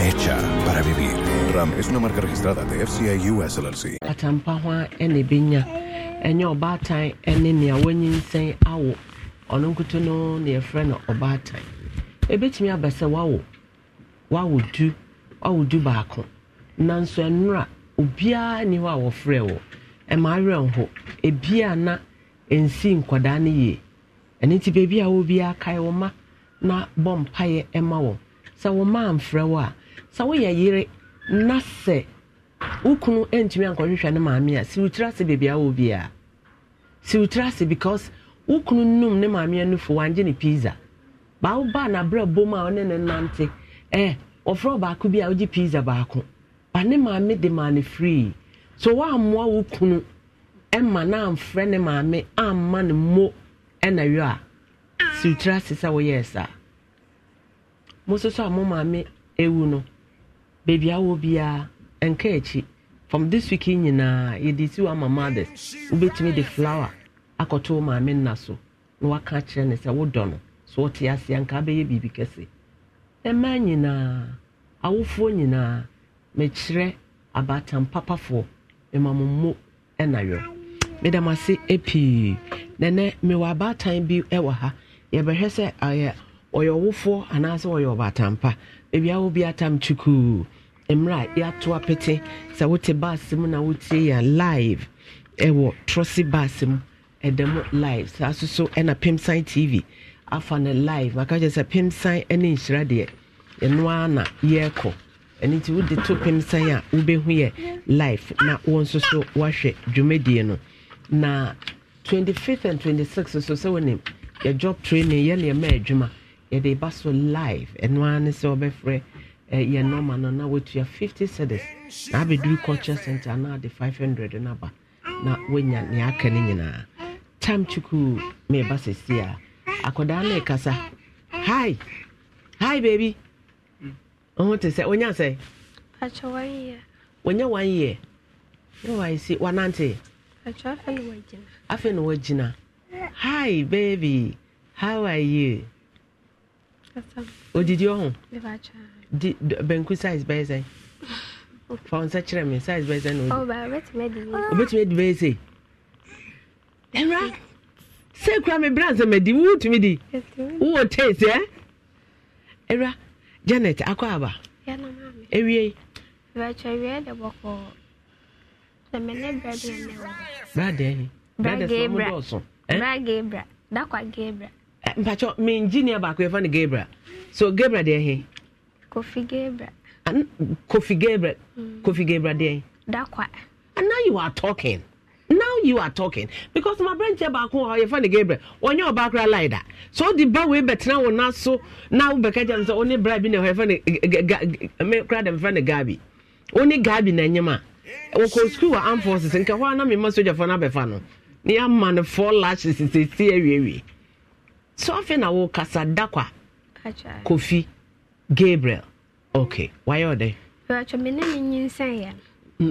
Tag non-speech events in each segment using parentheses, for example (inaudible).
hecha para vivir. Ram es una marca registrada de FCI US LLC. Atampa ho ene benya. Enye obaatan ene nea wanyinsen awo. Ono nkuto no na yefrɛ no obaatan. wawo. Wawo du. Wawo du baako. Nanso nnora obiara ni hɔ a wɔfrɛ wɔ. Ɛma na nsi nkwadaa no yie. Ɛno nti beebi a na bɔ mpaeɛ ma wɔn. Sɛ wɔn sɛ woyɛ yere na sɛ wo kunu ntumi ankɔhwehwɛ ne maame a siwotiri ase beebi a wɔ biara siwotiri ase because wo num ne maame anufo wangye ne pizza baawo baa n'abrɛ bom a ɔne ne nante eh wɔfrɛ baako bi a wogye pizza baako ba ne maame de maa free so wɔammoa wo kunu ɛma na amfrɛ ne maame amma ne mo ɛna yɔ a siwotiri ase sɛ woyɛɛ saa mo nso so a mo maame ewu no baabi awɔ biara nka akyi from this week nyinaa yɛde si wɔ ama mothers wobɛtumi de flower akɔto wo maame nna so na waka akyerɛ no sɛ wodɔ no so wote aseɛ nka abɛyɛ biribi kɛse mmaa nyinaa awofoɔ nyinaa mekyerɛ abaatan papafoɔ mmamommo ɛna yɔ medam ase pii nɛnɛ mewɔ abaatan bi wɔ ha yɛbɛhwɛ sɛ ɔyɛ ɔyɛ ɔwofoɔ anaasɛ ɔyɛ ɔbaatan pa baabi awo bi atam kyukuu mmerɛ a yɛato apete sɛ wote baase mu na wotie yɛn live ɛwɔ trɔse baase mu ɛda mu live saa so so ɛna pemsan tv afa no live maka kyerɛ sɛ pemsan ne nhyira deɛ ɛno ara na yɛrekɔ ɛno nti wode to pemsan a wobɛhu yɛ live na wɔn nso so woahwɛ dwumadie no na 25th and 26th so sɛ wonim yɛ job training yɛne ɛma adwuma yɛde ba so live ɛno ara ne sɛ wɔbɛfrɛ ɛyɛ nɔma no na watua 50 cedis na abɛduru culture center na ade 500 no aba na wanya nea aka no nyinaa tam kyukuu meba sɛsie a akwadaa no ɛkasa hi hi baabi mm. ɔho te sɛ wonya sɛ wanya one year na wae si wanante afei na wagyina hi baby how are you odidi ɔho di benku size bɛyɛ sɛ fa wo nsa kyerɛ me size bɛyɛ sɛ na oh, obɛtumi adi bɛyɛ sɛ ɛwura sɛ kura me bra nsɛ madi wowotumi di wowɔ tase ɛ ɛwura janet akɔ aba ɛwie bradeɛ bradeɛ dɔɔso mpakyɛ me engineer baako yɛfa no gabra so gabra deɛ he Kofi Gabriel. Kofi Gabriel. Hmm. Kofi Gabriel there. Dakwa. And now you are talking. Now you are talking because my branch back home, you find Gabriel. On your back like that. So the boy we bet now on so now because I'm the only bribe in your friend. Eh, eh, eh, me crowd and friend Gabi. Only Gabi na nyama. school arm forces nka hɔ a na mema sogyafoɔ no abɛfa no na yɛama no four lashes sesiesie So sɛ ɔfe na wokasa da kwa kofi gabriel okay. Why are they? ok wayɛ ɔdɛ bɛtwɛ me ne ne nyinsɛn yɛ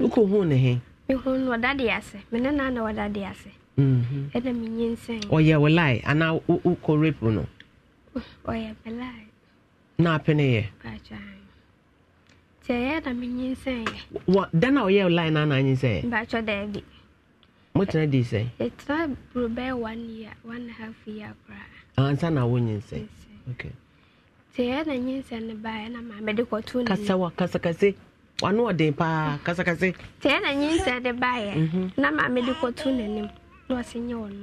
wokɔhu ne he mehu no ɔdade ase me ne naa na ɔdade ase ɛna menyinsɛn ɔyɛ wo lae anaa wokɔ rape no ɔyɛ me lae na apene yɛ nti ɛyɛ na menyinsɛn yɛ da na ɔyɛ wo lae na anaa nyinsɛn yɛ bɛtwɛ daabi motena di sɛ yɛtena buro bɛyɛ one year one half year koraa ansa na wonyinsɛn okay sɛ ɛyɛ na nyɛ nsɛm ne baa ɛna maa mɛde kɔto ne kasa wa kasakase wano ɔden paa kasakase sɛ ɛyɛ mhm. na nyɛ nsɛm de baa yɛ na maa mɛde kɔto n'anim na ɔsɛ nyɛ wɔn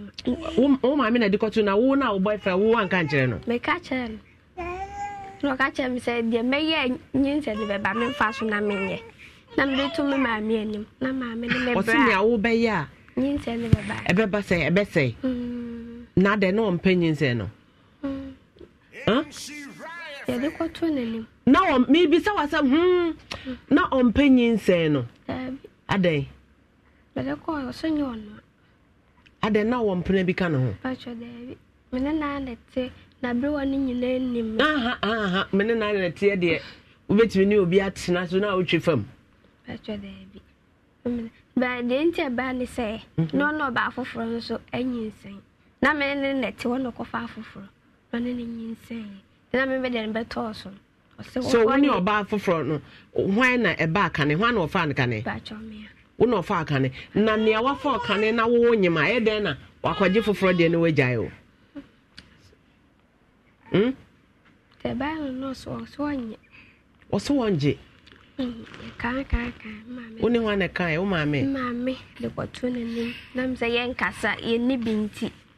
no. wo maame na de kɔto na wo na wo boyfriend wo anka nkyerɛ no. mɛka kyerɛ no na ɔka kyerɛ mi sɛ deɛ mɛyɛ nyɛ nsɛm de bɛba mi nfa so na mi nyɛ na mɛde to mi maame anim na maame ne mɛbra ɔsi nea wo bɛyɛ a nyɛ nsɛm de bɛba ɛbɛba sɛ ɛbɛsɛ mm. na de na ɔmpɛ nyɛ nsɛm no. Mm. yɛde n'anim na ɔm mebisa wasɛ hmm na ɔmpɛ nyinsɛn no adɛn adɛn na wɔmpena bi ka ne ho mene na ne teɛ deɛ wobɛtumi ne obi atena so na wotwe fam baa deɛ nti ɛbaa ne sɛ mhm. na nso na mene ne wɔ na afoforɔ ɔne ne na me bɛdeɛ no bɛtɔɔ so so wo ne ɔbaa foforɔ no hwan na ɛba akane hwan na ɔfa akane wo na ɔfa akane na nea wafa ɔkane na wowɔ nyima ɛyɛ dɛn na wakɔgye foforɔ deɛ ne wagyae o hmm? ɔso wɔngye wo ne hwan na kae wo maame maame de kɔto n'anim na m sɛ yɛnkasa yɛnni bi nti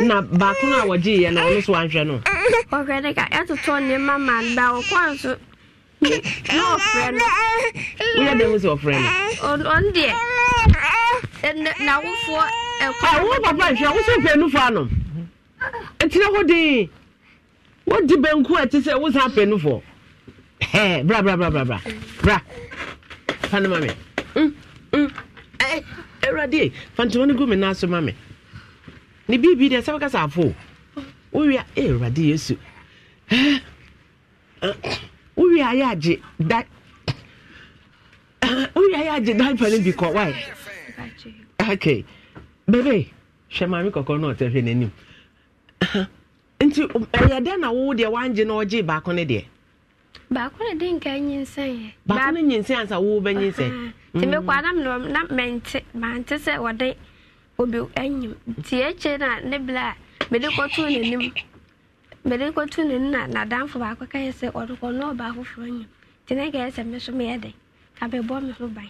na baako na a wɔgye yɛ no ɔno so wanhwɛ no ɔhwɛ de ka ɛtotɔ nneɛma ma da ɔkɔa so na ɔfrɛ no woyɛ dɛn wo sɛ ɔfrɛ no ɔno deɛ nawofoɔ wo papa nhwɛ wo so mfɛ ɛtina hɔ den wodi banku a ɛte sɛ wo sa apɛ bra bra bra bra bra bra fa no ma me mm, mm. gu ma ne biribi deɛ sɛ wokasa afo wowia eh, awurade yesu eh, wowia ayɛ agye da eh, wowia ayɛ agye daipa no bi kɔ wae okay bebe hwɛ maame kɔkɔɔ no ɔtɛ hwɛ n'anim nti um, ɛyɛ dɛn na wo deɛ wangye na ɔgye baako ne deɛ baako ne de nka nyinsɛn yɛ baako ne nyinsɛn ansa wo bɛ nyinsɛn nti mm. mekɔ adam na mente mante sɛ wɔde obi anyim tie ekyir na ne bla mede kɔtu n'anim mede kɔtu n'anim na n'adamfo baako ka yɛ sɛ ɔde kɔ na ɔbaa foforɔ anyim nti ne ka yɛ sɛ me so meyɛ dɛ abɛbɔ me ho ban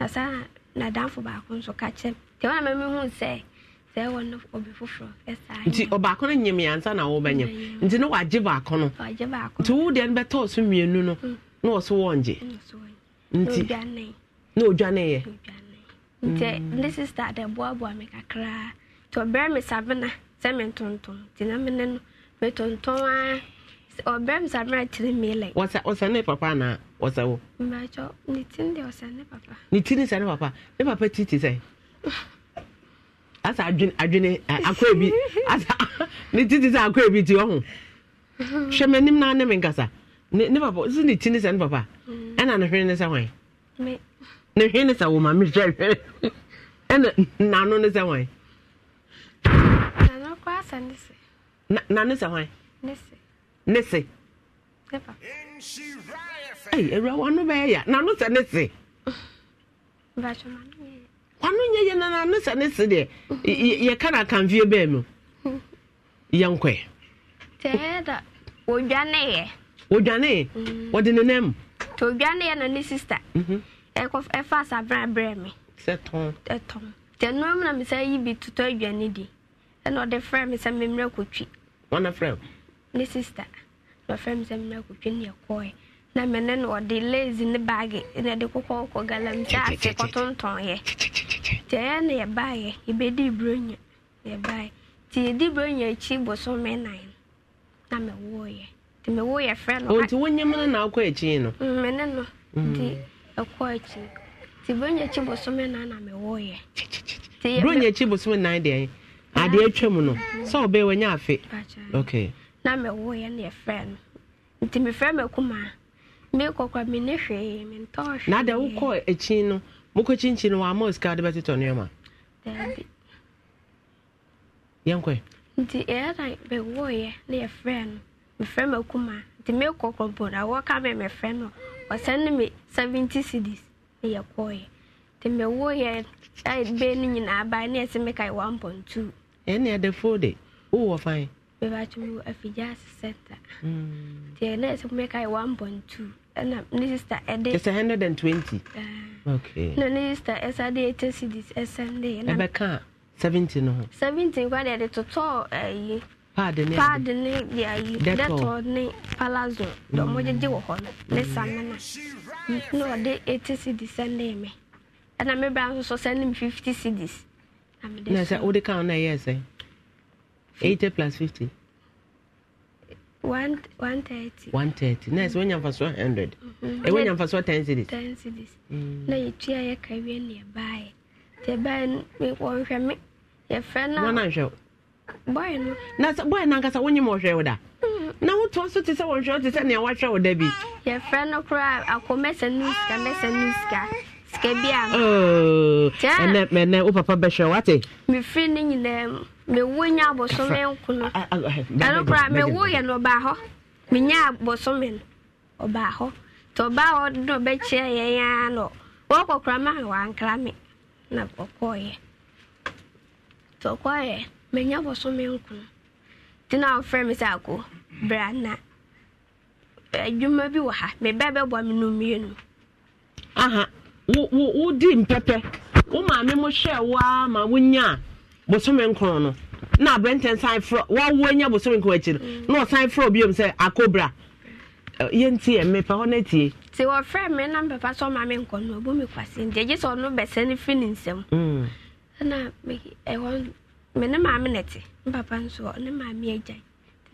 na saa n'adamfo baako nso ka kyerɛ nti wɔn a mɛmi hu sɛ sɛ ɛwɔ no obi foforɔ ɛsaa nti ɔbaako no nyim yansa na wɔbɛnyim nti ne wagye baako no wagye baako nti wo deɛ no bɛtɔɔ so mmienu no mm. na ɔso wɔngye nti na odwa ne yɛ. nti mm. ne sista de boaboa me kakraa nti ɔbrɛ me sabena sɛ mentontom nti na mene no metontɔn a ɔbrɛ me sabena kyerɛ mele ɔsɛ ne papa na ɔsɛ wo mbakyɛ ne tin deɛ ɔsɛ ne papa ne tin ne sɛ ne papa ne papa ti te sɛ asa adwene adwene akɔɛ bi asa (laughs) ne ti te sɛ akɔɛ bi ti ɔho hwɛ m'anim na ne me nkasa ne papa sɛ ne tin ne sɛ ne papa mm. ɛna ne hwene ne sɛ hwan ne hwee ne sɛ wo maame hwɛ hwɛ ɛna nano ne sɛ wan nano kɔ asa ne se na nano sɛ wan ne se ne se ne papa ɛyi awura wano bɛyɛ ya nano sɛ ne se bàtò mano yɛ wano nyɛ yɛ na nano sɛ ne se deɛ yɛ ka na kanfie bɛɛ mu yɛn kɔɛ tɛɛ da wodwane yɛ wodwane mm. wɔde ne nan mu todwane yɛ na ne sista. Mm -hmm. ɛfa asabran brɛ me ɛtɔn nti ɛnura mu na mi sɛ yi bi tutɔ aduane di ɛna ɔde frɛ mi sɛ mmerɛ kotwi wɔn na frɛ o ne sista na ɔfrɛ mi sɛ mmerɛ kotwi ne ɛkɔɛ na ɔde ne baagi na ɛde kɔ galamsey ase kɔtontɔn yɛ ɛyɛ na yɛ yɛ yɛdi nan na yɛ yɛ frɛ no. o wɔn nyɛ na akɔ no. Mm, no ɛkɔ akyi nti buronya akyi na na mewɔyɛ buronya nan deɛ adeɛ no sɛ wanya afe na mewɔyɛ na yɛfrɛ no nti mefrɛ makuma mekɔkora menne hwee mentɔɔ hwee na wokɔ akyi no mokɔ kyinkyi no wɔama sika de bɛtotɔ nneɔma daabi nti na mewɔyɛ na yɛfrɛ no mefrɛ makuma nti na wɔka me mefrɛ no wɔsɛn me seventy CDs. na yɛkɔɔyɛ nti mewɔ yɛ bɛɛ no nyinaa baa ne yɛsɛ meka yɛ one point two ɛne ɛde fo de wowɔ fan mebato mu afigya ase center mm. nti ɛne yɛsɛ meka yɛ one point two ɛna ne sister ɛde ɛsɛ hundred and twenty ah. okay No, ne sister ɛsa de eighty cedis ɛsɛn de ɛbɛka seventy no ho What are the total? pad ne pad ne deɛ ayi detol ne palazzo deɛ wɔ hɔ no ne samena na ɔde eighty cedis sɛndee me ɛna me bra nso sɛnde me fifty cedis na sɛ wode ka no ɛyɛ sɛ eighty plus fifty one thirty one thirty na ɛsɛ wonya mfasoɔ hundred ɛwɔ mm-hmm. eh, nya mfasoɔ ten cedis ten cedis mm. na yɛtua yɛka wie ne yɛbaeɛ nti ɛbaeɛ no wɔnhwɛ me yɛfrɛ no wɔnanhwɛ na boy na nkasa wonyim ɔhwɛ wo da mm. na wotoa so te sɛ wɔhwɛ wo te sɛ nea woahwɛ wo da bi yɛfrɛ no akɔmɛsɛ no sika mɛsɛ no sika sika bi a oh, ɛnɛ wo papa bɛhwɛ wate mefiri no nyinaa mu mewo nya abɔsome nkono ɛno koraa mewo yɛ no ɔbaa hɔ menya abɔsome no ɔbaa hɔ nti ɔbaa hɔ no ɔbɛkyerɛ yɛn ara no wɔkɔkora ma wankra me na ɔkɔɔyɛ nti ɔkɔɔyɛ menya bɔso menko nti na ɔfrɛ me sɛ ako bra na adwuma bi wɔ ha meba bɛboa me no mmienu aha wodi mpɛpɛ wo maame mo hwɛ ma wonya a bosome no na aberɛntɛn san frɛ wawo anya bosome nkron akyiri mm. na ɔsan sɛ hɔ me na me nkɔ no ɔbɔ me sɛ ɔno bɛsɛ ne nsɛm mm. ɛhɔ me ne maame na ɛte ne papa nso ne maame agya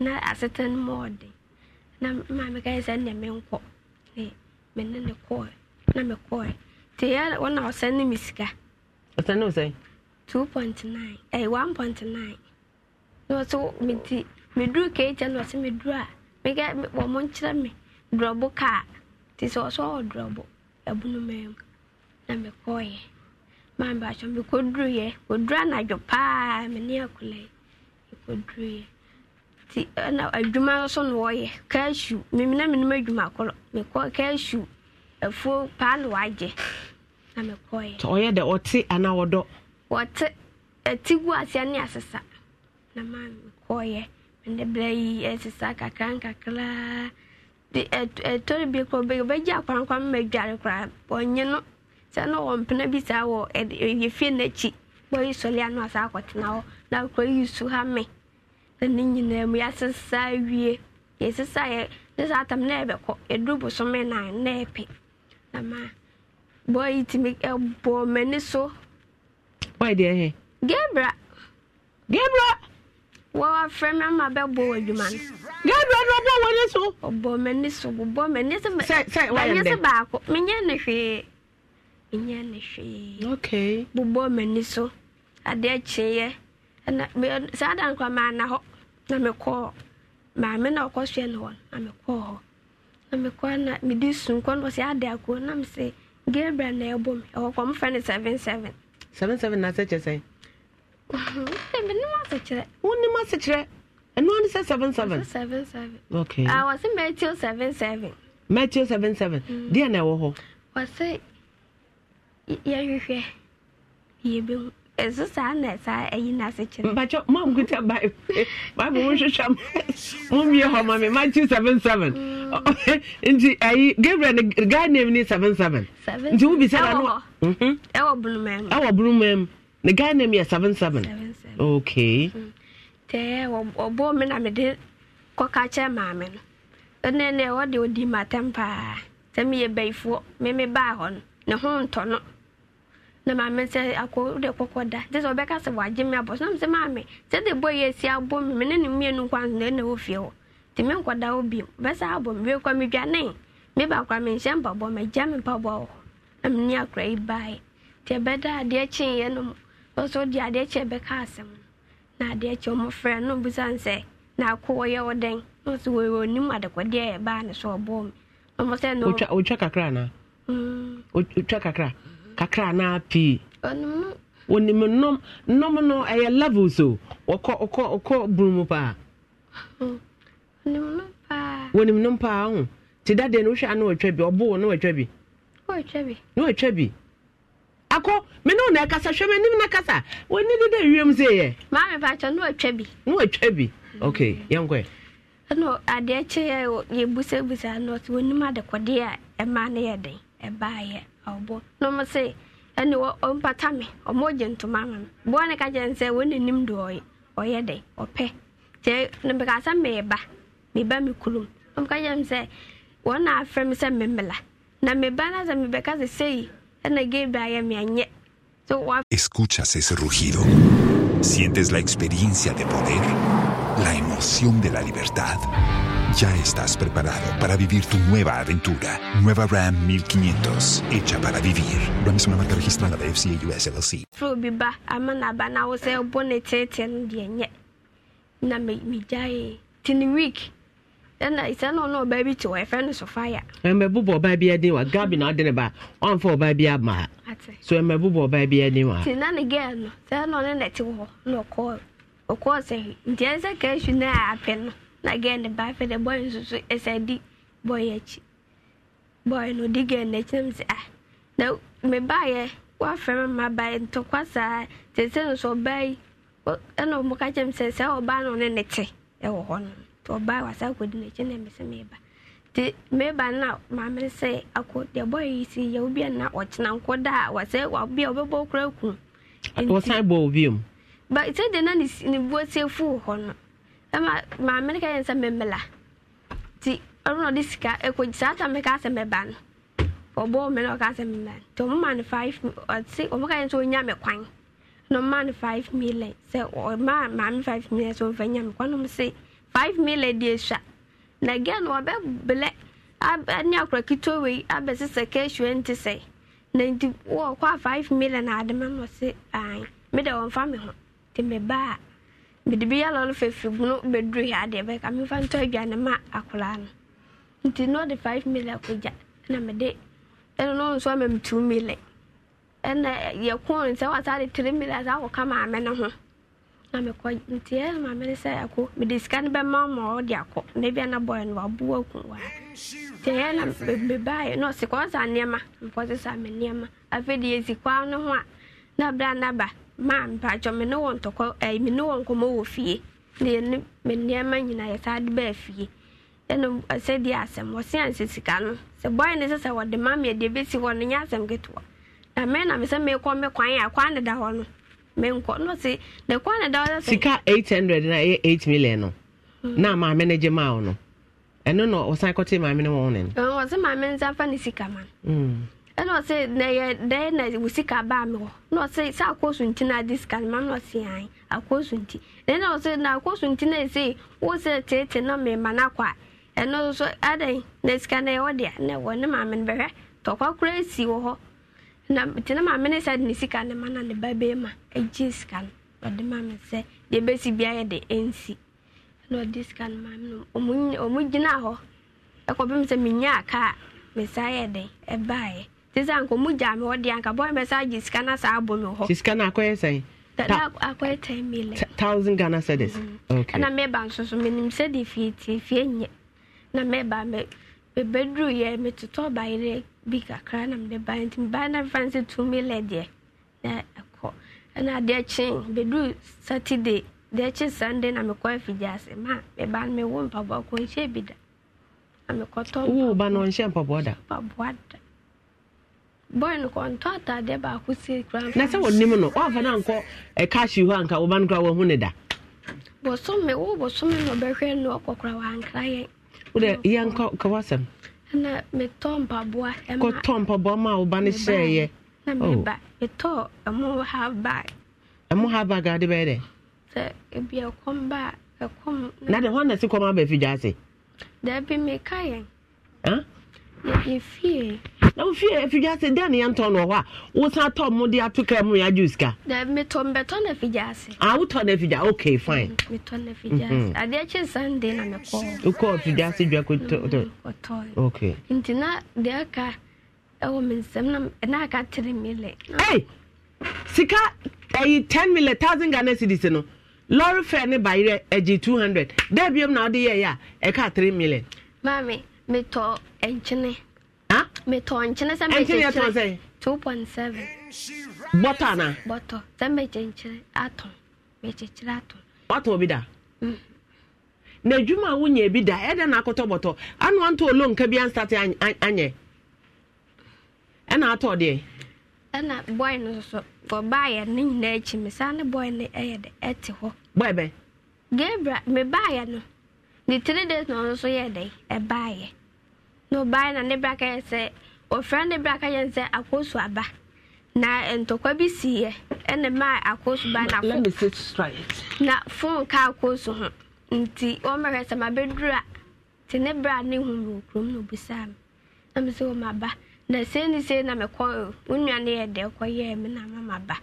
na aseta no mu ɔden na maame ka yɛ sɛ ne menkɔ ne me ne ne kɔɛ na me kɔɛ te yɛ wɔn a ɔsɛn ne me sika. ɔsɛn ne ɔsɛn. two point nine ɛyɛ one point nine na ɔsɛ me ti me duru keekyɛ na ɔsɛ me duru a me ka wɔn mo nkyerɛ me durɔbo kaa te sɛ ɔsɛ ɔwɔ durɔbo ɛbunu mɛm na me kɔɛ maa mi baakyɛ mi koduru yɛ koduru anadwo paa mi ne akula yɛ mi koduru yɛ ti ɛna adwuma nso na wɔyɛ kɛɛsu mimi na mi nim adwuma korɔ mi kɔ kɛɛsu efuo paano wagye na mi kɔ yɛ. ɔyɛ dɛ ɔte anaa ɔdɔ. wɔte eti gu aseɛ ne asesa na maa mi kɔ yɛ mi de bla yi ɛsesa kakra nkakra de ɛtɔri bi kɔ bɛgye akwankwan mi ma dware koraa ɔnye no. sɛ na ɔwɔ mpena bi saa wɔ yɛfie n'akyi bɔyi sɔle ano asa akɔtena hɔ na su ha me na ne nyinaa mu yɛasesa awie yɛsesa yɛ ne atam na yɛbɛkɔ yɛduru bụ nan na epe na ma bɔyi tumi ɛbɔ m'ani so. deɛ gebra. gebra. wɔfrɛ me ama bɛbɔ wɔ adwuma no. na ɔbɔ so. ɔbɔ m'ani so ɛnyɛ ne hwee bobɔ m'ani so adeɛ kyeeɛ saa da nkwa maana hɔ na mekɔɔ maame na ɔkɔ soɛ no hɔ na mekɔɔ hɔ na mekɔ na mede sunkɔ no ɔsɛ ade akoo na mese gabriel na ɛbɔ me ɛwɔ kɔ mfrɛ no seven seven seven seven na sɛkyɛ sɛn (laughs) menem asekyerɛ wonim asekyerɛ ɛno ane sɛ seven seven seven seven okay. uh, wɔ se seven seven matthew seven seven deɛ na ɛwɔ hɔ wɔ yɛhwehwɛ yɛbɛhu ɛso saa na saa ɛyi n'ase kyerɛ. mpatsɔ mam kuta baibu baibu mo nhwehwɛ mo mmie hɔ ma e, mi matthew seven seven mm. nti ayi gabriel ni guy name ni seven seven nti e wo bisa na no ɛwɔ bulumɛm ne guy name yɛ seven seven okay. Mm. tɛɛ ɔbɔ e mi na mi de kɔka kyerɛ maame no ɛnɛ nɛ ɔde odi ma tɛm paa sɛ mi yɛ bɛyifoɔ mi mi baa hɔ no ne ho ntɔ no na maame sɛ akɔ wode kɔkɔ da nti sɛ ɔbɛka sɛ wagye me abɔ so na mesɛ maame sɛ de bɔ yɛ asi abɔ me me ne ne mmienu nkwa so na ɛna wɔ fie hɔ nti menkɔda wo bio bɛsɛ abɔ me wiekɔ medwane mebakora menhyɛ mpabɔ magya me mpaboa wɔ hɔ na menni akora yi baeɛ nti ɛbɛda adeɛ kyeeɛ no mu ɔsɛ wode adeɛ kyɛ bɛka asɛm no na adeɛ kyɛ ɔmɔfrɛ no obusane sɛ na akɔ wɔyɛ wo dɛn na ɔsɛ wɔwɔ nim adekɔdeɛ ɛbaa ne so ɔbɔɔ me ɔmɔ sɛ no wotwa kakra anaa mm. wotwa kakra kakra na pii onim nnɔm nnɔm no ɛyɛ levels o ɔkɔ ɔkɔ ɔkɔ bunu mu paa onim nnɔm paa ho te da deɛ no wohwɛ a na wɔatwa bi ɔboo bi no wɔatwa bi akɔ me ne na ɛkasa hwɛ m'anim na kasa wɔni de dɛ wiem sɛ yɛ maame pakyɛ na bi na bi okay mm. yɛnkɔɛ ɛna adeɛ yɛ adekɔdeɛ a no yɛ den no na ɔmo ɛne ɔmpata me ɔmo gye ntoma ama me boa ne ka kyerɛ sɛ nim nanim de ɔyɛ ɔyɛ dɛ ɔpɛ kyɛ na mbɛka sɛ mɛɛba mɛba me kurom ɔmo ka kyerɛ sɛ wɔn na afrɛ me sɛ mɛmela na mɛba na sɛ mɛbɛka sɛ sei ɛna gebra yɛ me anyɛ so escuchas ese rugido sientes la experiencia de poder la emoción de la libertad. Ya estás preparado para vivir tu nueva aventura. Nueva Ram 1500, hecha para vivir. Ram es una marca registrada de FCA US LLC. na girl no ba afei dɛ boy nso so ɛsɛ di boy akyi boy no di girl n'akyi na sɛ ah na ba yɛ ma ba yɛ ntɔkwa saa te sɛ nso yi ɛna ɔmo ka sɛ sɛ no ne ne te ɛwɔ hɔ no na sɛ ba na maame sɛ akɔ deɛ yi si yɛ obi a na ɔkyena nkɔ da a wasɛ obi a ɔbɛbɔ okura kun. wɔsan bɔ maame no ka yɛn sɛ memmela nti ɔno na ɔde sika ɛkɔgyi saa ta meka sɛ mɛba no ɔbɔɔ me na ɔka sɛ mɛba no nti ɔmoma no five ɔse ɔmo ka yɛn sɛ ɔnya me kwan na ɔmoma no five million sɛ ɔma maame five million sɛ ɔmfa nya me kwan nom se five million deɛ sua na gɛn no ɔbɛbelɛ ne akora ketewa wei abɛse sɛ kɛsua nti sɛ na nti wɔkɔ a five million na ade ma no ɔse ae mede ɔmfa me ho nti mebaa mede bi yala ɔno fɛfiribunu bɛduru hɛ adeɛ bɛka mefa ntɔ aduane ma akoraa no nti na ɔde five mili akɔgya na mede ɛno no nso ama me mili ɛna yɛkoo no sɛ wasa de three mili asa akɔka maame no ho na mekɔ nti ɛna maame no sɛ ɛko mede sika no bɛma ma ɔde akɔ na bia na bɔɛ no wabu aku wa nti ɛyɛ na mebaeɛ na ɔse kɔ nneɛma mepɔ se me nneɛma afei de yɛsi kwaa no ho a na berɛ na ba. maa mpakyɛ eh, me ne wɔ ntɔkɔ ɛyi me ne wɔ nkɔmɔ wɔ fie na yɛ ne me nneɛma eh, nyinaa yɛsaa de bɛɛ fie ɛna ɛsɛ deɛ asɛm wɔsi ansɛ sika no sɛ bɔyɛ ne sɛ sɛ wɔde ma mi ɛde ebesi hɔ no nyɛ asɛm ketewa na mɛ na mesɛ mekɔ me kwan a kwan deda hɔ no menkɔ no si na kwan deda hɔ sɛ. sika eight hundred na ɛyɛ eight million no hmm. na maame ne gye maa no ɛno na ɔsan kɔte maame ne wɔn ne no. wɔn sɛ maame nsa fa ne sika ma no. Hmm. ɛna na yɛ dɛɛ na wusi ka baa mi hɔ na ɔsɛ sɛ akɔsu na adi sika ma na ɔsɛ yan akɔsu nti ɛna na akɔsu nti na ɛsɛ wosɛ tete na mɛma na kɔ a ɛno nso adan na sika na yɛ na ne maame no bɛhwɛ tɔkwa kura esi wɔ hɔ na te na maame sɛ de ne sika ne ma na ne ba bɛɛ ma egye sika no na te sɛ anka mu gya me hɔ deɛ anka bɔn bɛsa agye sika na saa abɔ me hɔ sika no akɔyɛ sɛn akɔyɛ 10 million thousand ghana cedis ɛna mm. meba nso so menim sɛde fie tie fie nyɛ na meba me yɛ metotɔ bayerɛ bi kakra na mede ba nti meba na mfa sɛ 2 million deɛ na ɛkɔ ɛna adeɛ kye bɛduru saturday deɛ kye sunday na mekɔ afigyaase ma meba no mewo mpaboa kɔnhyɛ e bi da na mekɔtɔ wo ba no ɔnhyɛ mpaboa da mpaboa da boy no kɔ ntɔ ataadeɛ baako si kura. na sɛ wɔnim no wɔafa no ankɔ ɛkaahye hɔ anka wɔba no kora wɔhu ne da. bɔsɔmi wo bɔsɔmi na ɔbɛhwɛ no ɔkɔkora wankra yɛn. wodɛ yɛnkɔ kɔwɔ sɛm. ɛna metɔ mpaboa. kɔtɔ mpaboa ma woba no hyɛɛyɛ. na meba metɔ ɛmo ha bag. ɛmo ha bag ade bɛyɛ dɛ. sɛ ebi ɛkɔm ba ɛkɔm. na de hɔn na si kɔm abɛfi gya ase. dɛbi meka yɛn yɛ fie na wo fie afidwa ase dɛn ne yɛntɔ no hɔ a wosan tɔ mo de ato kaa mu yɛagye sika metɔ mbɛtɔ no afidwa ase a ah, wotɔ no afidwa ok fine mm, metɔ no afidwa ase mm-hmm. adeɛ kye sunday na mi mekɔ wokɔ afidwa ase dwa kɔtɔ mm, ok nti na deɛ aka ɛwɔ mi nsɛm na na aka tere mele ei sika ɛyi ten mele thousand ghana cedis no lɔre fare ne bayerɛ agye two hundred dɛ biom na wode yɛyɛ a ɛka three million maame metɔ nkyene. metɔ nkyene sɛ mɛkyɛ two point seven. bɔtɔ ana. bɔtɔ sɛ mɛkyɛ nkyene atɔn mɛkyɛ nkyene atɔn. watɔ mm. bi da. na adwuma a wonyɛ bi da ɛdɛ na akɔtɔ bɔtɔ anu anto olo kabi bi ansate anyɛ ɛna atɔ deɛ. ɛna bɔi no soso ɔbaayɛ ne nyinaa akyi mi saa ne bɔi no ɛyɛ dɛ ɛte hɔ. bɔi bɛ. gebra me baayɛ no ne three days na ɔno nso yɛ dɛ ɛbaayɛ. na ɔbaa na ne bra ka yɛ sɛ ɔfra ne bra ka yɛ sɛ akooso aba na ntụkwa bi si yɛ ɛna mmaa akooso ba na fo na fon ka akooso ho nti wɔmmɛhwɛ sɛ mabɛduru a te ne bra nihu hu wɔ kurom na obisaa me na me sɛ wɔ maba na sei ne sei na mekɔ wo nua ne yɛ dɛ ya me na ma maba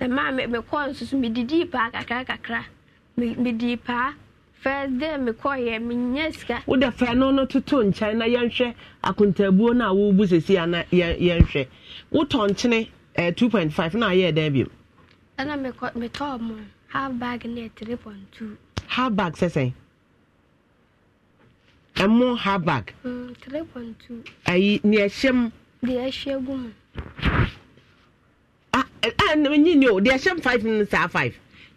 na maa mekɔɔ nso so medidii paa kakra kakra medii paa fɛ de mekɔyɛ menya sika wode fɛ no no toto nkyɛn na yɛnhwɛ akontaabuo no a wobu sesi ana yɛnhwɛ wotɔ nkyene eh, 2.5 na ayɛ dɛn bio ɛna metɔɔ mo half bag ne 3.2 half bag sɛ sɛn ɛmo half bag mm, 3.2 ayi ni ɛhyɛ m deɛ ɛhyɛ gu mu ah, ah, nyi ne o deɛ ɛhyɛ m 5 no saa 5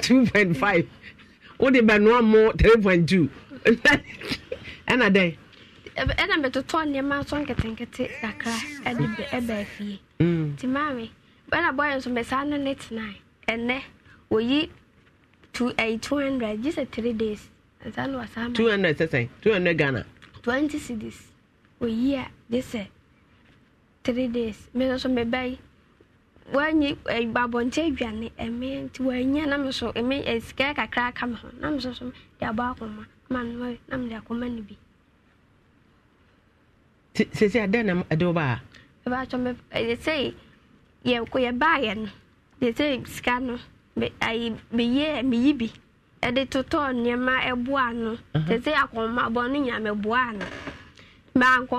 two point five o de bɛ nua mu three point two ɛna dɛ. ɛna mɛtotɔ nneɛma atɔ nketenkete kakra ɛde bɛ ɛbɛ fie nti maame ɛna bɔyɛ nso mɛ saa no ne tena ɛnɛ oyi two ɛyi eh, two hundred gye sɛ three days nsa no wasa ama. two hundred sɛsɛn two hundred ghana. twenty cedis oyi a gye sɛ three days mɛ nso mɛ bɛyi wanyi eh, babɔnkyɛ aduane ɛmɛ nti wanya na mi so ɛmɛ eh, sika kakra aka mi ho na mi so so de abɔ akoma ma mi wɔyɛ eh, na mi de akoma no bi. sisi adan na ɛde wo baa. ɛbɛ atwa mbɛ ɛde sɛ yɛ ko yɛ baa yɛ no de sɛ sika no ayi meyɛ meyi bi ɛde totɔ nneɛma ɛboa no de sɛ akoma bɔ no nyame boa no mɛ uh-huh. ankɔ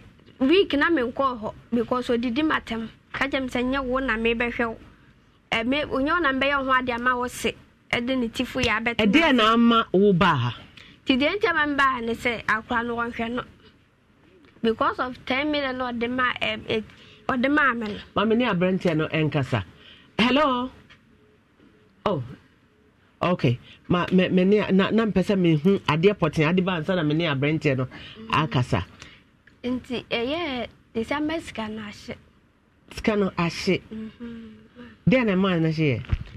no week na mi nkɔ hɔ because odidi ma tɛm ka gyem sɛ nyɛ wo na mebɛhwɛ wo ɛme onyɛ wo na mbɛyɛ ho ade ama wo se ɛde ne tifo yɛ abɛtena ɛdeɛ na ama wo baa ha nti deɛ nti ama mbaa ne sɛ akora no wɔnhwɛ no because of ten million na ɔde ma ɛ ɔde ma ame no. maame ne aberanteɛ no nkasa hello oh okay ma me me ne na na mpɛ sɛ mehu adeɛ pɔtɛn ade ba nsa na me ne aberanteɛ no akasa. nti ɛyɛ december sika na ahyɛ sika no ahye mhm. deɛ na ɛmaa no hyeɛ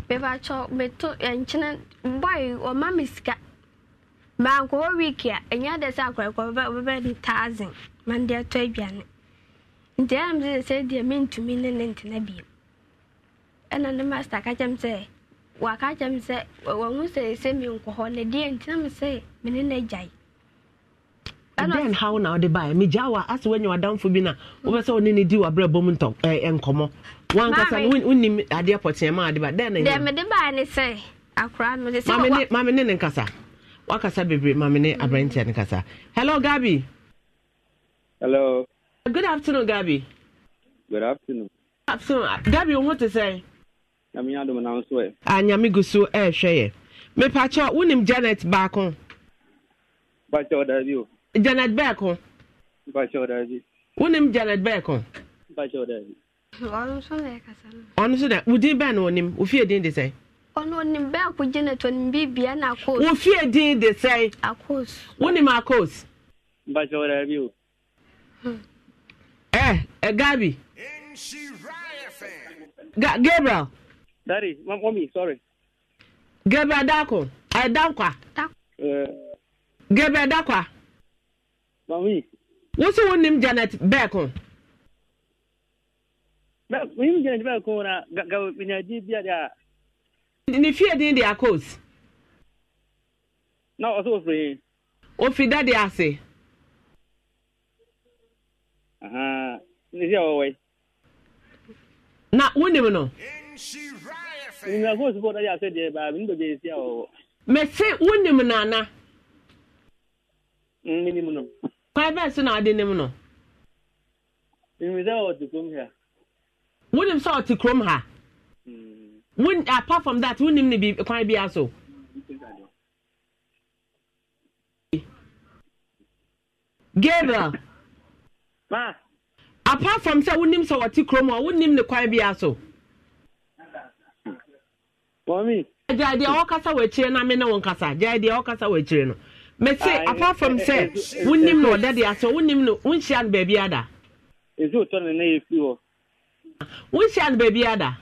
mebakyɛ meto nkyene boy ɔma me sika mankɔwɔ week a ɛnyɛ dɛ sɛ akɔɛkɔbɛbɛ ne thousand mande atɔ aduane nti ɛnam sɛ sɛ deɛ mentumi ne ne ntena biom ɛna ne master ka kyɛm sɛ waka kyɛm sɛ wahu sɛ sɛ menkɔ hɔ ne deɛ ntinam sɛ mene no agyae dan how na ɔde baɛ megyaa wa ase woanya wadamfo bi no wobɛ sɛ wone ne di wabrɛ bɔ mu ntɔ nkɔmmɔ wankasa a wonim adeɛ pɔteɛ ma ade ba dɛn na mede baɛ ne sɛ akora no mame ne ne nkasa wakasa bebree mame ne aberanteɛ ne kasa hello gabi hello good afternoon gabi good afternoon afternoon gabi wo ho te sɛ nyame adom na nso ɛ a ah, nyame gu so ɛɛhwɛ yɛ mepakyɛ wonim janet baako Pacho da bi janet beck ho wonim janet beck ho ɔno so da wo din bɛn na onim wofie din de sɛn ɔnonim bɛɛ ko gyina tɔ nim bibia na akos wofie din de sɛn akos wonim akos ɛ ɛgabi eh, eh, Ga Gabriel. Daddy, my mommy, sorry. Gabriel Dako. I Dakwa. Uh, eh. Gabriel Dakwa. Mami. Wọ́n sọ wọn ní Janet Bẹ́ẹ̀kùn. Wọ́n ní Janet Bẹ́ẹ̀kùn na gàgà bìnyànjú bí a dì a. Ní fíè dín di akos. Na ọsọ òfin yìí. Òfin dáadé ase. Ní sí àwọn wọ̀nyí. Na wọ́n ní mu nọ. Nyina kó sùpọ̀ dáadé ase deɛ baabi nígbà bẹ́ẹ̀ sí àwọn wọ̀. Mẹ̀sẹ̀ wọ́n ní mu nànà. Mímí ni mu private so na ade nim no. Mmiri sɛ ɔte kurom ha. Wunim sɛ ɔte kurom ha. Hmm. Wun apart from that wunim ne bi kwan bi aso. Gabriel. Ma. Apart from sɛ wunim sɛ ɔte kurom a wunim ne kwan bi aso. Mami. Gyaa deɛ ɔkasa wɔ akyire na me ne wɔn kasa gyaa deɛ ɔkasa wɔ akyire no mese apart from sɛ wonim na ɔda de asɛ wonim no eh. wonhyia no baabi ada ɛsɛ ɔtɔ ne na yɛfiri hɔ wonhyia no baabi ada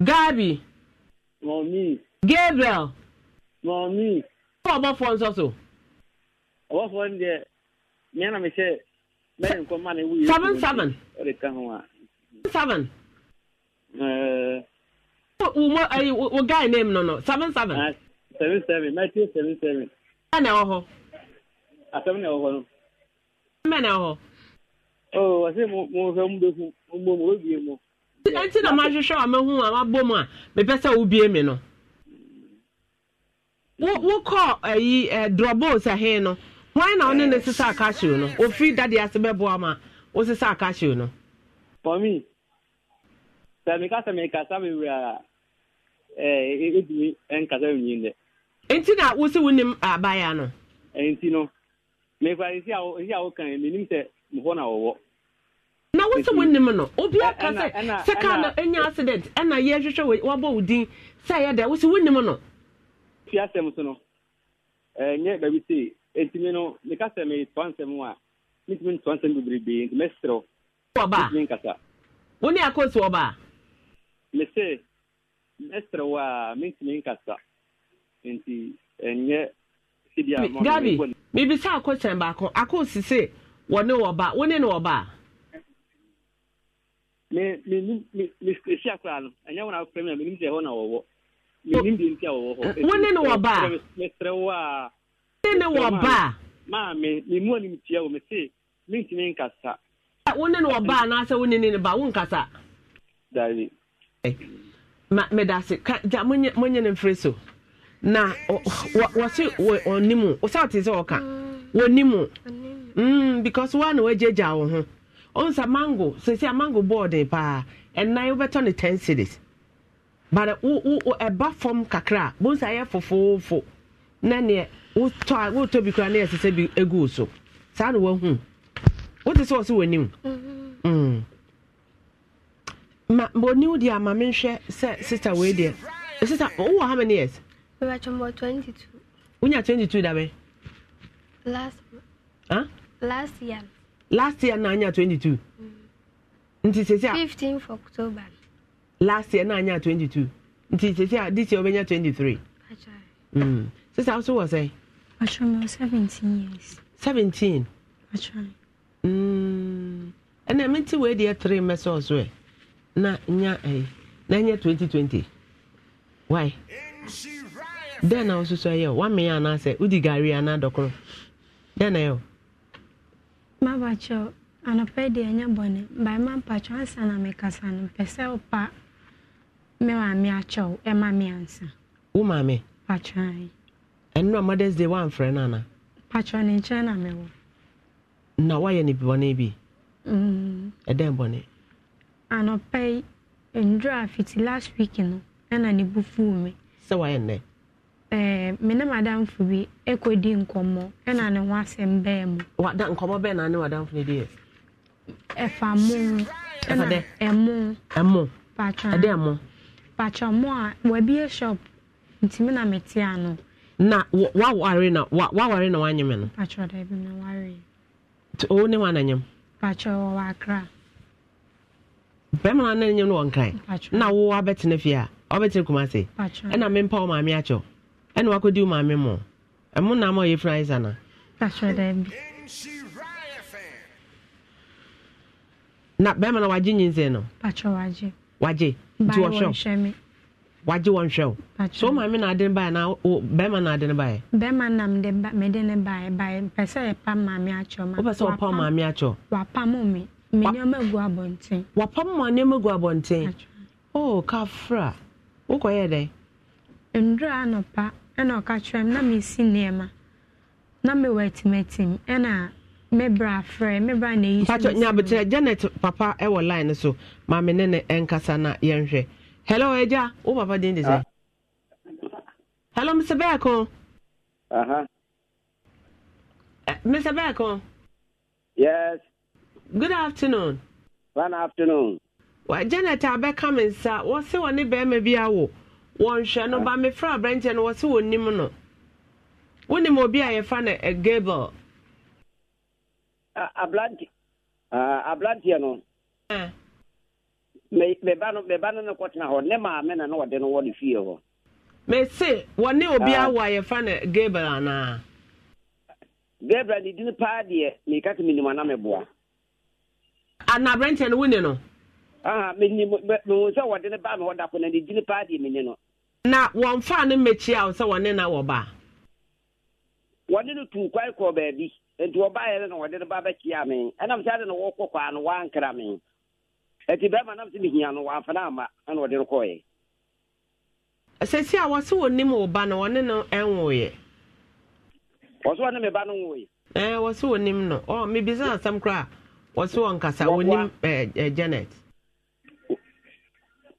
gabi mɔmi gabriel mɔmi wɔ ɔbɔfoɔ nso so ɔbɔfoɔ no deɛ mea na mehyɛ mɛre nkɔma na ɛwu seven seven seven uh, Eh, wo ayi wo guy name no no seven seven. Ah, seven seven matthew seven seven. ẹ na ẹwọ hɔ. asẹmu na ẹwọ mbẹ na ẹwọ hɔ. ọ wàsí mo mo fẹ mu bẹ fún mo mo bẹ mu. ẹntì na máa hwehwẹ àmì hu àmà bọ mu a mẹpẹ sẹ wo bie mi no. wo wo kọ ẹyi ẹ drọbos ẹhin no wọn na ọne ne eh. sisa akasio no ofi dade ase bẹ bọ ama o sisa akasio no. for me sẹmi kasa mi kasa mi wura. ɛdumi eh, e, e nkasa wiyin e dɛ. nti na wosi wo nim abaayewa no. Eh, nti no mekura esi awo esi a wokan mi nim sɛ mɔfɔ na wɔwɔ. na wosi wo nim no obi eh, aka sɛ sɛ kaa no enya accident ɛna yɛhwehwɛ wabɔ wo din sɛ ɛyɛ dɛ wosi wo nim no. fi asɛm so no ɛɛ nye baabi se etimi no meka sɛ mi tɔ nsɛm a mi tumi tɔ nsɛm bebrebe nti mɛ serew. wɔba wo ne akɔsi wɔba. mese. mestre wa min tumi nka sa nti ɛnyɛ sidi a mɔ gabi bibisa akɔsɛn baako akɔsise wɔne wɔba wɔne ne wɔba. me me nim me me si akora no ɛnyɛ wɔn akɔfrɛ mi a me nim sɛ ɛhɔ na wɔwɔ me nim deɛ nti a wɔwɔ hɔ. Eh, wɔne ne wɔba mestre wa. wɔne ne wɔba. maame me mu anim tia wɔ me se min tumi nka sa. wɔne ne wɔba anaasɛ medase gya monyɛ ne mfiri so na wɔse ɔnim sɛ ɔte sɛ ɔka mm. wɔnim mm, because wa na gya wo ho ɔhu sa mango sɛsi a mango bɔɔden paa ɛnan wobɛtɔ ne 10 cities but ɛba fam kakra a bohu sa ɛyɛ fofoofo na neɛ wotɔ a wotɔ bi koraa na yɛsɛ sɛ bi ɛgu so saa na woahu wote sɛ ɔ sɛ wɔnim mm-hmm. mm. ma bɔni wo deɛ ama me nhwɛ sɛ sister wei deɛ eh, sister wowɔ how many years mebɛtwɛmbɔ 22 wonya 22 da bɛn last huh? last year last year na anya 22 mm. nti sɛsi a Fifteen th october last year na anya 22 nti sɛsi a this year wobɛnya 23 mm. sister wo so wɔ sɛn matwɛmbɔ seventeen years 17 matwɛn mm. ɛnna mente wei deɛ 3 mɛsɛ ɔso ɛ na nya ɛyɛ eh, na twenty twenty why den na wososo yɛ wamea anaasɛ wodi gari anaa dɔkoro dɛn na yɛ. mabakyɛw anɔpɛ deɛ ɛnyɛ bɔne bae ma ansa na mekasa eh. no mpɛ sɛ wopa me maame akyɛw ɛma me ansa wo maame pakyɛe mothers day na na eh, bi ɛdɛn anɔpa yi fiti last week no ɛna ne bu fuu mi. sɛ wayɛ nnɛ. ɛɛ me ne bi ekɔdi nkɔmɔ ɛna ne ho asɛm bɛɛ mu. wada nkɔmɔ bɛɛ na ne wadamfo ne deɛ. ɛfa mu ɛna ɛmu. ɛmu patwa ɛde ɛmu. mu a shop ntumi na me ano. na waware na waware na no. na o ne wa na bɛrima no nyɛ no wɔ nkran na wo abɛtena fie a ɔbɛtena kuma se ɛna mempa wo maame akyɛw ɛna wakɔdi wo maame mmɔ ɛmo nam a ɔyɛ fira isa na na bɛrima no wagye nyinsɛn no wagye nti wɔhwɛw wagye wɔn hwɛw so wo maame na ade no baeɛ na bɛrima na ade no baeɛ bɛrima nam de mede ne baeɛ baeɛ pɛ sɛ yɛpam maame akyɛw wopɛ sɛ wɔpa wo maame akyɛw wapam ma nneɛma gu abɔnten o oh, kafra wokɔyɛ dɛn ndura anɔpa ɛna ɔka kyerɛ m na mesi nneɛma na mewɔ atimatim ɛna mebra frɛ mebra na ɛyi mpakyɛ nyabekyerɛ janet papa ɛwɔ line no so maame ne ne ɛnkasa na yɛnhwɛ hello agya wo papa din de sɛ ah. hello mr bɛɛko mr bɛɛko yes good afternoon. good afternoon. Well, janet abɛka mi nsa wɔsi wɔ ne bɛrima bi awo wɔn hwɛ no ba mi fura abirante no wɔsi wɔ nim no wonim obi a yɛfa eh, no gable. aberante aberanteɛ no. meba no meba no ne kɔtena hɔ ne maame na ne wɔde no wɔ ne fie hɔ. mese wɔne obi ah. awo a yɛfa no gable anaa. gable ne din paa deɛ meka sɛ menim ana meboa. ana aberɛnteɛ ah, no ne no menim mehu sɛ wɔde no baa ma wɔda po na ne ndị paa deɛ menni no na wɔmfaa no mmɛkyia wo sɛ na wɔba wɔne no tuu kwan kɔɔ baabi nti wɔbaeɛ na wɔde ba bɛkyia me sɛ na wɔkɔ no bɛrima sɛ no ama ɛna wɔde sɛsi a ba wɔso wɔn nkasa wɔnim ɛɛ janet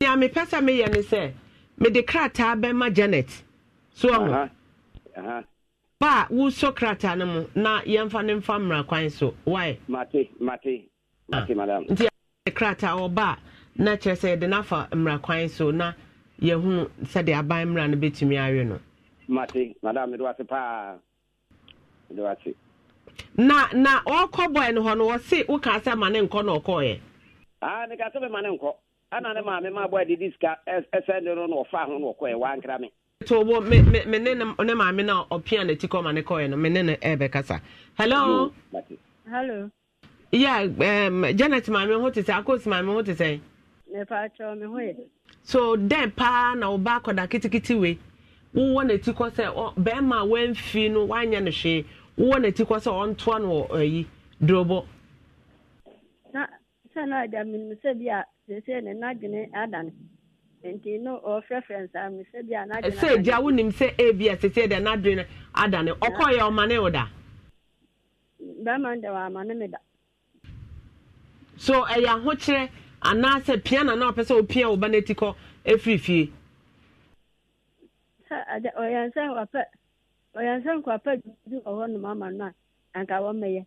nea mepɛ sɛ meyɛ ne sɛ mede krataa bɛma janet so ɔho ba a wosɔ krataa no uh-huh. mu na yɛmfa ne mfa mmara kwan so wae ah. nti krataa wɔ ba a na kyerɛ sɛ yɛde no afa mmara kwan so na yɛhunu sɛde aban mmara no bɛtumi awe no mate madam mede wase paa mede wase na na ọkọ bọyị nọ na ọsị ụka asị ama ne nkọ na ọkọ ya. aa ne ka asị ma ne nkọ ana ne maame ma bọyị didi sika ẹsẹ ndị no ọfa ahụ na ọkọ ya waa nkira mi. to ụgbọ me me me ne ne maame na ọpịa n'eti kọ ma ne kọ ya na me ne ne ebe kasa. hello. hello. ya um, janet maame ho te sị akos maame ho te sị. mepa atwa me ho yɛ. so dɛn paa na ɔba akọda kitikiti wei wowɔ n'eti kɔ sɛ bɛrima wee wɔamfi no wanyɛ no hwee. wowɔ n'ati kɔ sɛ ɔntoa no wɔ ayi na sɛ na agya menim sɛ bi a seesei ne n'adwene ada no nti no ɔfrɛfrɛ nsaa me sɛ bi a n'adwene sɛ gya wonim sɛ ebi a seesei deɛ n'adwene ada no ɔkɔɔyɛ ɔmane wo da bɛrima no deɛ wɔamane me da so ɛyɛ eh, ahokyerɛ anaasɛ pia na na ɔpɛ sɛ opia wo ba n'ati kɔ ɛfiri eh, fie sɛ oh, ɔyɛ sɛ wɔpɛ ɔyɛ sɛ nkwapa bi wɔ hɔ nom ama no a anka wɔmɛyɛ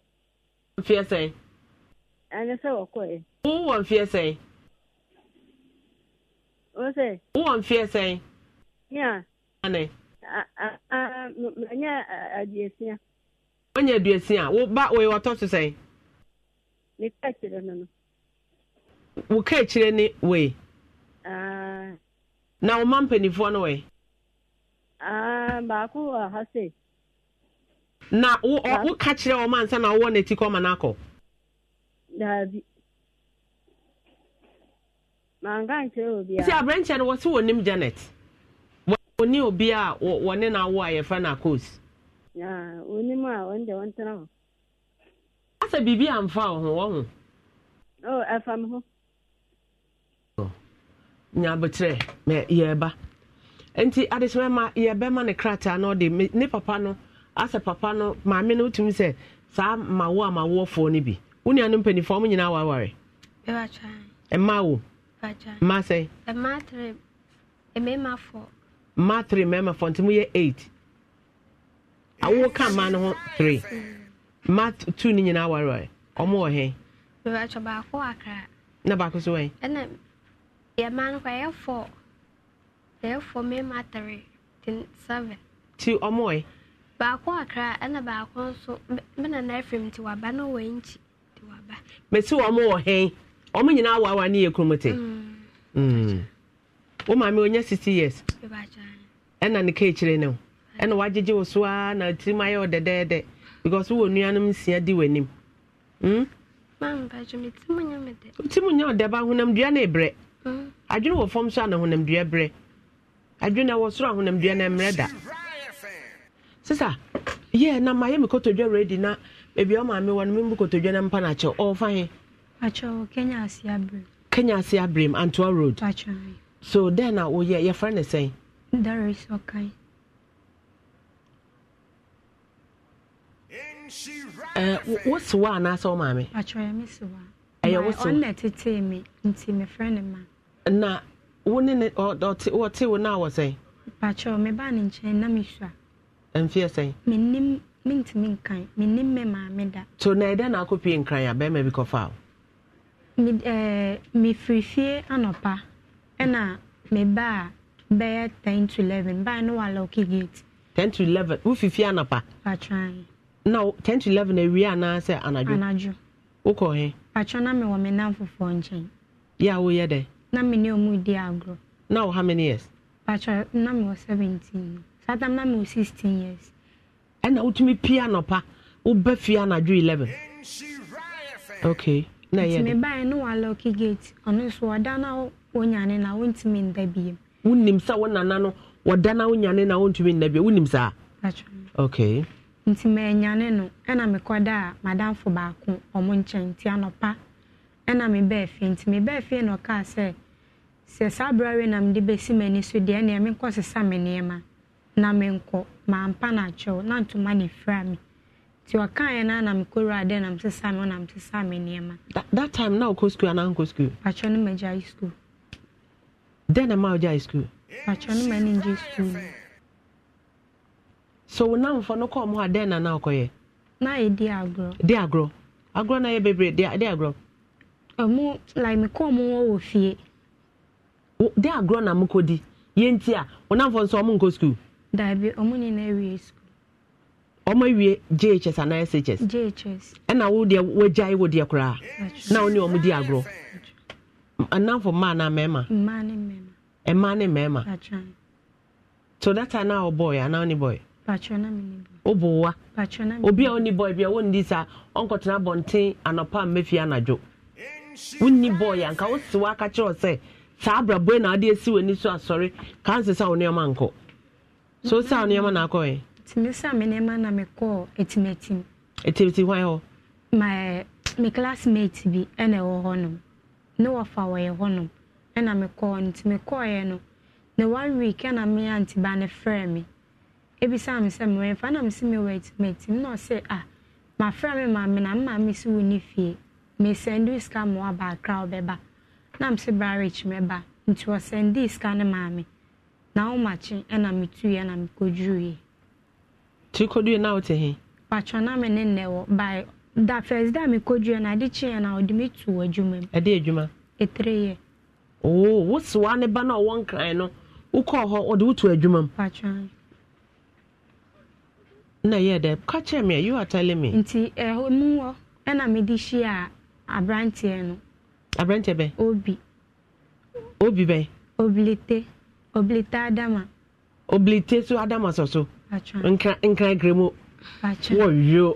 mfeɛ sɛn ɛne sɛ wɔkɔɛ wowɔ mfeɛ sɛn wo sɛ wowɔ mfeɛ sɛn ya ane manyɛ aduasia wanya aduasia woba wɔyɛ wɔtɔ so sɛn meka kyerɛ no no wo ka kyerɛ ne wei na wo ma mpanimfoɔ no Ah, baako wɔ ha se. na ọwụwa wo ka kyerɛ na ansa na wɔwɔ n'eti ma n'akɔ. daabi manka nkyerɛ obiara. sisi aberanteɛ no wɔsi wɔnim janet wɔni obi a wɔne n'awo a yɛfrɛ na coast. a wɔn na wɔn tena hɔ. asa biribi amfa wɔn ọhụ. wɔn ho. o oh, ɛfa mi ho. nti adesima ma yɛbɛma ne krataa na ɔde ne papa no asɛ papa no maame no wotumi sɛ saa mawo a mawoɔfoɔ no bi wo nua no mpanimfoɔ ɔmo nyinaa waware mmaa wo mmaa sɛ mmaa three mmarima fɔ nti mo yɛ eight awo ka mmaa no ho three mmaa two no nyinaa waware ɔmo wɔ he na baako so wɔ he yɛ mmaa no kɔ ɛyɛ four sɛɛfoɔ mmarima atare ten seven. ti ɔmo yɛ. baako akra ɛna baako nso mena na efim ti na wɔn nkyi ti waba. mesi ɔmo wɔ hɛn nyinaa awa ne yɛ kurom mm. Mm. onye sixty years. ɛna ne keekyire ne ho ɛna wagyegye wo a na tirim ayɛ wɔ because nuanom nsia di mm? na ebrɛ adwene wɔ so a na adwene wɔ soro ahonamdua no mmerɛ da sisa yɛ na mayɛ me kotodwa redi na baabi a ɔmaame wɔ no membu kotodwa no mpa no akyɛ ɔɔfa he kenya ase abrem kenya ase abrem antoa road so dɛn na woyɛ yɛfrɛ ne sɛn daris ɔkan wose wa anaasɛ wo maame ɛyɛ wose ɔnna tetee me nti mefrɛ ne ma na wo ne ne ɔte wo no a wɔ sɛn pakyɛ meba ne nkyɛn na mesu a mfeɛ sɛn mennim nkan mennim me maame da so na ede na akɔpie nkran a bɛrima bi kɔfa wo eh, mefiri fie anɔpa ɛna mebaa bɛyɛ 10 to 11 baa no walɔke gate 10 to 11 wofi fie Anapa? patran na 10 to 11 awie anaasɛ anadwo anadwo wokɔ he patwɛ na mewɔ me nam fofoɔ Ya yɛ a woyɛ dɛn na me ne ɔmo di agorɔ. now how many years. patro na me wɔ seventeen saa tam na me wɔ sixteen years. ɛna wotumi pia nɔpa woba fie anadwo eleven. okay na ɛyɛ de. ntumi báyìí no wa lɔki gate ɔno nso ɔda na wonyane na wontumi nda biem. wonim sá wo nana no ɔda na wonyane na wontumi nda biem wonim sá. patro okay. nti manyane no ɛna mekɔda a madamfo baako ɔmo nkyɛn nti anɔpa ɛna mebɛɛ fie nti mebɛɛ fie na ɔkaa sɛ sɛ saa berɛ awe nam de bɛsi m'ani so deɛ ɛneɛ menkɔ sesa me nneɛma na menkɔ mampa no akyɛw na ntoma ne fira me nti ɔkaeɛ no anam kɔwura dɛ nam sesa me ɔnam sesa me nneɛma that time na wokɔ skul anaa nkɔ skul pakyɛ no magyae skul dɛn na ma wogyae skul pakyɛ no ma ne ngye skul so wo namfo no kɔɔ mu a dɛn na na wokɔyɛ na ɛdi agorɔ di agorɔ agorɔ na yɛ bebree di agorɔ ɔmo like mekɔɔ mu wɔ wɔ fie de agorɔ na mokɔdi yɛnti a wonamfo nso ɔmo nkɔ skul dabi ɔmo nyinaa wie skul ɔmo ọmụ jhs shs jhs ɛna wo deɛ wo deɛ koraa na wo ne ɔmo di agorɔ mmaa na mmarima mmaa ne mmarima mmaa na ɔbɔɔ yɛ anaa wo ne bɔɔ patro na mi ni bɔɔ ɔbɔ wa obi a ni a ni sa ɔnkɔtena anɔpa anadwo ni a nka o si wa akakyerɛ saa abrabɔ na ade esi w'ani so asɔre kansa sa wo nneɛma nkɔ so sa wo nneɛma na akɔ yɛ. tìmí sá mi nneɛma na mi kɔ etimetim. etimetim hwan hɔ. my my classmate bi ɛna ɛwɔ hɔnom ne wɔfa wɔyɛ hɔnom ɛna mi kɔɔ no tìmí kɔɔyɛ no na one week ɛna mi aunty ba ne frɛ mi ebisa mi sɛ mi wɔ ɛfa na mi si mi wɔ etimetim na ɔsɛ ah ma frɛ mi maame na maa maame si wɔ ne fie mi sɛ ndu sika ma waba akra ɔbɛba. na m sị barich meba nti ọsendii sika ne maame na ọmachi na metuye na mekojuye tukoduye na ote he patwa na me ne nne wɔ by da first day mekojuye na ade kyeɛ na ɔde me tu adwuma mu ɛde adwuma ɛtire yɛ oo wosoa ne ba na ɔwɔ nkran no wokɔɔ hɔ ɔde wotu adwuma mu patwa na ya ede kacha kyerɛ me you are telling me nti ɛhɔ mu wɔ ɛna mede hyia aberanteɛ no aberanteɛ bɛn. obi. obi bɛn. obilite obilite adama. obilite so adama sɔ so. nkran nkran gremu. wɔyio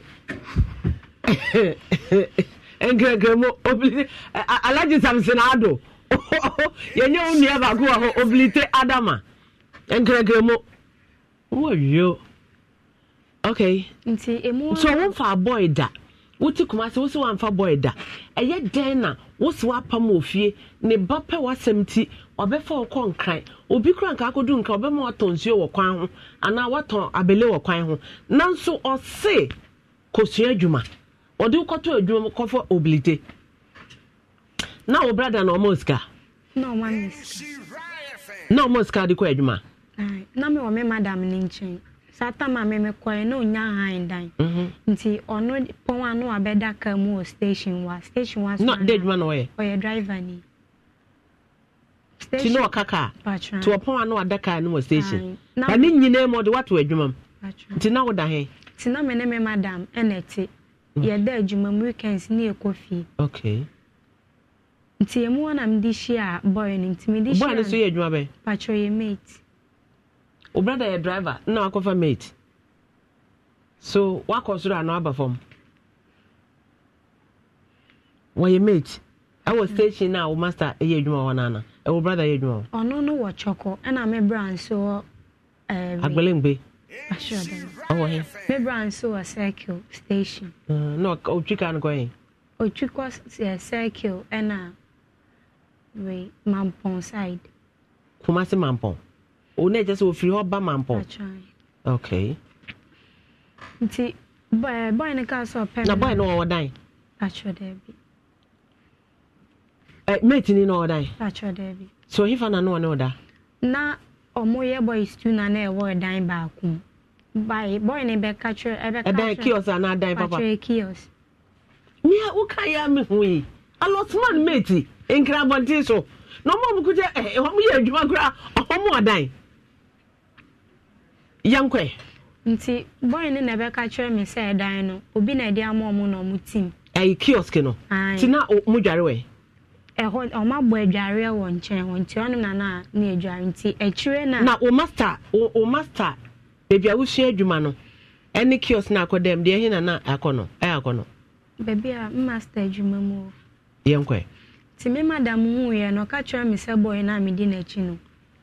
nkran gremu obilite alaji samson ado (laughs) yɛnyɛ wo nua baako wɔ hɔ obilite adama nkran gremu wɔyio okay. nti emu. so wɔn fa abɔ yi da. wotu kuma sɛ wo sɛ wamfa bɔɛ da ɛyɛ dɛn na wo se ofie wɔ fie ne ba pɛ w'asɛm ti ɔbɛfa wɔkɔ nkran obi kora nka akɔdu nka ɔbɛma watɔn nsuo wɔ kwan ho anaa watɔn abele wɔ kwan ho nanso ɔse kɔsua adwuma ɔde wokɔtɔ adwuma kɔfɔ obilite na wo brada na ɔma sika na ɔma sika de kɔ adwuma na mewɔ me madam no nkyɛn sata ma memekɔɛ na ɔnya han dan mhm. nti ɔno pɔn a no wabɛda ka mu wɔ station wa station wa sona adwuma na ɔyɛ ɔyɛ driver ni ti na ɔka kaa ti ɔpɔn a na wada kaa no wɔ station ba ne nyinaa mu ɔde wato adwuma mu nti na woda he ti na me ne me madam ɛna ɛte mm. yɛda adwuma mu weekends ne fie okay nti emu wɔn na mi di hyia bɔyɛ nti mi di hyia bɔyɛ so yɛ yɛ mate wo brada yɛ driver na wakɔfa mate so wakɔ soro anaa aba fam wɔyɛ mate ɛwɔ mm. station na wo master yɛ adwuma wɔ nana ɛwɔ brada yɛ adwuma wɔ ɔno no wɔ kyɔkɔ ɛna me bra nso wɔ eh, agbalengbe ɔwɔ he me bra nso wɔ circle station uh, na ɔtwi ka no kɔyɛ ɔtwi kɔ eh, circle ɛna we mampɔn side Kumasi mampɔn wo na sɛ wɔfiri hɔ ba mampɔn okay nti bɔe no sɛ ɔpɛ na bɔe no wɔwɔ dan matini na ɔwɔ dan so ɔhefa na ne wɔ ne na ɔmo yɛ boys tu na na ɛwɔ dan baako ebe bɔe no bɛka kyerɛ kios anaa dan papa kios mia woka yɛ a yi nkra abɔnten so na kuta yɛ adwuma koraa ɔdan yankwe nti bɔi na ɛbɛka kyerɛ me ịda ɛdan obi na ɛde ama ọmụ na tim ɛyɛ kiosk no nti na mo dware wɛ ɛhɔ ɔmo abɔ adwareɛ wɔ nti na na ne adware nti akyire na na o master master a adwuma no ɛne na akɔ dɛm deɛ ɛhe akɔ no beebi a adwuma mu nti madam no ɔka kyerɛ me sɛ na n'akyi no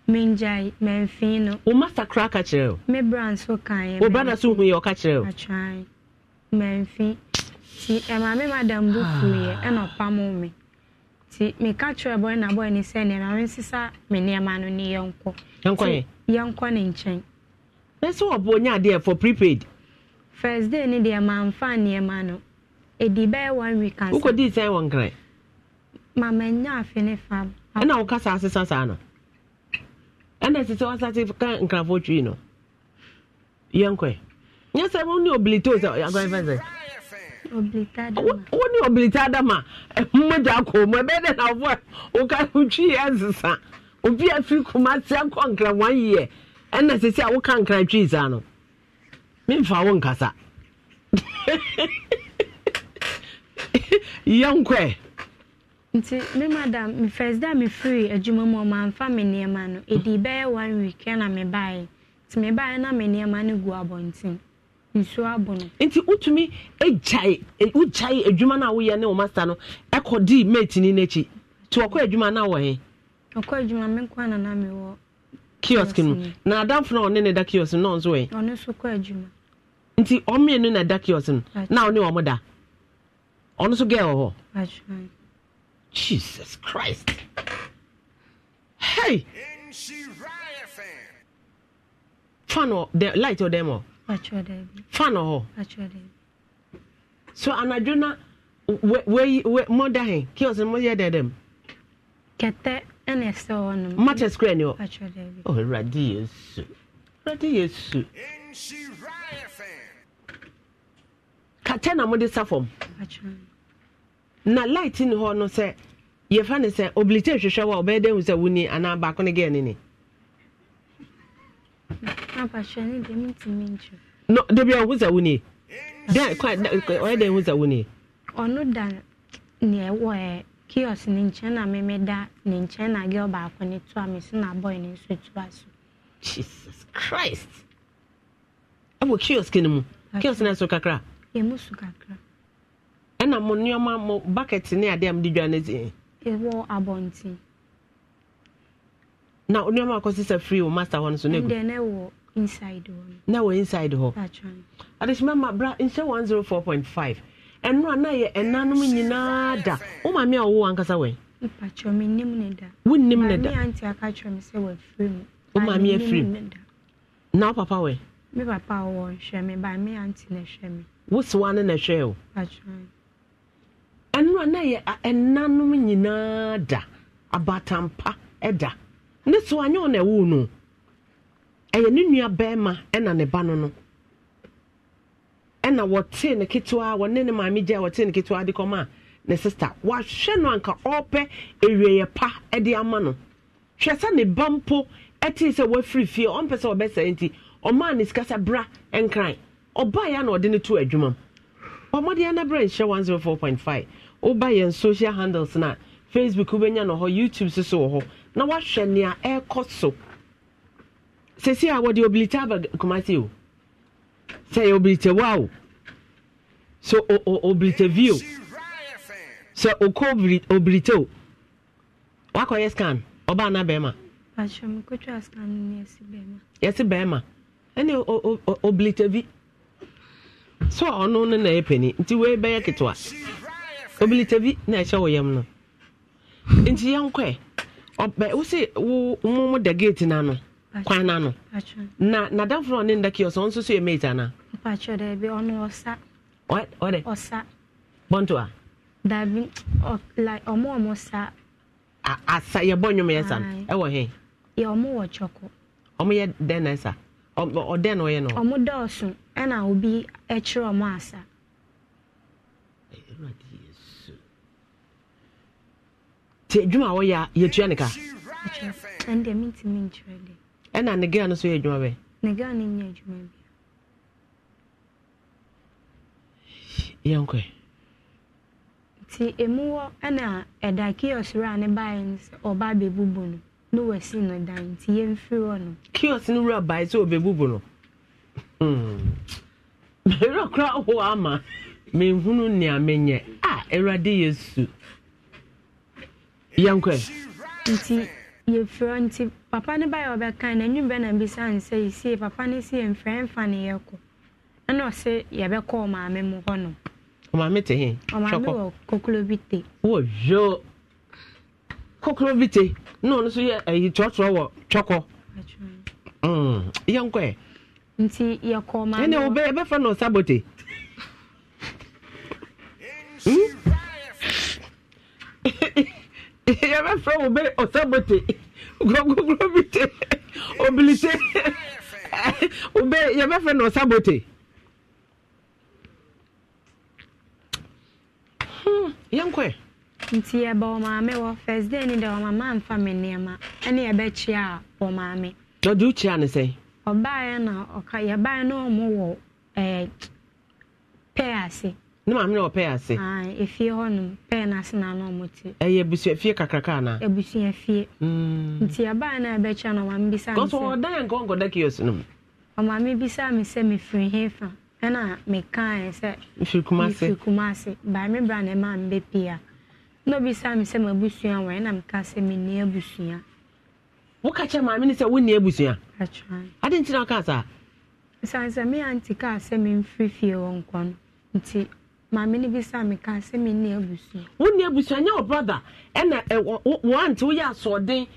menjae mɛmfin no. o ma fa kura ka kyerɛ o. me bra nso kan yɛ. o bra na so hu yɛ ɔka kyerɛ o. atwan mɛmfin ti eh, maame madam bu fuiɛ ɛna ɔpam mi ti meka kyerɛ na bɔyɛ ne sɛ ne maame nsesa me nneɛma no ne yɛn kɔ. yɛ. yɛn ne nkyɛn. Eh, wɔ nya adeɛ for prepaid. first day ne deɛ maa nfa nneɛma no edi bɛyɛ one week ansa. wokɔ sɛn wɔn kran. maame afe ne fam. ɛna eh, wɔkasa asesa saa no. ɛna ɛsɛ sɛ wasate ka (laughs) nkrafoɔ twi no yɛnkɔ nyɛ sɛ wo ne obilita sɛ agɔfɛ sɛ wo ne obilita dama mmogya akɔ mu ɛbɛyɛ dɛ na wofoɔ woka wotwi ɛnsesa obi afiri kuma sɛ nkɔ nkra one year ɛna sɛ sɛ a woka nkra twi saa no memfa wo nkasa (laughs) yɛnkɔɛ nti me madam me first day me free adwuma mu ɔmanfa me nneɛma no edi bɛyɛ one week na me baeɛ nti me baeɛ na me nneɛma no gu abɔnten nsuo abo no. nti utumi egyae e, adwuma na ne no di mate nti adwuma na he. ɔkɔ adwuma me na na wɔ. kiosk na adamfo na ɔne ne da kiosk no nso ɔno nso kɔ adwuma. nti na da kiosk no na ɔne da ɔno nso gɛɛ wɔ hɔ. Jesus Christ. Hey! Fan or the light or oh. demo? Fan or So anadwona where wei mo da hen kios mo yɛ dɛ dɛm. Kete ɛna ɛsɛ hɔ nom. Mata square ni Oh Awurade Yesu. Awurade Yesu. Kɛtɛ na mo de sa na light ni hɔ no sɛ yɛfa ne sɛ obilite hwehwɛ wɔ a ɔbɛyɛ dɛn sɛ wuni anaa baako ne gɛɛ ne ne. no debi ɔhu sɛ wuni dɛn kwa ɔyɛ dɛn hu sɛ wuni. ɔno da nea ɛwɔ ɛ kiosk ne nkyɛn na mɛmɛ da ne nkyɛn na gɛɛ baako ne to a mesi na bɔyɛ ne nso to a so. jesus christ ɛwɔ kiosk ne mu kiosk ne so kakra. ɛmu so kakra. ɛna mo nneɛma mo bucket ne adeɛ a mo de dwa ne deɛ. ɛwɔ abɔnten. na nneɛma akɔsi sɛ free o master hɔ no so ne gu. ndɛ ne wɔ inside hɔ. na wɔ inside hɔ. adesima ma bra nhyɛ one zero four point five ɛnura na yɛ ɛnanom nyinaa da o maame a ɔwɔ ankasa wɛn. mpatsɔ mi nim ne da. wo nim ne da maame aunty aka mi sɛ wɔ afiri mu. o maame afiri mu na o papa wɛn. mi papa wɔ nhwɛ mi ba mi aunty na ɛhwɛ mi. ne na ɛhwɛ o. mpatsɔ mi ɛnura na yɛ ɛnanom nyinaa da abatampa ɛda ne so anyɛ ɔna ɛwo no ɛyɛ ne nua bɛrima ɛna ne ba no no ɛna wɔte ne ketewa wɔne ne maame gya wɔte ne ketewa de kɔma a ne sista wahwɛ no anka ɔpɛ ewieyɛ pa ɛde ama no hwɛ sɛ ne ba mpo ɛte sɛ wafiri fie ɔmpɛ sɛ ɔbɛsɛ nti ɔmaa ne sika sɛ bra ɛnkran ɔbaa yɛ na ɔde ne to adwuma mu ɔmɔdeɛ na berɛ nhyɛ 104.5 woba yɛn social handles na facebook wobɛnya no hɔ youtube so so wɔ hɔ na woahwɛ nea ɛrekɔ so sɛsi a wɔde obilite aba kumase o sɛ yɛ obilite wa o so obilite vi o sɛ okɔ obilite o wakɔyɛ scan ɔbaa na bɛrima yɛsi bɛrima ɛne obilite vi so ɔno no na ɛpɛ ni nti wei bɛyɛ ketewa. obilita bi na ɛhyɛ wɔ yam no nti yɛnkɔɛ ɔbɛ wosi wo mo mo da gate na kwan na na na danforo ɔne nda kios ɔno nso so yɛ mate ana. mpatsɔ dɛ bi ɔno ɔsa. ɔd ɔdɛ ɔsa. bɔnto a. dabi ɔ like ɔmo ɔmo sa. a asa yɛ bɔ nnwom yɛ sa no ɛwɔ hɛn. yɛ ɔmo wɔ kyɔko. ɔmo yɛ dɛn na ɛsa ɔdɛn na ɔyɛ no. ɔmo dɔɔso ɛna obi ɛkyerɛ ɔmo asa. Eh, nti adwuma a wɔyɛ a yɛtua ne ka ɛna ne gaa no so yɛ adwuma bɛ yɛnkɔ nti emu wɔ ɛna ɛda kiosk a ne baeɛ ɔba abɛbubu no na wɔasi no dan nti yɛmfiri hɔ no kiosk no wura sɛ ɔbɛbubu no mmerɛ (laughs) kora ama menhunu nea menyɛ a awurade yɛnkɔ nti yɛfrɛ nti papa ne bayɛ ɔbɛka no anwum bɛ na bisa ne sɛ yɛsie papa ne si yɛmfrɛ mfa ne yɛkɔ ɛna ɔse yɛbɛkɔ ɔmaame mu hɔ no ɔmaame te he ɔmaame wɔ kokuro bi te wɔ hwɛ kokuro bi te na ɔno nso yɛ ayi tɔɔtɔɔ wɔ twɔkɔ mm. yɛnkɔ ɛ nti yɛkɔ ɔmaame ɛnna ɛbɛfrɛ no sabote. (laughs) Hmm? yɛbɛfrɛ wo bɛ ɔsabote kurɔnkokuro bi te obilite wobɛ yɛbɛfrɛ no ɔsabote yɛnkɔɛ nti yɛbɛ ɔmaame wɔ first day ni dɛ ɔmama amfa me nneɛma ɛne yɛbɛkyia ɔmaame ɔde wokyia ne sɛn ɔbaeɛ na ɔka yɛbaeɛ na ɔmo wɔ ɛɛ pɛɛ ase ne maame na ɔpɛɛ ase efie hɔnom pɛɛ n'ase na ano ɔmo ti ɛyɛ abusua fie kakraka ana abusua fie hmm. nti abaa na ɛbɛkyɛ no ɔmaame bisa mi sɛ kɔsɔ ɔdan nkɔ nkɔda kiosk no mu ɔmaame bisa mi sɛ mefiri he fa ɛna mekaa sɛ mefiri kumase mefiri kumase baa me bra na ɛma mbɛ pia na obisa mi sɛ m'abusua wɔ ɛna meka sɛ menni abusua woka kyɛ maame ne sɛ wonni abusua ade nti na ɔka saa sɛ sɛ me aunty kaa sɛ memfiri fie wɔ nkɔ no nti maame ni bi sa mi ka sɛ mi ni abusua. wọn ni nye wọ brother ɛna ɛwɔ wɔn ti woyɛ asɔɔden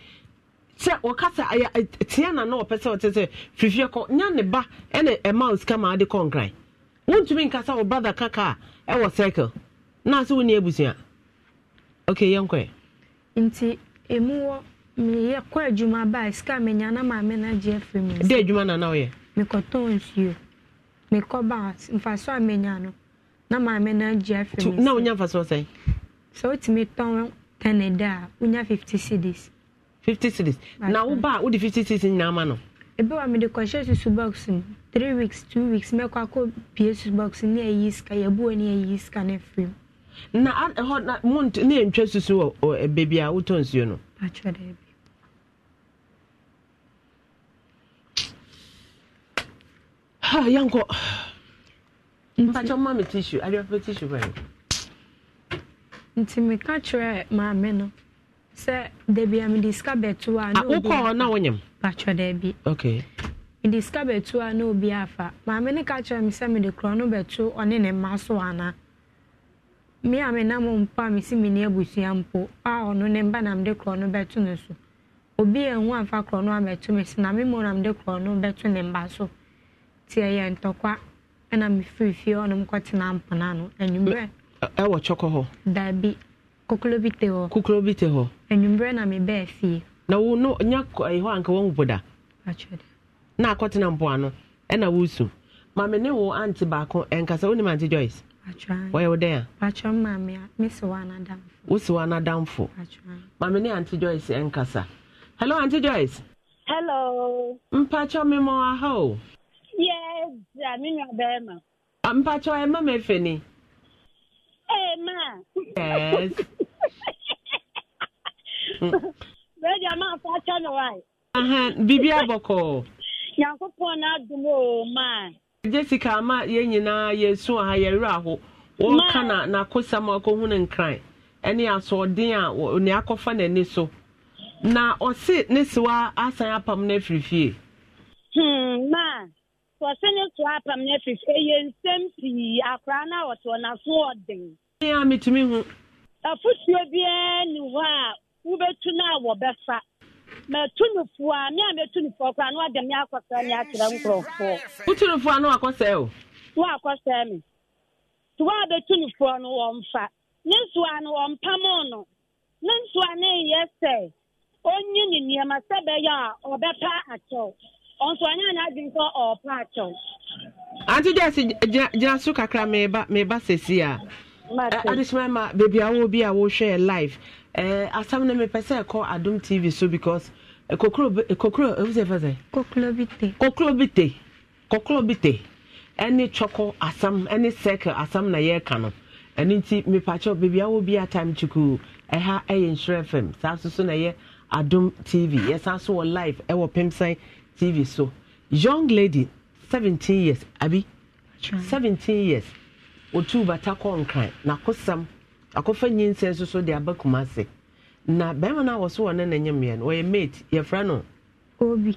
kyɛ wɔkasa ɛyɛ tiɛ na na wɔpɛ sɛ ɔte sɛ fifie kɔ nya ne ba eh, osika nkasa wɔ brother kaka a ɛwɔ eh, circle na ase wɔn ni abusua okay yɛn kɔ yɛ. nti emu wɔ meyɛ kɔ adwuma baa sika mi nya na maame na gye efiri mi. de edwuma na na ɔyɛ. mekɔtɔn nsuo mekɔ baa nfa so a menya no. na maame no agye afiri mu na wonya mfa so sɛn sɛ wotumi tɔn ten ɛdɛ a wonya fifty cedis fifty cedis na woba a wode fifty cedis nyinaa ma no ebi wa mede kɔhyɛ susu box mu three weeks two weeks mɛkɔ akɔ pie susu box ne ayi sika yɛbuo ne ayi sika no afiri mu na ɛhɔ na mu ne yɛntwa susu wɔ baabi a wotɔ nsuo no ha (sighs) yɛnkɔ mpakyɛ mma me tissue adeɛpɛ tissue bɛn nti meka kyerɛ maame no sɛ dabi a mede sika bɛto a wokɔɔ ah, daabi mede sika a obi afa maame no ka kyerɛ me sɛ mede korɔ no bɛto ɔne ne mma so ana me a menam mpo a mesi menni abusua mpo a ɔno ne mba na mede korɔ no bɛto so obi amfa korɔ no me na na mede korɔ no bɛto ne mba so ɛna mefiri fie hɔ nom kɔtena mpona no anwummerɛ ɛwɔ kyɔkɔ hɔ daabi kokolo bi te hɔ kokolo bi te hɔ anwummerɛ na mebɛɛ fie na wo no nya ɛyɛ anka wɔn boda na akɔtena mpoano ɛna wosu maame ne wo ante baako ɛnkasa eh, wonim ante joyce wɔyɛ wo dɛn a wosi wo anadamfo maame ne ante joyce ɛnkasa eh, hello ante joyce hello mpakyɛ memɔ aha o yɛ dza me nua bɛrima. mpatsɔ ɛ ma ma efe ni. ee ma. yes. (laughs) bɛɛdi a ma fa kyɛ na wa. bibi abɔkɔ. nyankopɔn na adum o ma. jessica ama yɛn nyinaa yɛsu na n'akosɛm akɔhu ne nkran ɛne asoɔden a ne akɔfa n'ani so na ɔse ne sewa asan apam no afiri fie. Hmm, wɔsene so apam no afifi ɛyɛ nsɛm sii akora no a wɔte ɔnaso ɔden a metumi hu afotuo biara ni hɔ a wobɛtu no a wɔbɛfa matu no a me a mɛtu no foɔ koraa na wɔde me akɔsɛe me akyerɛ nkurɔfoɔ wotu no a na wakɔsɛe o na wakɔsɛe me nti wɔ a bɛtu no foɔ no ne nsoa no wɔmpam no ne nsoa no ɛyɛ sɛ ɔnyi ne nneɛma sɛ bɛyɛ a ɔbɛpa akyɛw nso anya n'adwin sɛ ɔɔpa akyɛw. ante gyesi gyina so kakra meba meba sesi a adesoma ma beebi a wɔwɔ bi a wɔrehwɛ live ɛɛ eh, asam na mepɛ sɛ ɛkɔ adum tv so because eh, kokoro eh, kokoro ewu sɛ fɛ sɛ. kokoro bi te. kokoro bi te kokoro bi te ɛne twɔkɔ asam ɛne circle asam na yɛreka no ɛne nti mepakyɛw beebi a bi a time tukuu ɛha ɛyɛ nhyerɛ fam saa soso na ɛyɛ adum tv yɛsan so wɔ live ɛwɔ pimsɛn tv so young lady seventeen years abi seventeen years otu bata kɔ nkran n'akosam akɔfa nyinsɛn soso de aba kumase na bɛrima no a wɔso wɔ ne na nyɛ mmea no wɔyɛ mate yɛfrɛ no obi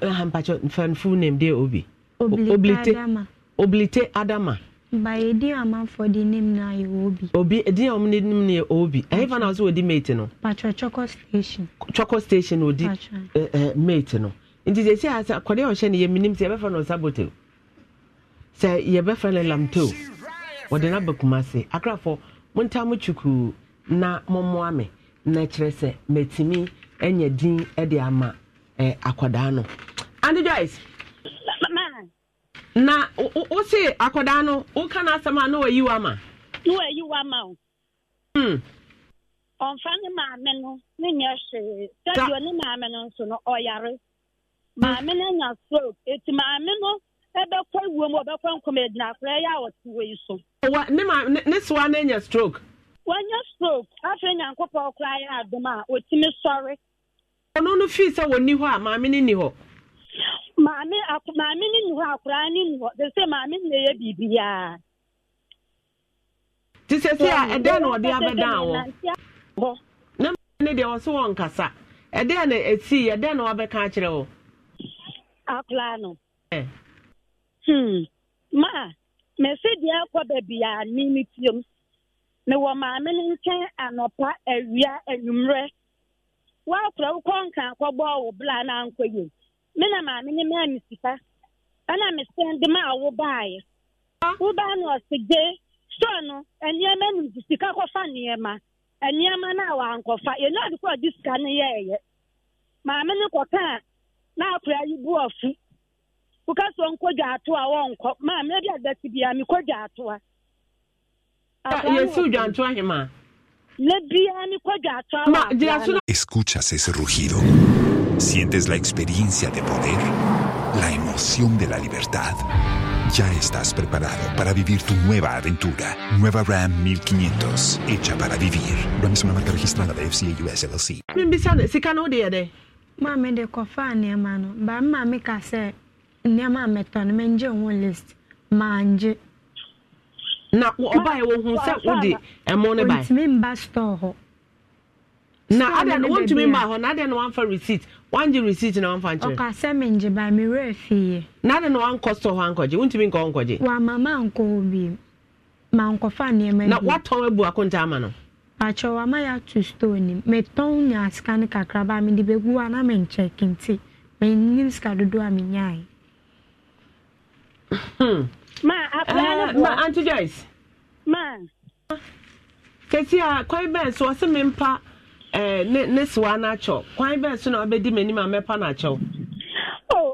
eh, hampakyɛ fanfo name de obi oblite oblite adama ba yɛdi amanfoɔ de nim na yɛ obi obi edin a wɔn nim na yɛ obi ɛyɛ fa na wɔso wɔdi mate no patro choco station choco station wɔdi ɛɛ eh, eh, mate no nti sɛ sɛ asɛ kɔde ɔhyɛ no yɛmenim sɛ yɛbɛfa no ɔsabote sɛ yɛbɛfa no lamto wɔde no aba kuma se akrafo monta mo kyukuu na mommoa me na kyerɛ sɛ matumi anya din de ama akwadaa no ande joyce na wose akwadaa no woka no asɛm a na wayi wama na wayi wama o hmm. ɔmfa ne maame no ne nyɛ hwee sɛdeɛ ne maame no nso no ɔyare maame no anya strok, eti maame no ɛbɛkɔ iwu mu ɔbɛkɔ nkɔm egyina akora ɛyɛ a ɔte wɔ yi so. wa ne ma ne soa ne nya stroke. wanya stroke afei nyankopɔ ɔkora ayɛ adum a otimi sɔre. ɔno no fi sɛ wɔnni hɔ a maame no ni hɔ. maame ak maame no ni hɔ akora ni hɔ sɛ maame yɛ biribiara. te sɛ a ɛdɛn na ɔde abɛdan wɔ. ne deɛ ɔso wɔn nkasa ɛdɛn na esi ɛdɛn na wabɛka akyerɛ a anụ. É. Hmm. Ma, me se di akwa bebi a maame ne nkyɛn anɔpa awia anwummerɛ. Woakora wo kɔnka akɔbɔ wo bla na ankɔ yie. Me na maame ne maa me sika. Ɛna me ndị ma a wobaeɛ. Wobaa na ɔse gye store no nneɛma nu nti sika kɔfa nneɛma. Nneɛma no a wankɔfa. Yɛnyɛ ade kɔ a ɔde sika no yɛɛyɛ. Maame ne a Escuchas ese rugido. Sientes la experiencia de poder, la emoción de la libertad. Ya estás preparado para vivir tu nueva aventura. Nueva Ram 1500, hecha para vivir. Ram es una marca registrada de FCA US LLC. maame de kɔfa nneɛma no ba maame ka sɛ nneɛma a mɛtɔ no mɛngye ho list maangye na ɔbaeɛ wɔ hu sɛ wode ɛmo no bae ntumi mba store hɔ na adɛ no wontumi mba hɔ na adɛ no wamfa receipt wangye receipt na wamfa nkyerɛ ɔka sɛ mengye bae mewerɛ fieɛ na adɛ no wankɔ store hɔ ankɔgye wontumi nkɔ nkɔgye wama mankɔ hɔ bi mankɔfa nneɛma na watɔn abu akonta ama no akyɛw ama yɛato stone nim metɔn nya sika no kakraba hmm. a eh, ah, mede eh, bɛgu oh, a na menkyɛke nti menim sika dodoɔ a menyae anti kwan bɛn so ɔse mempa ne sewa no akyɛw kwan bɛn so na wabɛdi m'anim a mɛpa no akyɛw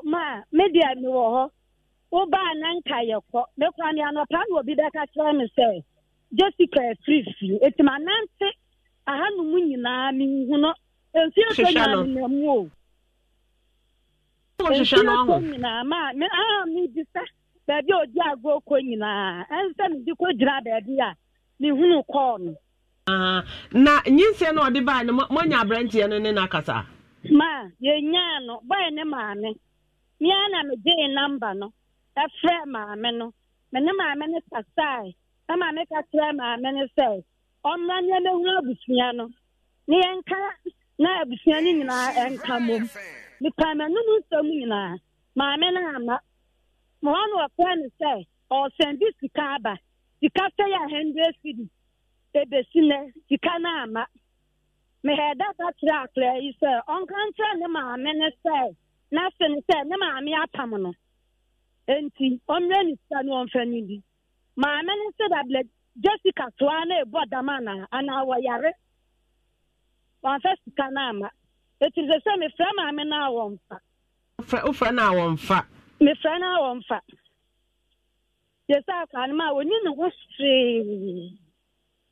ma media mewɔ hɔ wobaa na nka yɛkɔ mekora ne anɔpa na obi bɛka kyerɛ me sɛ jessica efirifiri eti ma nante ahanum nyinaa n'ihu no nfi otu nyinaa nna mu o nfi otu nyinaa ma aha m ibi sa beebi a odi agụ oko nyinaa nsị m dị kwa gyina beebi a n'ihu no kọọ ah, no. na nyinsie na ọdị baa no mo nya aberanteɛ no ne n'akasa. ma yenyaa no bọyị ne maame mmea na m gye namba no efrɛ maame no mene maame no sasaa. ama ka kyerɛ maame ne sɛ ɔmmra nneɛ mɛhunu abusua no na yɛnka na abusua no nyinaa ɛnka mom mepa m'anom nsɛm nyinaa maame no ama ma hɔ no ɔfrɛ no sɛ ɔresɛn bi sika aba sika sɛ yɛ hundred cedi ebesi nɛ sika no ama mehɛda ba kyerɛ akora yi sɛ ɔnka nkyerɛ ne maame ne sɛ na no sɛ ne maame apam no enti ɔmmrɛ ne sika no ɔmfa no bi maame no sɛ jessica toa e na ɛbɔ dam yare. sika na ama sɛ e sɛ mefrɛ maame a wɔmfa wofrɛ na a wɔmfa mefrɛ na a wɔmfa yɛsɛ akwaa no ma a wɔni ne ho hwee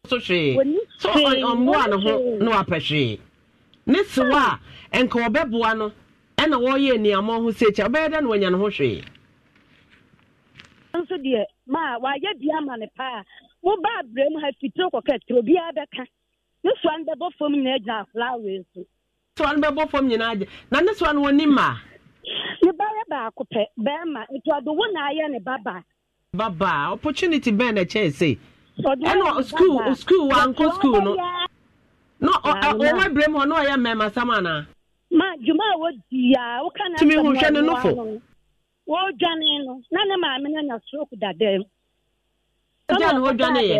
so hwee so ne ho na wapɛ hwee ne sewa a nka wɔbɛboa no ɛna wɔreyɛ nneɛma dɛ na wɔanya ne ho hwee nso deɛ ma wayɛ bia ma ne paa woba abrɛ mu ha fitiri kɔkɛ etu obi bɛka ne soa no bɛbɔ fam nyinaa gyina so soa no bɛbɔ fam nyinaa na ne soa no wɔni ma ne ba yɛ baako pɛ bɛrima nti ɔde wo na ne babaa babaa opportunity bɛn na se ɛna school school school no na ɔwɔ mu hɔ na ɔyɛ anaa ma dwuma a a ne nofo wodwane no na ne maame no anya stroke dada mu ɛna wodwane yɛ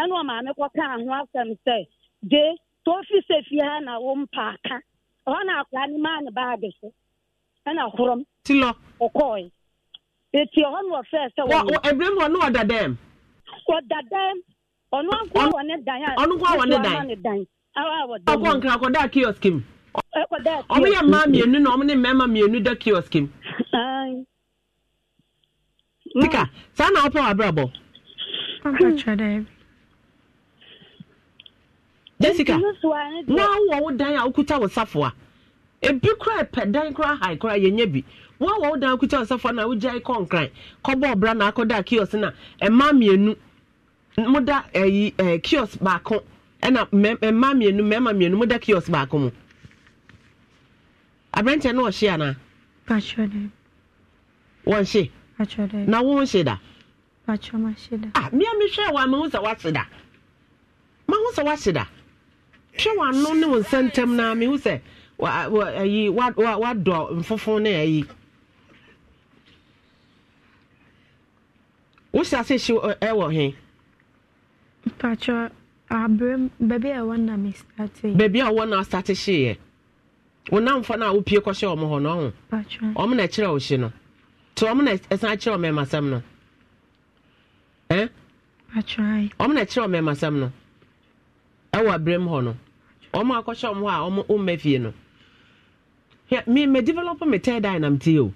ɛna ɔmaame kɔka ho asɛm sɛ de tofi sɛ fie ha na wo mpaaka ɛhɔ na akora ne maa ne baage so ɛna horom tilɔ ɛti ɛhɔ na ɔfɛɛ sɛ ɛberɛ ɔno ankoa wɔ ne dan ɔno dan ɔkɔ nkra kɔdaa kiosk m. ɔmo mmaa mmienu na ɔmo ne mmarima mmienu da kiosk Tika, saa na ɔpɛ w'abrabɔ. Hmm. Jessica, na wɔ wo dan a wokuta wo safoa. Ebi kura pɛ dan kura hae kura yɛnyɛ bi. Wɔn wɔ wo dan kuta wo safoa na wogya kɔ nkran. Kɔbɔ ɔbra na akọda kiosk na mmaa mmienu. Moda da ɛɛ eh, eh, kiosk baako ɛna mmaa mmienu mmarima mmienu moda kiosk baako mu. Aberanteɛ no ɔhyɛ anaa? wɔnhye na wo hye da mea mehwɛ wɔ mahu sɛ woahye da mahu sɛ woahye da hwɛ w'ano ne wo nsa ntam na mehu sɛ ayi wadɔ mfofo ne ayi wohyɛ ase hye ɛwɔ he baabi a ɛwɔ na starte hyeeɛ wonamfa no a wopie kɔhyɛ ɔmo hɔ no ɔho ɔmo na ɛkyerɛ wo hye no nti ɔmo na ɛsan kyerɛ ɔmo ɛmasɛm no ɔmo na ɛkyerɛ ɔmo ɛmasɛm no ɛwɔ abiram hɔ no ɔmo akɔhyɛ ɔmo hɔ a ɔmo ɔmma fie no me me develop me third eye nam tie o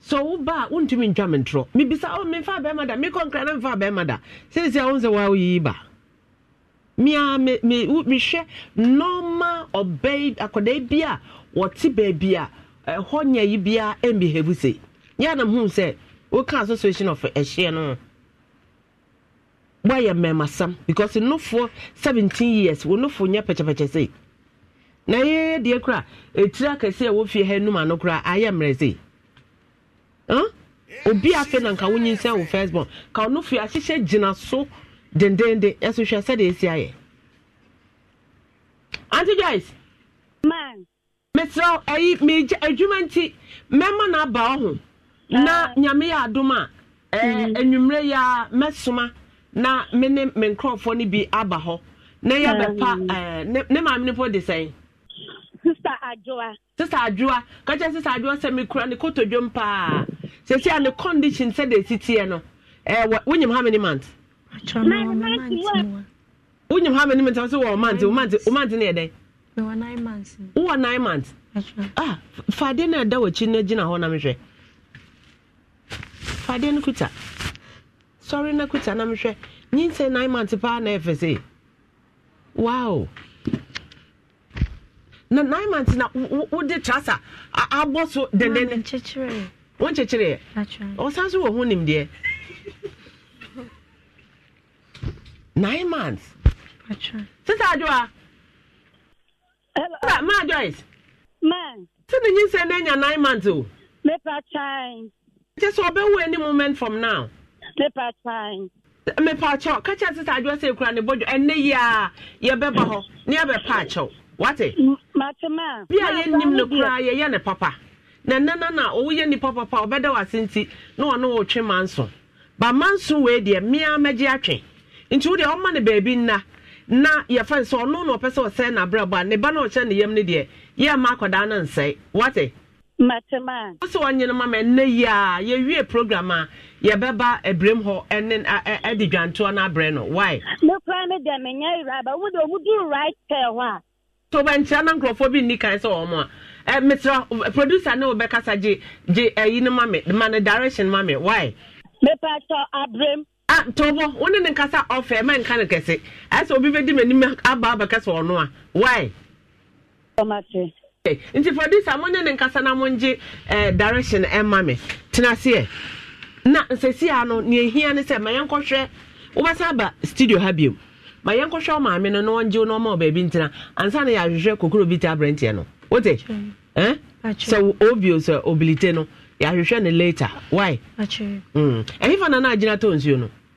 so wo ba wontumi ntwa me ntorɔ mebisa ɔ oh, memfa bɛrima da mekɔ nkra na memfa bɛrima da seesia wo sɛ woa woyiyi ba mea mehwɛ nɔma ɔbɛi bi a wɔte baabi a ɛhɔ nyɛ yi biara ɛmbi hebu se yɛ na hu sɛ woka association of ɛhyeɛ no wɔayɛ mmɛmasam because nofoɔ seventeen years wɔn nofo nyɛ pɛkyɛpɛkyɛ se na yɛyɛ deɛ kora etira kɛse a wofie ha enum ano kora ayɛ mmerɛ se ɛn hm? obi afei na nka wonyi nsɛn wo first born ka onofo ahyehyɛ gyina so dendenden ɛso hwɛ sɛdeɛ esi ayɛ aunty joyce. man. mesrɛ ayi megya adwuma nti mɛma no aba ɔho ah. na nyame yɛ adom a mhm. anwummerɛ yi a mɛsoma na me ne me nkurɔfoɔ no bi aba hɔ na yɛbɛpa ah. ne maame no po de sɛn sista adwoa ka kyerɛ sista adwoa sɛ mekura ne kotodwom paa sɛsi a ne condition sɛde ɛsitiɛ no wonyim how many months wonyim how many mant wɔ wowɔ nine months ah fadeɛ no ɛda w'akyi no gyina hɔ na mehwɛ fadeɛ no kuta sɔre no kuta na mehwɛ nyinsɛ nine months paa na ɛfɛ se wow na nine months na wode trasa abɔ so dendene wɔnkyekyereɛ ɔsan so wɔ ho nimdeɛ nine months sisaadwoa Hello. Ma Joyce. Ma. Sị na nyinsị na-enya nine months o. Mepa chai. Nche sọ ọbẹ wo any moment from now. Mepa chai. Mepa Kacha sị sa adịwa sị ekura na ebojo ẹnne yi a yẹbẹ ba họ na yẹbẹ pa achọ. Wate. Mate ma. Bi a yẹn nim n'okura yẹ yẹ ne papa. Na nne na na owu yẹ nipa papa ọbẹda wase nti na ọ na ọ twe ma nso. Ba ma nso wee deɛ mmea mmegye atwe. Nti wo deɛ ɔma ne beebi nna. na yɛfa sɛ ɔno na ɔpɛ sɛ ɔsɛe n'abrabɔ a ne ba na ɔhyɛ ne yam no deɛ yɛ ma akɔdaa no nsɛe wate matema a wosɛ wɔnyene ma ma ɛnnɛ yi a yɛwie program a yɛbɛba abiram hɔ ne ɛde dwantoɔ no abrɛ no wae mekora me deɛ menyɛ weraba wode ɔmuduru right pɛɛ hɔ a to bɛnkyerɛ na nkurɔfoɔ bi nni kan sɛ wɔ a mesrɛ producer ne wobɛkasa gye gye ayi no ma me ma no direction ma me wae mepatɔ abrɛm ah tɔbɔ wo ne ne nkasa ɔfɛ ma nka ne kɛse ɛsɛ obi bɛdi m'anim aba abɛkɛ sɛ ɔno a why nti for this a monyɛ ne nkasa na mongye eh, direction ɛma me tena seɛ na nsɛsia no neɛ hia ne sɛ ma yɛnkɔhwɛ wobɛsan aba studio ha biom ma yɛnkɔhwɛ wo maame no na ɔngye wo na ɔma wo baabi ansa na yɛahwehwɛ kokuro bi te aberanteɛ no wote sọ eh? sɛ obio sɛ nọ, ya yɛahwehwɛ ne later why ɛhefa mm. na na agyina tɔ nsuo no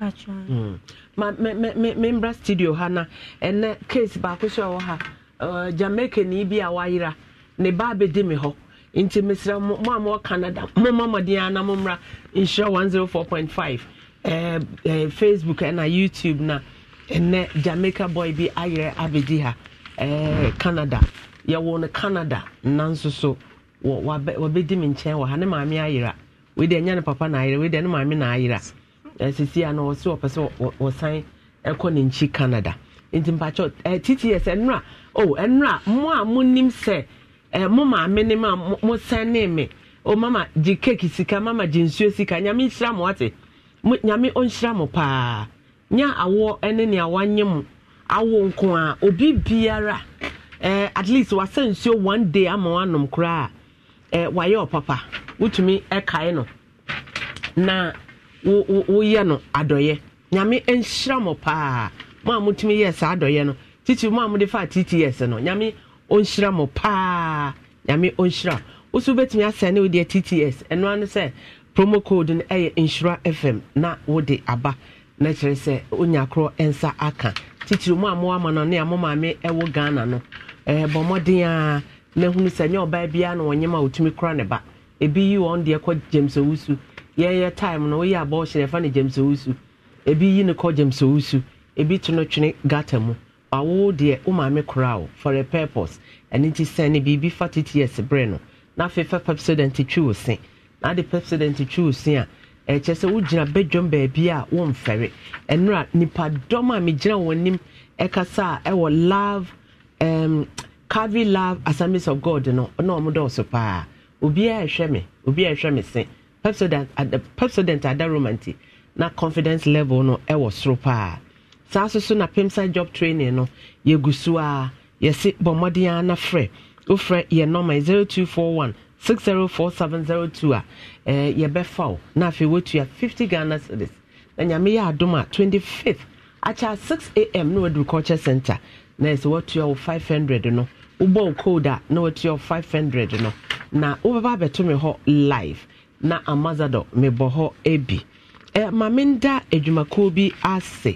Mm. Ma, membra studio ha na ɛnɛ case baako so ɛwɔ ha jamaica ni bi a wayera ne ba abɛdi me hɔ nti mesrɛ mo a mowɔ canada momma mmɔden a na mommra nhyira 104.5 eh, eh, facebook ɛna youtube na ɛnɛ jamaica boy bi ayerɛ abɛdi ha eh, canada yɛwɔ no canada nanso so wabɛdi me nkyɛn wɔ ha ne maame ayera wei deɛ ɛnyɛ ne papa na ayera wei deɛ ne maame na ayera sisi a na ɔsi ɔpɛ sɛ ɔsan ɛkɔ ne nkyi canada nti mpakyɛ titi tts ɛnura o ɛnura mo a mo nim sɛ ɛ mo maame ne ma mo sɛn ne mi o mama gye keeki sika mama gye nsuo sika nyame nhyira mo ate mo nyame ɔnhyira mo paa nya awɔ ɛne nea wanyɛ mo awo nko a obi biara ɛ at least wasa nsuo one day ama wanom koraa ɛ wayɛ ɔpapa wotumi ɛkae no na. woyɛ no adɔyɛ nyame nhyira mɔ paa mo a motumi yɛ saa adɔyɛ no titi mo a mode fa tts no nyame ɔnhyira mɔ paa nyame ɔnhyira woso wobɛtumi asɛ ne wodeɛ tts ɛnoa no sɛ promo code no ɛyɛ nhyira fm na wode aba na kyerɛ sɛ wonya korɔ nsa aka titiri mu a moama no ne a mo maame ɛwɔ ghana no ɛbɔ mmɔden a na hunu sɛ nyɛ ɔbaa biara na wɔnyɛm a wɔtumi kora ne ba ebi yi wɔn deɛ kɔ james owusu yɛyɛ time no woyɛ abɔɔhyɛ yɛfa no gyamsɛwusu ebi yi ne kɔ gyamsɛwusu ebi to no twene gata mu awo deɛ wo maame koraa o for a purpose ɛno nti sɛn ne biribi fa tts berɛ no na afei fa pepsodent twi wo se na ade pepsodent twi wo se a ɛkyɛ sɛ wogyina badwam baabi a womfɛre ɛnora nipadɔm a megyina wɔn anim ɛkasa a ɛwɔ love um, carvy love assemblies of god no na ɔmo dɔɔso paa obiara ɛhwɛ me obiara ɛhwɛ me se pepsodent uh, adaroma nti na confidence level no ɛwɔ soro paa saa nso so na pimsa job training no yɛgu so a yɛsi bɔ mmɔden a na frɛ wofrɛ yɛ nɔma zero two four one six zero four seven zero two a ɛɛ yɛbɛfa o na afei wotua fifty ghana cedis na nyame yɛ adum a twenty fifth akyɛ six am na wadu culture center na yɛsɛ watua wo five hundred no wobɔ wo code a na watua wo five hundred no na wobɛba abɛto me hɔ live na amazado mebɔ hɔ bi ma menda adwumakuo bi ase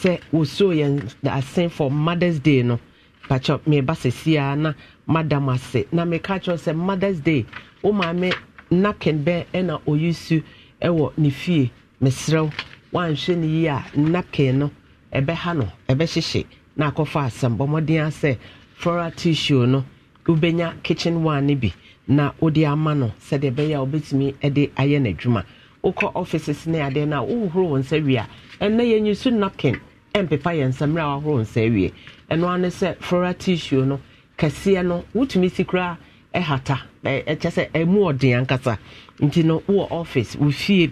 sɛ wɔsuo yɛn ase for mothers day no pakyɛ meba sɛsiaa na madam ase na meka kyerɛ sɛ mothers day wo maame napkin bɛn ɛna ɔyi su ɛwɔ ne fie meserɛw wanhwɛ ne yie a no na akɔfa asɛm bɔ asɛ floral tissue no wobɛnya kitchen one no na wode ama no sɛdeɛ ɛbɛyɛ a wobɛtumi de ayɛ n'adwuma wokɔ offices ne adeɛ no a wohohoro wɔ nsa wie a ɛnɛ yɛnyi so napkin ɛmpepa yɛ nsa mmerɛ a woahoro nsa awie ɛno ane sɛ flora tissue no kɛseɛ no wotumi si koraa ɛhata ɛkyɛ sɛ ɛmu ɔden ankasa nti no wowɔ office wo fie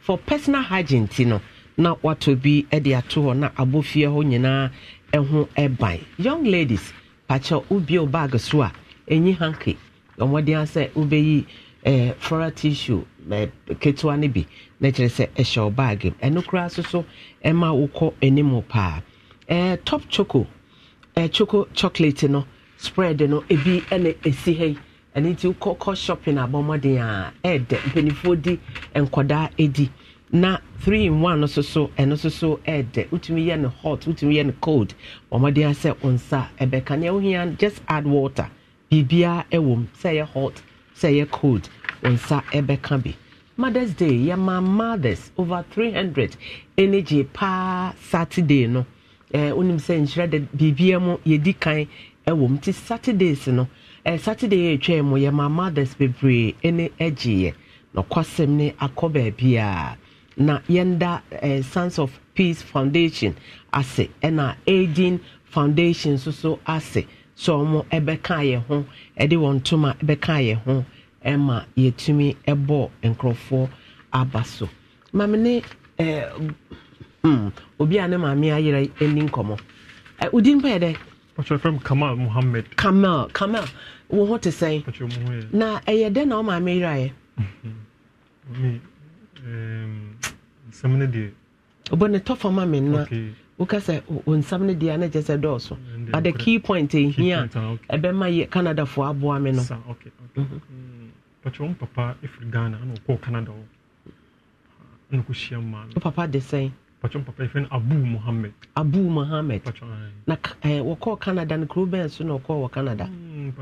for personal hygiene ti no na watɔ bi de ato hɔ na abɔ fie hɔ nyinaa ɛho ɛban young ladies pakyɛ wobie wo bag so a ɛnyi hanke ɔmɔden asɛ wobɛyi ɛɛ eh, flora tissue ɛɛ eh, ketewa no bi na kyerɛ sɛ ɛhyɛ ɔbaage mu ɛno koraa nso so ɛma wokɔ anim paa eh, top choco ɛɛ choco chocolate no spread no ebi ɛna esi ha yi ɛne nti wokɔ kɔ shopping abɔmɔden a ɛɛdɛ mpanimfoɔ di nkɔdaa edi na three in one nso so ɛno so ɛɛdɛ wotumi yɛ no hot wotumi yɛ no cold ɔmɔden asɛ nsa ɛbɛka nea wohia just add water biribiara wɔ mu sɛ ɛyɛ hot sɛ ɛyɛ cold wɔn nsa bɛka bi mothers day yɛma mothers over three hundred ɛne gye paa saturday no ɛɛ eh, onim sɛ nhyira de biribiara mu yɛdi kan ɛwɔ mu ti saturdays no ɛɛ eh, saturday yɛ atwa mu yɛma mothers bebree ɛne ɛgyeeɛ n'ɔkɔsɛm ne akɔ baabi a na yɛnda ɛɛ eh, sons of peace foundation ase ɛna aging foundation nso so ase. so ɔmo ɛbɛka yɛ ho ɛde wɔn ntoma ɛbɛka yɛ ho ɛma yɛtumi ɛbɔ nkorɔfoɔ aba so maame ne ɛɛ eh, hmm obi a ne maame ayerɛ ɛni nkɔmɔ ɛ odi yɛ dɛ. kamal muhammed. kamal kamal wo ho te sɛn. ɔkyerɛ na ɛyɛ dɛ na ɔmo maame mi ɛɛm nsɛm ne woka sɛ nsɛm no deɛ na kyɛ sɛ dɔɔso but mm, the key point ɛhia a ɛbɛma yɛ canadafoɔ aboa me no wo papa de sɛn abu mohammed eh. na eh, wɔkɔɔ canada no kuro bɛn so na ɔkɔɔ wɔ canada mm,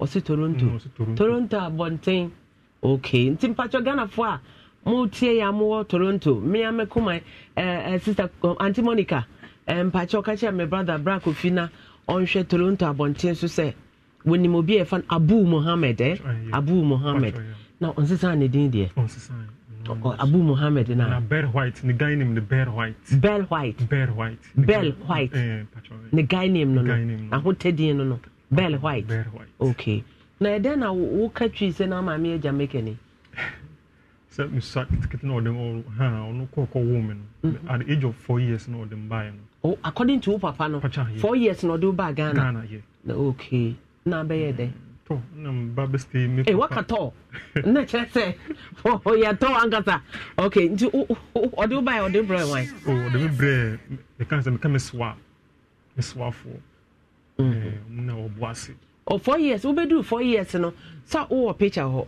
ɔse mm, toronto toronto abɔnten okay nti mpatwɔ ghanafoɔ a motie yɛ mowɔ toronto mea mɛkoma eh, eh, sister eh, anti monica mpakyɛ ɔka kyerɛ me brother bra kofi na ɔnhwɛ toronto abɔnten so sɛ wɔnim obi a yɛfa no abu mohammed eh? abu mohammed na ɔnsesa ne din deɛ abu mohammed na bell white ne guy name no bell white bell white bell white bell white ne guy name no no ahotadin no no bell white okay na ɛdɛn e na woka twi sɛ na maame yɛ jamaica ni (laughs) sɛ nsa ketekete na ɔde ha ɔno kɔkɔ wɔ mu no mhm. at the age of four years na ɔde mbaeɛ no. oh according to wo papa no four years na ɔde ba ghana ghana yɛ na okay na abɛyɛ dɛ. Mm, tɔ na mba bɛ stay mi. ee eh, waka tɔ na kyerɛ sɛ ɔyɛ (laughs) oh, tɔ ankasa okay nti ɔde wo baeɛ ɔde brɛ wan. o oh, ɔde mi brɛ meka sɛ meka mi soa mi soa fo ɛɛ mu mm. eh, na ɔbɔ ase. o oh, four years wobɛduru four years no sa wowɔ picture hɔ.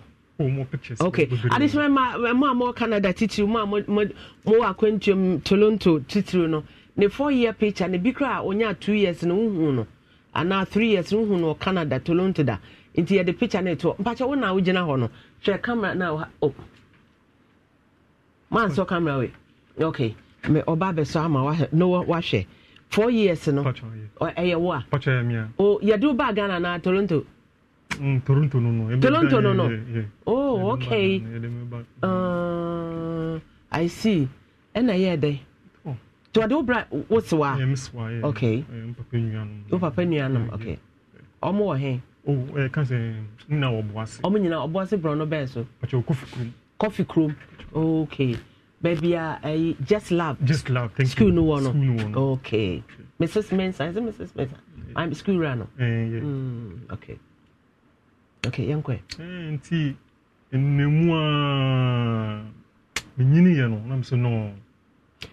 okay adesoma ma mo a mo canada titiri mo a mo wɔ akwantuam mm, toronto titiri no ne four year picture ne bi kora a two years no huhu no anaa three years no huhu no canada toronto da nti yɛde picture no etoɔ mpakyɛ wo na gyina hɔ no hwɛ camera na ɔha o oh. maa nsɔ camera we okay mɛ ɔba abɛsɔ ama wahɛ no wahwɛ four years no ɛyɛ wo a o oh, yɛde wo baa ghana na toronto. Mm, Toronto no no. Toronto no no. Oh okay. Uh, I see. Ɛna yɛ dɛ. To ade obra what's wa. Yeah, miss wa. Okay. Um, papa nuanom. O Okay. Ɔmo wɔ hɛn. O ɛ kan sɛ nna wɔ Boase. Ɔmo nyina Boase borɔno bɛn so. Pàtɛ o Kofi Kurom. Kofi Kurom. Okay. Baby, a Just love. Just love. Thank school you. No school no wɔ no. Okay. Mrs. Mensah. Is it Mrs. Mensah? I'm school runner. Uh, yeah. mm, okay. okay yɛnkɔ nti nnamu a menyini yɛ no nam sɛ no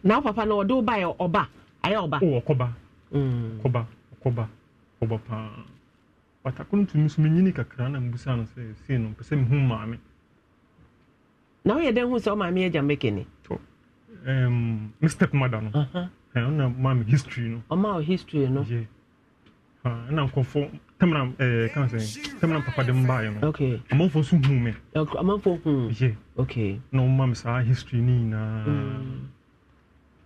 na wo papa no ɔde wo baɛ ɔba ayɛ ɔba wɔ oh, kɔba mm. kɔba kɔba paa watako tumi so menyini kakra na mbusa no sɛ sei no mpɛ sɛ mehu maame na woyɛ dɛn hu sɛ womaame agya mbɛkɛni um, me step mother no uh-huh. ɛna uh history no ɔma wo history no ɛna nkɔfo tamina ɛɛ kan sɛ tamina papa de mbaa yɛ no okay amanfo nso hun mi amanfo hun yɛ okay na wɔn ma mi saa history ni nyinaa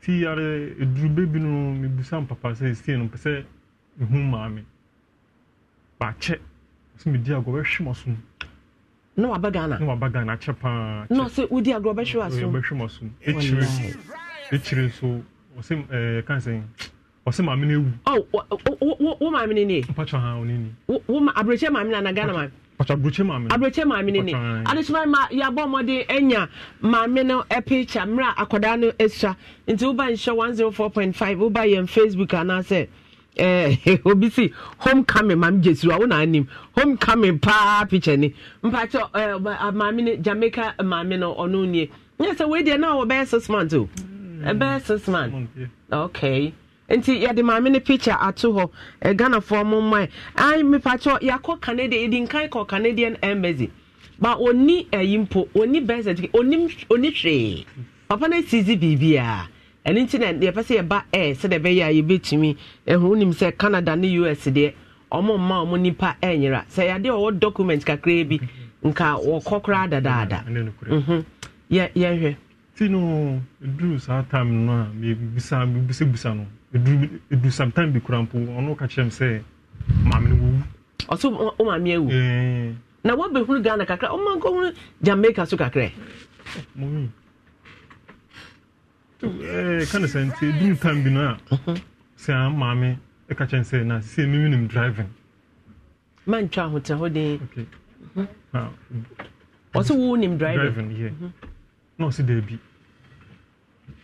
ti yare edurube bi no mi busa papa sɛ esie no pɛsɛ ehun maame baakyɛ so mi di agorɔ ɛhwɛ ma so na waba ghana na waba ghana akyɛ paa na ɔsɛ wodi agorɔ bɛhwɛ wa so ɛhwɛ ma e ekyire ekyire nso ɔsɛ ɛɛ kan sɛ ɔsɛ maame no ewu. ɔ oh, wo maame no nie. mpatsɔ ha ɔne ni. wo ma aburokyɛ maame na na ghana maame. mpatsɔ aburokyɛ maame no. aburokyɛ maame no nie adesima ma yabɔ ɔmɔden enya maame no ɛpikya mmerɛ akwadaa no esua nti woba nhyɛ one zero oh four point five woba yɛn facebook anaasɛ. ɛɛ eh, (laughs) obi si homecoming maame jesu a wona anim homecoming paa picture ni mpatsɔ ɛɛ eh, maame no jamaica maame no ɔno nie nyɛ sɛ wei deɛ naa wɔ bɛyɛ six months o mm. ɛbɛyɛ six months okay nti yɛde maame no picture ato hɔ ghanafoɔ mo mma ai mepakyɛ yɛakɔ canada yɛdi nkan kɔ canadian embassy ba ɔni ayi mpo ɔni birth certificate ɔni hwee papa no asizi biribiaa ɛno nti na yɛpɛ sɛ yɛba air sɛdeɛ ɛbɛyɛ a yɛbɛtumi ɛho wonim sɛ canada ne us deɛ ɔmo mma ɔmo nipa ɛnyera sɛ yɛade ɔwɔ document kakraa bi nka wɔkɔ koraa dadaada mhm. yɛhwɛ ti no duru saa time no a mebisa mebisabisa no edu edu sometime bi kura mpo ɔno ka kyerɛ m sɛ maame no wɔwu ɔso wo maame awu na woabɛhunu ghana kakra ɔma nkɔhunu jamaica so kakra mɔwi ka ne sɛ nti edu time bi na. a mhm. sɛ a maame ka kyerɛ m sɛ na sɛ mimi nim driving mantwa ahotɛ hɔ den mhm. ɔsɛ wo nim driving mhm. na ɔsɛ daabi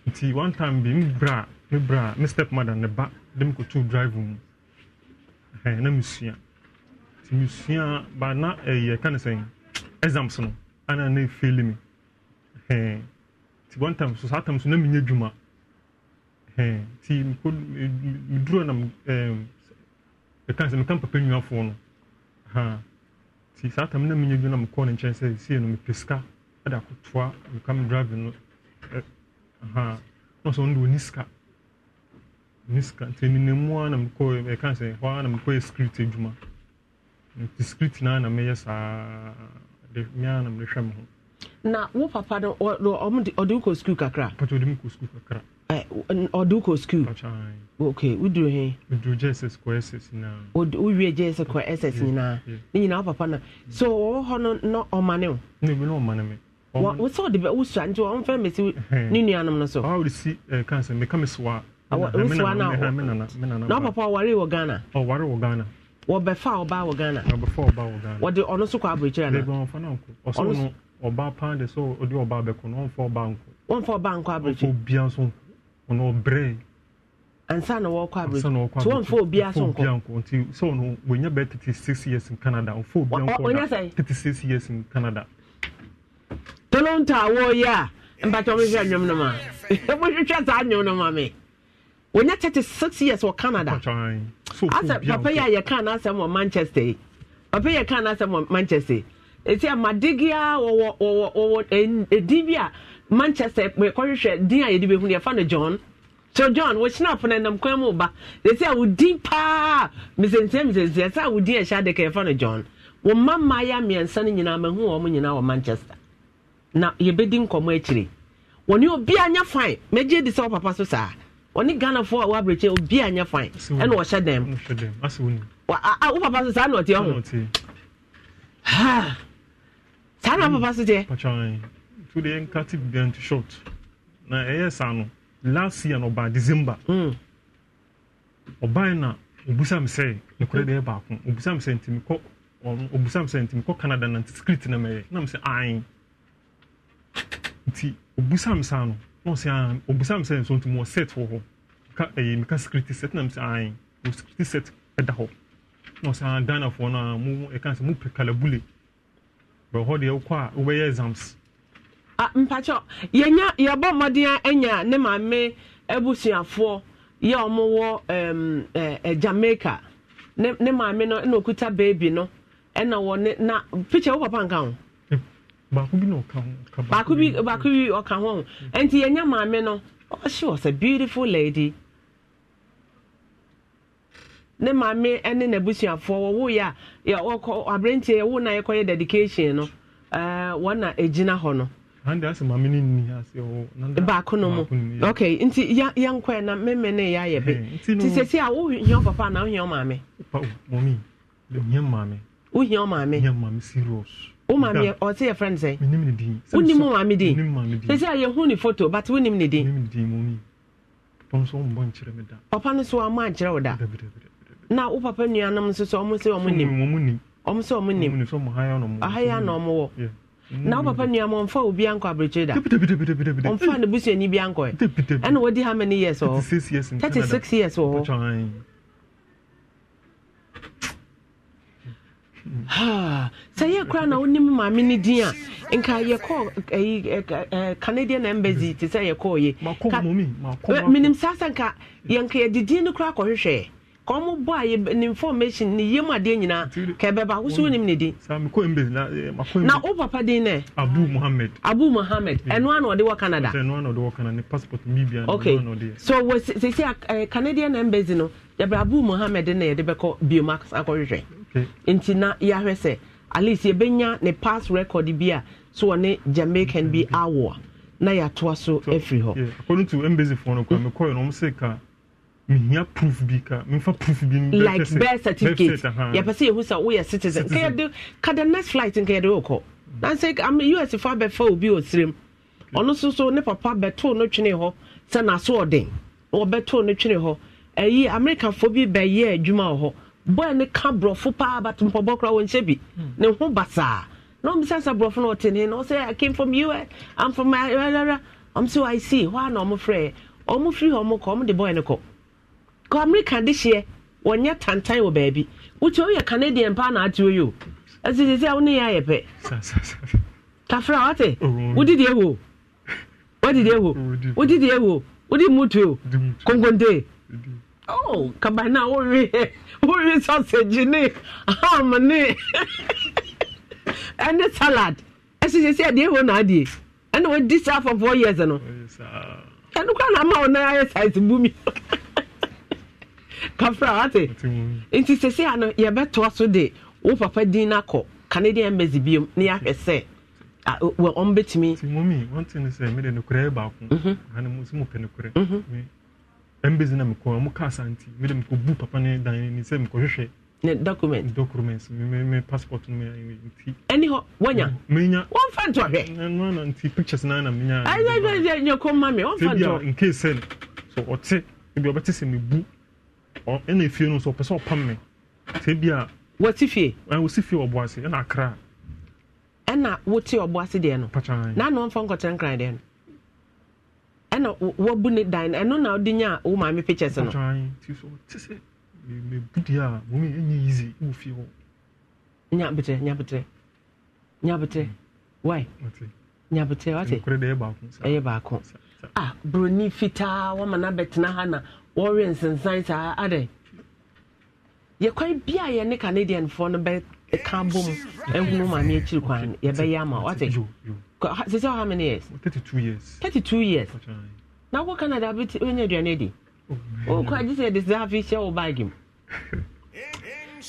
nti one time bi mbra bra me bra me step mother ne ba de me kotu drive mu ɛhɛn na mesua nti mesua ba na ɛyɛ eh, ka ne sɛn exams no ana na feel me. ɛhɛn nti one time so saa time so na menyɛ dwuma ɛhɛn nti meko meduro na ɛɛm ɛka sɛ meka papa nnuafoɔ no ɛhɛn nti saa time na menyɛ dwuma na mekɔɔ ne nkyɛn sɛ sie no mepɛ sika ɛde akotoa meka me drive no ɛ eh, ɛhɛn na ɔsɛ ɔno de ɔni sika ne sika nti nenam mu a na mekɔ ɛka sɛ hɔ a na mekɔyɛ script adwuma nti script naa na meyɛ saa de mea na mehwɛ me ho na wo papa no ɔde wokɔ skul kakra pata ɔde mekɔ skul kakra ɔde wokɔ skul Okay, woduru he woduru jss kɔ ss nyinaa wowie jss kɔ ss nyinaa ne nyinaa wo papa no so wɔwɔ hɔ no na ɔmane wo na ebi na ɔmane me wo sɛ ɔde wosua nti ɔmfɛ mɛsi ne nuanom no so ɔde si kansa meka me soa awosua na na papa ware wɔ Ghana oh ware wɔ Ghana wɔbɛfa ɔbaa wɔ Ghana wɔbɛfa ɔbaa wɔ Ghana wɔde ɔno so kɔ abirikyiri ana bɛbi wɔnfa na nko ɔsɔ no ɔbaa pan de sɛ ɔde ɔbaa bɛko na wɔnfa ɔbaa nko wɔnfa ɔbaa nko abirikyiri ɔfɔ bia nso ɔno ɔbrɛ ansa na wɔkɔ abirikyiri nti wɔnfa obia nso nko nti sɛ ɔno wɔnya bɛ thirty six years in Canada ɔfɔ obia nko na thirty six years in Canada tolonta awɔ yɛ a mpatɔn mi hwɛ nnwom no ma (laughs) mo hwehwɛ saa nnwom no ma mi wɔnyɛ thirty six years wɔ canada asɛ papa yi a yɛka n'asɛm wɔ manchester yi papa yi a yɛka n'asɛm wɔ manchester yi esi amadegia wɔwɔ wɔwɔ wɔwɔ edin bi a manchester kɔhwehwɛ din a yɛde behu yɛfa no john so john wɔkyena apono nam kwan mu ba esi a wodin paa mesensia mesensia sɛ a wodin ɛhyɛ adaka yɛfa no john wɔn mma mmaayɛ mmiɛnsa no nyinaa mahu wɔn nyinaa wɔ manchester na yɛbɛdi nkɔmɔ akyire e wɔn ni obi anya fine mɛgye di sɛ wɔ papa so saa ɔne ghanafoɔ a wɔabrɛkyɛ obi anyɛ fine ɛna ɔhyɛ dɛm wo papa so saa na ɔte ɔho saa na papa so teɛ today nka ti began to short na ɛyɛ saa no last year no ɔbaa december hmm. ɔbaa na obusa mi sɛ ekura deɛ baako obusa mi sɛ ntumi kɔ obusa mi sɛ ntumi kɔ canada na script na mɛyɛ na mi sɛ ayin nti obusa mi saa no. ɔsan obusam sɛ nso ntoma set wɔ hɔ ka ɛyɛ mika sikiriti set nam sɛ ayi o sikiriti set ɛda hɔ na ɔsan ghana foɔ no a mo ɛka sɛ mo pɛ kalabule bɛ hɔ deɛ wokɔ a wobɛyɛ exams. Eh, a mpakyɛ yɛnya yɛbɔ mmɔden a ɛnya ne maame abusuafoɔ yɛ ɔmo wɔ ɛm ɛɛ jamaica ne ne maame no ɛna eh, okuta beebi no ɛna eh, wɔ oh, ne na picture wo oh, papa nka ho. baako bi na ɔka ho baako bi baako bi ɔka ho nti yɛnya maame no ɔhyɛ oh, ɔsɛ beautiful lady ne maame ne n'abusuafoɔ wɔwo yɛ a ɔkɔ aberanteɛ yɛwo na yɛkɔyɛ dedication no ɛɛ eh, wɔn na egyina hɔ no. ande ase maame ne nni ase ɔwɔ. baako no mu ok nti ya ya yɛ na mmemme ne yɛ ayɛ bi ti sese a wohia papa na wohia maame. Oh, mɔmi wohia maame. wohia maame. wohia maame serious. wo maame yɛ ɔte yɛ friend sɛ wonim wo maame din sɛ sɛ yɛhu ne photo but wonim ne din papa no so ama ankyerɛ wo da na wo papa nuanom nso sɛ ɔmo sɛ ɔmo nim ɔmo sɛ ɔmo nim ɔhaya na ɔmo wɔ na wo papa nua ma ɔmfa obi ankɔ abirekyiri da ɔmfa ne busuani bi ankɔ ɛ ɛna wadi how many years wɔ hɔ thirty six years wɔ sɛ yɛ kora na wonim maame no din a nka yɛkɔ canadian embassy te sɛ yɛkɔɔyɛ saa sɛ nka yɛnka yɛde din no kora kɔhwehwɛ ka a information ne yɛmu adeɛ nyinaa ka ɛbɛba wonim ne din na eh, wo papa din nɛ abu mohammed abu mm. ɛno ana ɔde wɔ sɛsi canadian embassy no yɛbrɛ abu mohammed na yɛde bɛkɔ nti na yɛahwɛ sɛ at yɛbɛnya ne pass record bi a so ɔne jamaican bi mm-hmm. awɔ a na yɛatoa so afiri hɔ according to embassyfoɔ mm. no kora mekɔɛ no ɔm sɛ proof bi ka memfa proof bi like birth certificate yɛpɛ sɛ yɛhu sɛ woyɛ citizen nkɛyɛde ka the next flight nkɛyɛde wokɔ mm. nansɛ us fo fa obi ɔsirem ɔno soso ne papa bɛtoo no twene hɔ sɛ n'aso ɔden wɔbɛtoo no twene hɔ ɛyi amerikafoɔ bi bɛyɛ adwuma wɔ hɔ boy ne ka borɔfo paa but mpɔbɔ koraa wɔnhyɛ bi hmm. ne ho basaa na ɔmo sɛ sɛ borɔfo no ɔte ne na ɔsɛ i came from us eh? i'm from ayarara ɔmo sɛ i see hɔ a na ɔmo frɛ ɔmo firi hɔ ɔmo kɔ ɔmo de boy ne kɔ kɔ america de hyeɛ wɔnyɛ tantan wɔ baabi wotu oyɛ canadian paa na ate oyo ɛsisi sɛ ɔne yɛ ayɛ pɛ tafra ɔte wodidi ewo wodidi ewo wodidi ewo wodi mutu o oh, oh, oh. konkonte oh kabana wɔwe wuri sausage ne ham ne ɛne salad ɛsi sɛ sɛ deɛ ɛwɔ n'adeɛ ɛna wɔdi saa for four years no ɛno kora na ama wɔn nan ayɛ size bumi kafra ate nti sɛ sɛ ano yɛbɛtoa so de wo papa din na kɔ canadian embassy biom ne yɛahwɛ sɛ wɔn bɛtumi. ti mumi wɔn ti ne sɛ mi de nukurɛ baako ɛna mo si mo pɛ nukurɛ mbɛzi na mekɔ ɔmo kaa santi mede mekɔbu papa ne dan ani sɛ mekɔhwehwɛ ne document documents me me passport me nti ɛni hɔ wɔnya menya wɔmfa nto hwɛ ɛno na nti pictures na na menya ayɛ ayɛ ayɛ nyɛ kɔ ma me wɔmfa nto in case sɛ so ɔte ebi ɔbɛte sɛ mebu ɔ ɛna efie no so ɔpɛ sɛ ɔpam me sɛ bi a wɔte fie ɛn wɔsi fie ɔbɔ ase ɛna akra ɛna wote ɔbɔ ase deɛ no na na wɔmfa nkɔtɛn kran deɛ no ɛna wabu ne dan ɛno na ɔde nya wo maame pictures no nyabetrɛ nyabetrɛ nyabetrɛ wai nyabetrɛ wate ɛyɛ baako a buroni fitaa wama no abɛtena ha na wɔwe nsensan saa adɛ yɛkwan bia yɛ ne canadianfoɔ no bɛka bom ahunu maame akyiri kwan ama wate sɛ sɛ how many years Thirty-two years Thirty-two years na wokɔ canada wobɛnya aduane adi wokɔ agye sɛ de sɛ afei hyɛ wo baage mu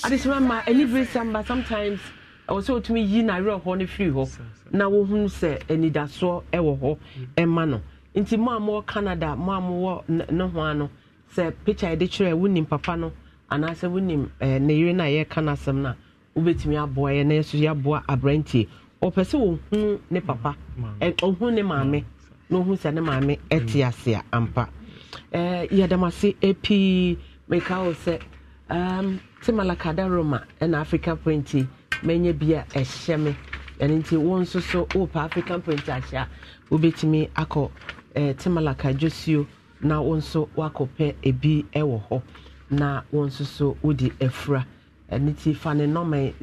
adesoma ma ani bere samba sometimes ɛwɔ sɛ wotumi yi n'awerɛhoɔ no firi hɔ na wohunu sɛ anidasoɔ ɛwɔ hɔ ɛma no nti mo a mowɔ canada mo a mowɔ ne ho a no sɛ picture yɛde kyerɛ wonim papa no anaasɛ wonim eh, ne yere no a yɛreka no asɛm no a wobɛtumi aboa yɛ na yɛso yɛaboa aberantie ɔpɛ sɛ ɔhu ne papa ɔhu mm, ne maame na ɔhu sɛ ne maame ɛte mm. ase a ampa yɛdam ase pii meka wo sɛ te malakada roma ɛna african print manya bi a ɛhyɛ me ɛno nti wo nso so wopɛ african print ahyɛ a wobɛtumi akɔ te malaka dwosuo na wo nso woakɔpɛ ebi wɔ hɔ na wo nso so wode afura ɛno nti fa ne nɔma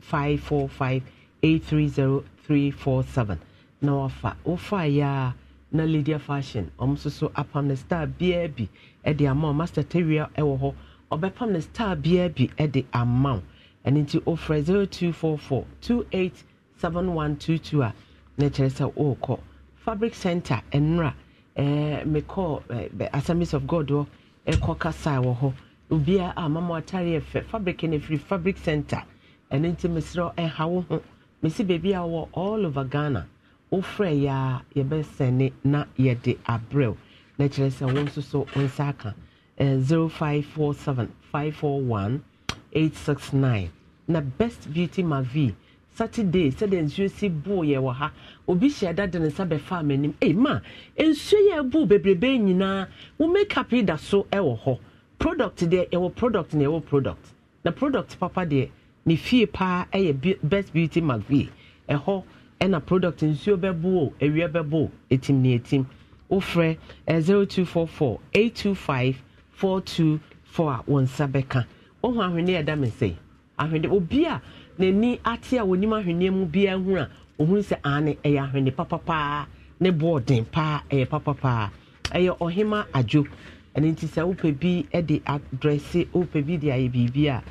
0545 830347 na wafa wofaeɛ na lydia fashion ɔm nso so apam no star biaa master Teria wɔ ho. ɔbɛpam no star biaa bi de ama wo ɛno nti 0244 287122 a na kyerɛ fabric center enra eh, mekɔ eh, assemblies of god hɔ ɛkɔ kasae wɔ ubia obiaa a mama fabric no free fabric center and into mesrɛ ɛha wo mesi baabi a wɔ all over ghana wofrɛ yɛ a yɛbɛsɛne na yɛde abrɛw na kyerɛ sɛ wo nso so wo nsa aka eh, 0547 541 869 na best beauty mavi saturday sɛdeɛ nsuo si boo yɛ wɔ ha obi hyɛ da de ne nsa bɛfaa m'anim ei ma nsuo yɛ boo bebrebe nyinaa wo makeup yi da so wɔ hɔ product deɛ yɛwɔ product na yɛwɔ product na product papa deɛ ne fie paa yɛ best beauty mcvie ɛhɔ ɛna product nsuo bɛbo o awia bɛbo o etim ne etim wofrɛ eh, zero two four four eight two five four two four a wɔn nsa bɛka ohun ahwenneɛ ɛda mi nsɛn ahwenneɛ obi a n'ani ate a wɔnim ahwenneɛ mu biara ho a ohun sɛ ane ɛyɛ eh, ahwenneɛ papapaa ne bɔɔl den paa eh, ɛyɛ papapaa ɛyɛ ɔhema adwo ɛne nti sɛ wopɛ bi ɛde adrɛse wopɛ bi de ayɛ biribi a.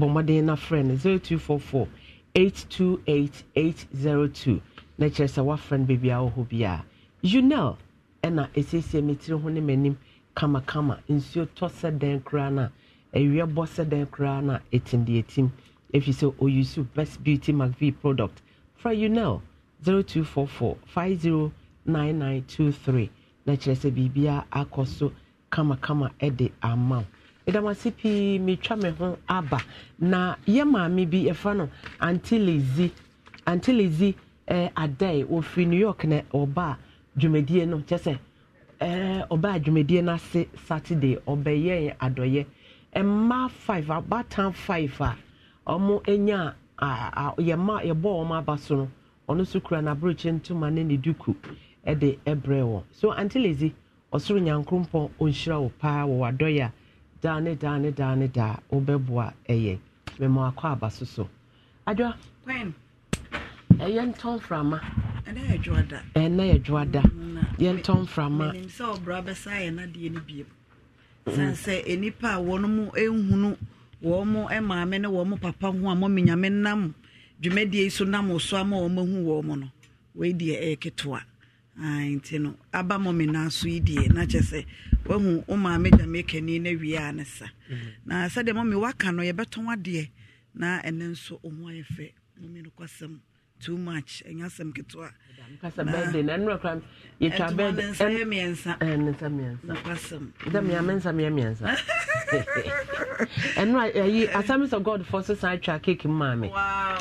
bɔmmɔden na frɛ no 0244 828802 na kyerɛ sɛ woafrɛ no baabi a wɔ hɔ bi a unel ɛna ɛsiesie me tiri ho ne m'anim kamakama nsuo tɔ sɛ dɛn koraa no a awie bɔ sɛ dɛn koraa no a ɛtim deɛ ɛtim ɛfiri sɛ best beauty mcv product fra unel 0244 509923 na kyerɛ sɛ biribiara akɔ so kamakama ɛde ama wo meda mo ase pii metwa me ho aba na yɛ maame bi yɛfrɛ no antilezi antilezi eh, adai wɔfiri new york na ɔba a dwumadie no kyɛ sɛ eh, ɔba a dwumadie no ase saturday ɔbɛyɛ adɔyɛ mmaa five abatan five a wɔn anya a yɛma yɛbɔ wɔn aba so no ɔno nso kura n'aburokye ntoma ne ne duku de brɛ wɔn so antilezi ɔsoro nyankoropɔn ɔnhyira wo paa wɔ wadɔyɛ a daa ne daa ne daa ne daa wobɛboa ɛyɛ mɛma akɔ aba so so adwa ɛyɛ ntɔn mframa ɛnna yɛ da yɛ ntɔn a wɔn mu ehunu wɔn mu maame ne wɔn mu papa ho a mɔmi nyame nam dwumadie yi so nam so ama wɔn wɔn mu no wei deɛ ɛyɛ ketewa nti no aba mɔmi so yi deɛ na sɛ wahu wo maame dame kani no wie a ne sa na sɛdeɛ mami waka no yɛbɛtɔn adeɛ na ɛne nso ɔmo ayɛ fɛ mami nokwasɛm too much ɛnyɛ asɛm ketewa yɛtwabɛdɛnsa miɛnsa ɛno ayi assemblies of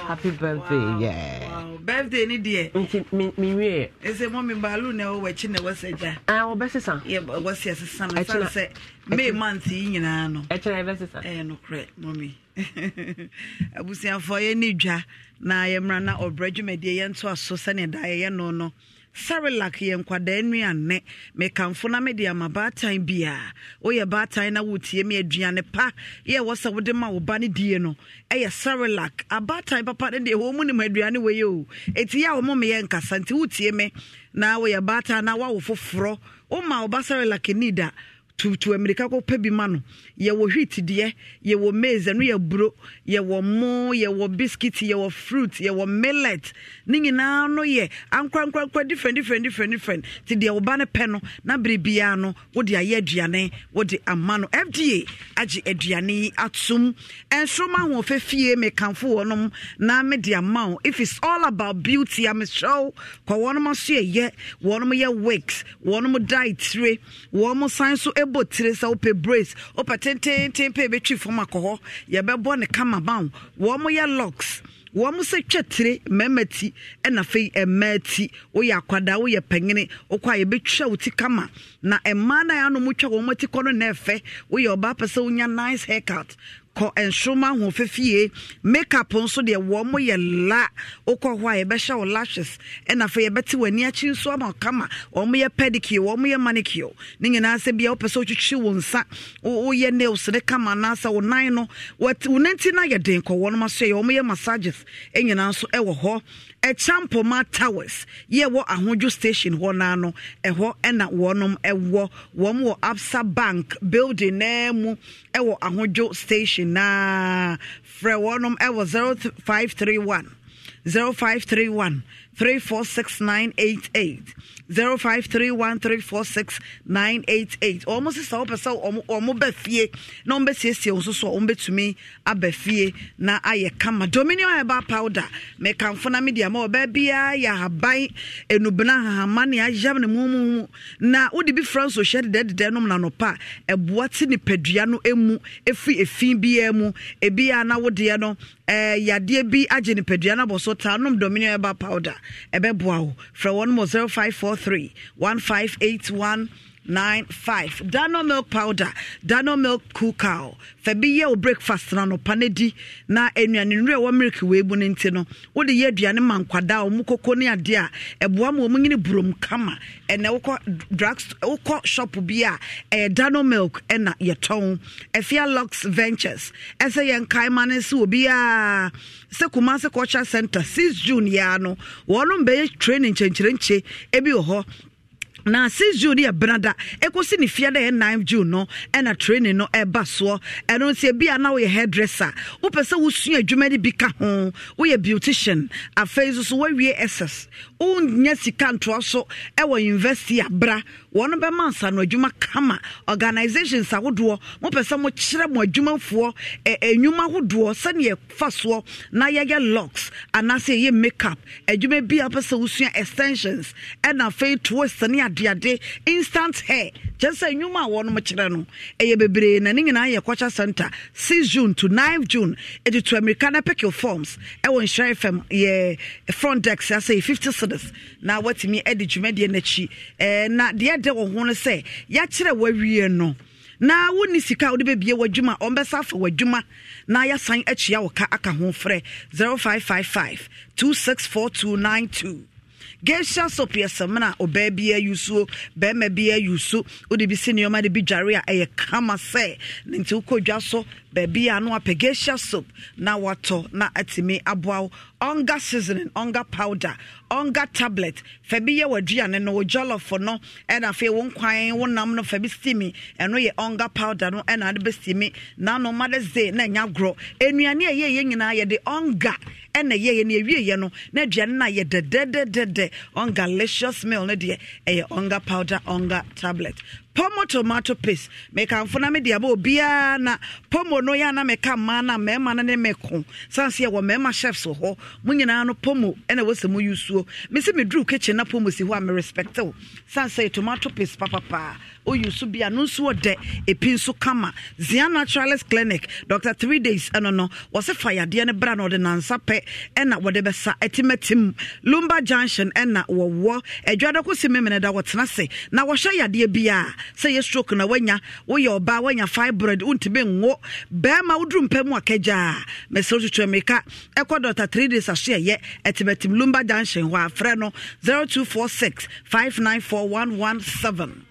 happy birthday yeah. wow. birthday ni deɛ nti menwie ɛsɛ mɔ me baalu na ɛwɔ w'akyi na wɔsɛ gya ah, wɔbɛsesa wɔsɛ sesa no sane sɛ may month yi no ɛkyerɛ ɛbɛsesa ɛyɛ nokorɛ mɔmi (laughs) abusuafoɔ yɛ ne na yɛmmra na ɔbrɛ dwumadie yɛntoa so sɛnea da yɛyɛ no no sarelak yɛ nkwadaa nnuane mekamfo na mede ama baatan biaa woyɛ baatan na wotie me aduane pa yɛ wɔ sɛ wode ma wo ba no die no ɛyɛ sarelak abaatan papa no deɛ wɔ mu nim aduane wei o ɛti yɛ a wɔmo meyɛ nkasa nti wotie me na woyɛ baatan na woawo foforɔ woma wo ba sarilak ni tutu mmirika kɔpɛ bi ma no yɛwɔ wheat deɛ yɛwɔ maize ɛno yɛ buro yɛwɔ mo yɛwɔ biscuit yɛwɔ fruit yɛwɔ millet ne nyinaa no yɛ ankorankorankora different different different different ti deɛ wɔba no pɛ no na bere biara no wode ayɛ aduane wode ama no fda agye aduane yi atom nsoroma ahoɔfɛ fie mekamfo wɔnom na mede ama wo if it's all about beauty amehyɛw kɔ wɔnom aso yɛyɛ wɔnom yɛ wigs wɔnom dietire wɔnom san so bɔ tire sɛ wopɛ brace wopɛ tententen pɛ yɛbɛtwi fam akɔ hɔ yɛbɛbɔ ne kama ban wɔn yɛ locks wɔn sɛ twɛ tire mmarima ti ɛna afei mmaa ti woyɛ akwadaa woyɛ panyini wokɔ a yɛbɛtwa wo ti kama na mmaa no a yɛanom twa wɔn ti kɔ no na ɛfɛ woyɛ ɔbaa pɛ sɛ wonya nice haircut kɔ nsoma ho fefie makeup nso deɛ wɔn mo yɛ la wokɔ hɔ a yɛbɛhyɛ wo lashes ɛna afei yɛbɛte w'ani akyi nso ama kama wɔn yɛ pedicure wɔn yɛ manicure ne nyinaa sɛ bia wopɛ sɛ wotwitwi wo nsa woyɛ nails ne kama anaasɛ wo nan no wo nanti na ayɛ den kɔ wɔn mo aso yɛ wɔn yɛ massages nyinaa nso wɔ hɔ Champoma towers yɛ wɔ ahodwo station hɔ naa no ɛhɔ ɛna wɔnom ɛwɔ wɔn wɔ absa bank building naa mu ɛwɔ ahodwo station naa frɛ wɔnom ɛwɔ zero five three one zero five three one three four six nine eight eight. 0531346988 ɔmo sisa wopɛ sɛ ɔmo bɛ fie na ɔmo bɛsiesie wo so so ɔmo bɛtumi aba fie na ayɛ kama dominion herbal powder mekamfo na media ma ɔbaa biara yɛ ahaban enubena ahahama ne ayam ne mumumu na wode bi fra nso hyɛ dedɛdedɛ nom nanɔpa ɛboa te nipadua no emu efi efi biara mu ebi a na wodeɛ no Eh, yadeɛ bi agye nipadua no abɔ so taa nom dominion ɛba powder ɛbɛboa wo frɛ wɔn mo 0543 1581 nine five dano milk powder dano milk cool cow fɛ bi yɛ o breakfast na no pane di na nnuane nnura ɛwɔ milk wee bu ne nti no wode yɛ aduane ma nkwadaa ɔmo koko ne adeɛ a ɛboa ma ɔmo nyine burom kama ɛnna wokɔ drug wokɔ shop bi a ɛyɛ dano milk ɛna yɛtɔn ɛfia lux ventures ɛsɛ yɛn kaima ne nso obiara sɛ kumase culture center six june yɛa no wɔn bɛyɛ training nkyɛnkyerɛnkyɛ ebi wɔ hɔ na 6 june yɛ benada ɛkɔsi ne fie dɛ ɛyɛ 9 june no ɛna training no ɛba soɔ ɛno nti ebi a na woyɛ hairdresser wopɛ sɛ wosua adwuma no bi ka ho woyɛ beautician afei nso so woawie ss wonnya sika ntoa so ɛwɔ university abra wɔn bɛma nsa no adwuma kama organisations ahodoɔ mopɛ sɛ mokyerɛ mo adwumafoɔ ɛnwuma ahodoɔ sɛneɛ fa soɔ na yɛyɛ locks anaasɛ ɛyɛ makeup adwuma bi a wopɛ sɛ wosua extensions ɛna afei toast ne adeade instant hair kyɛ sɛ nnwuma a wɔnom kyerɛ no ɛyɛ bebree na ne nyinaa yɛ culture center 6 june to 9 june ɛde to america na pickle forms ɛwɔ nhyerɛ fam yɛ front dex asɛ 50 cities na watumi ɛde dwumadeɛ no akyi na deɛ ɛdɛ wɔ ho no sɛ yɛakyerɛ wawie no na wonni sika wode bɛbie w'adwuma ɔmbɛsa afa w'adwuma na yɛasan akyia wo ka aka ho frɛ 0555 264292 gesha soap yɛ sɛm no yusu, be bi yusu, udibisi bi ayusu wode bi si nneɔma a ɛyɛ kama sɛ ne nti wokɔ baabi a no apagasia soap na watɔ na atumi aboa wo ɔnga seasoning onga powder onga tablet fa bi yɛ w'aduane no wo jollof no ɛna afei wo nkwan wo nam no fa bi steami ɛno yɛ ɔnga powder no ɛna ade bɛsteami nano made ze na ɛnya gorɔ nnuane a yɛyɛ nyinaa yɛde ɔnga ɛna yɛyɛ no ɛwieyɛ no na aduane no a yɛ dɛdɛdɛdɛdɛ onga licious meal no deɛ ɛyɛ ɔnga powder onga tablet pomo tomato paste mekamfo na mede aba obiara na pomo no yɛ ana meka mmaa na mmarima no ne meko sane sɛ yɛwɔ mmarima chefs wɔ hɔ mo nyinaa no pomo ɛna wɔsɛ mu yusuo me sɛ meduru kitchen na pomo si hɔ a merespecte wo sane sɛ tomato paste papapaa oyi so bia no nso ɔdɛ epi nso kama zia naturalist clinic Doctor three days ɛno no wɔsɛ fa yadeɛ no bra na ɔde nansa pɛ ɛna wɔde bɛsa ɛtimatim lumba junction ɛna wɔwɔ adwadako si memene da wɔtena se na wɔhyɛ yadeɛ bia sɛ yɛ stroke na wanya woyɛ ɔbaa wanya fibroid wontumi nwo bɛrima woduru mpɛ mu akagyaa mesrɛ tutu mirika ɛkɔ dr three days aso ɛyɛ ɛtimatim lumba junction hɔ afrɛ no one seven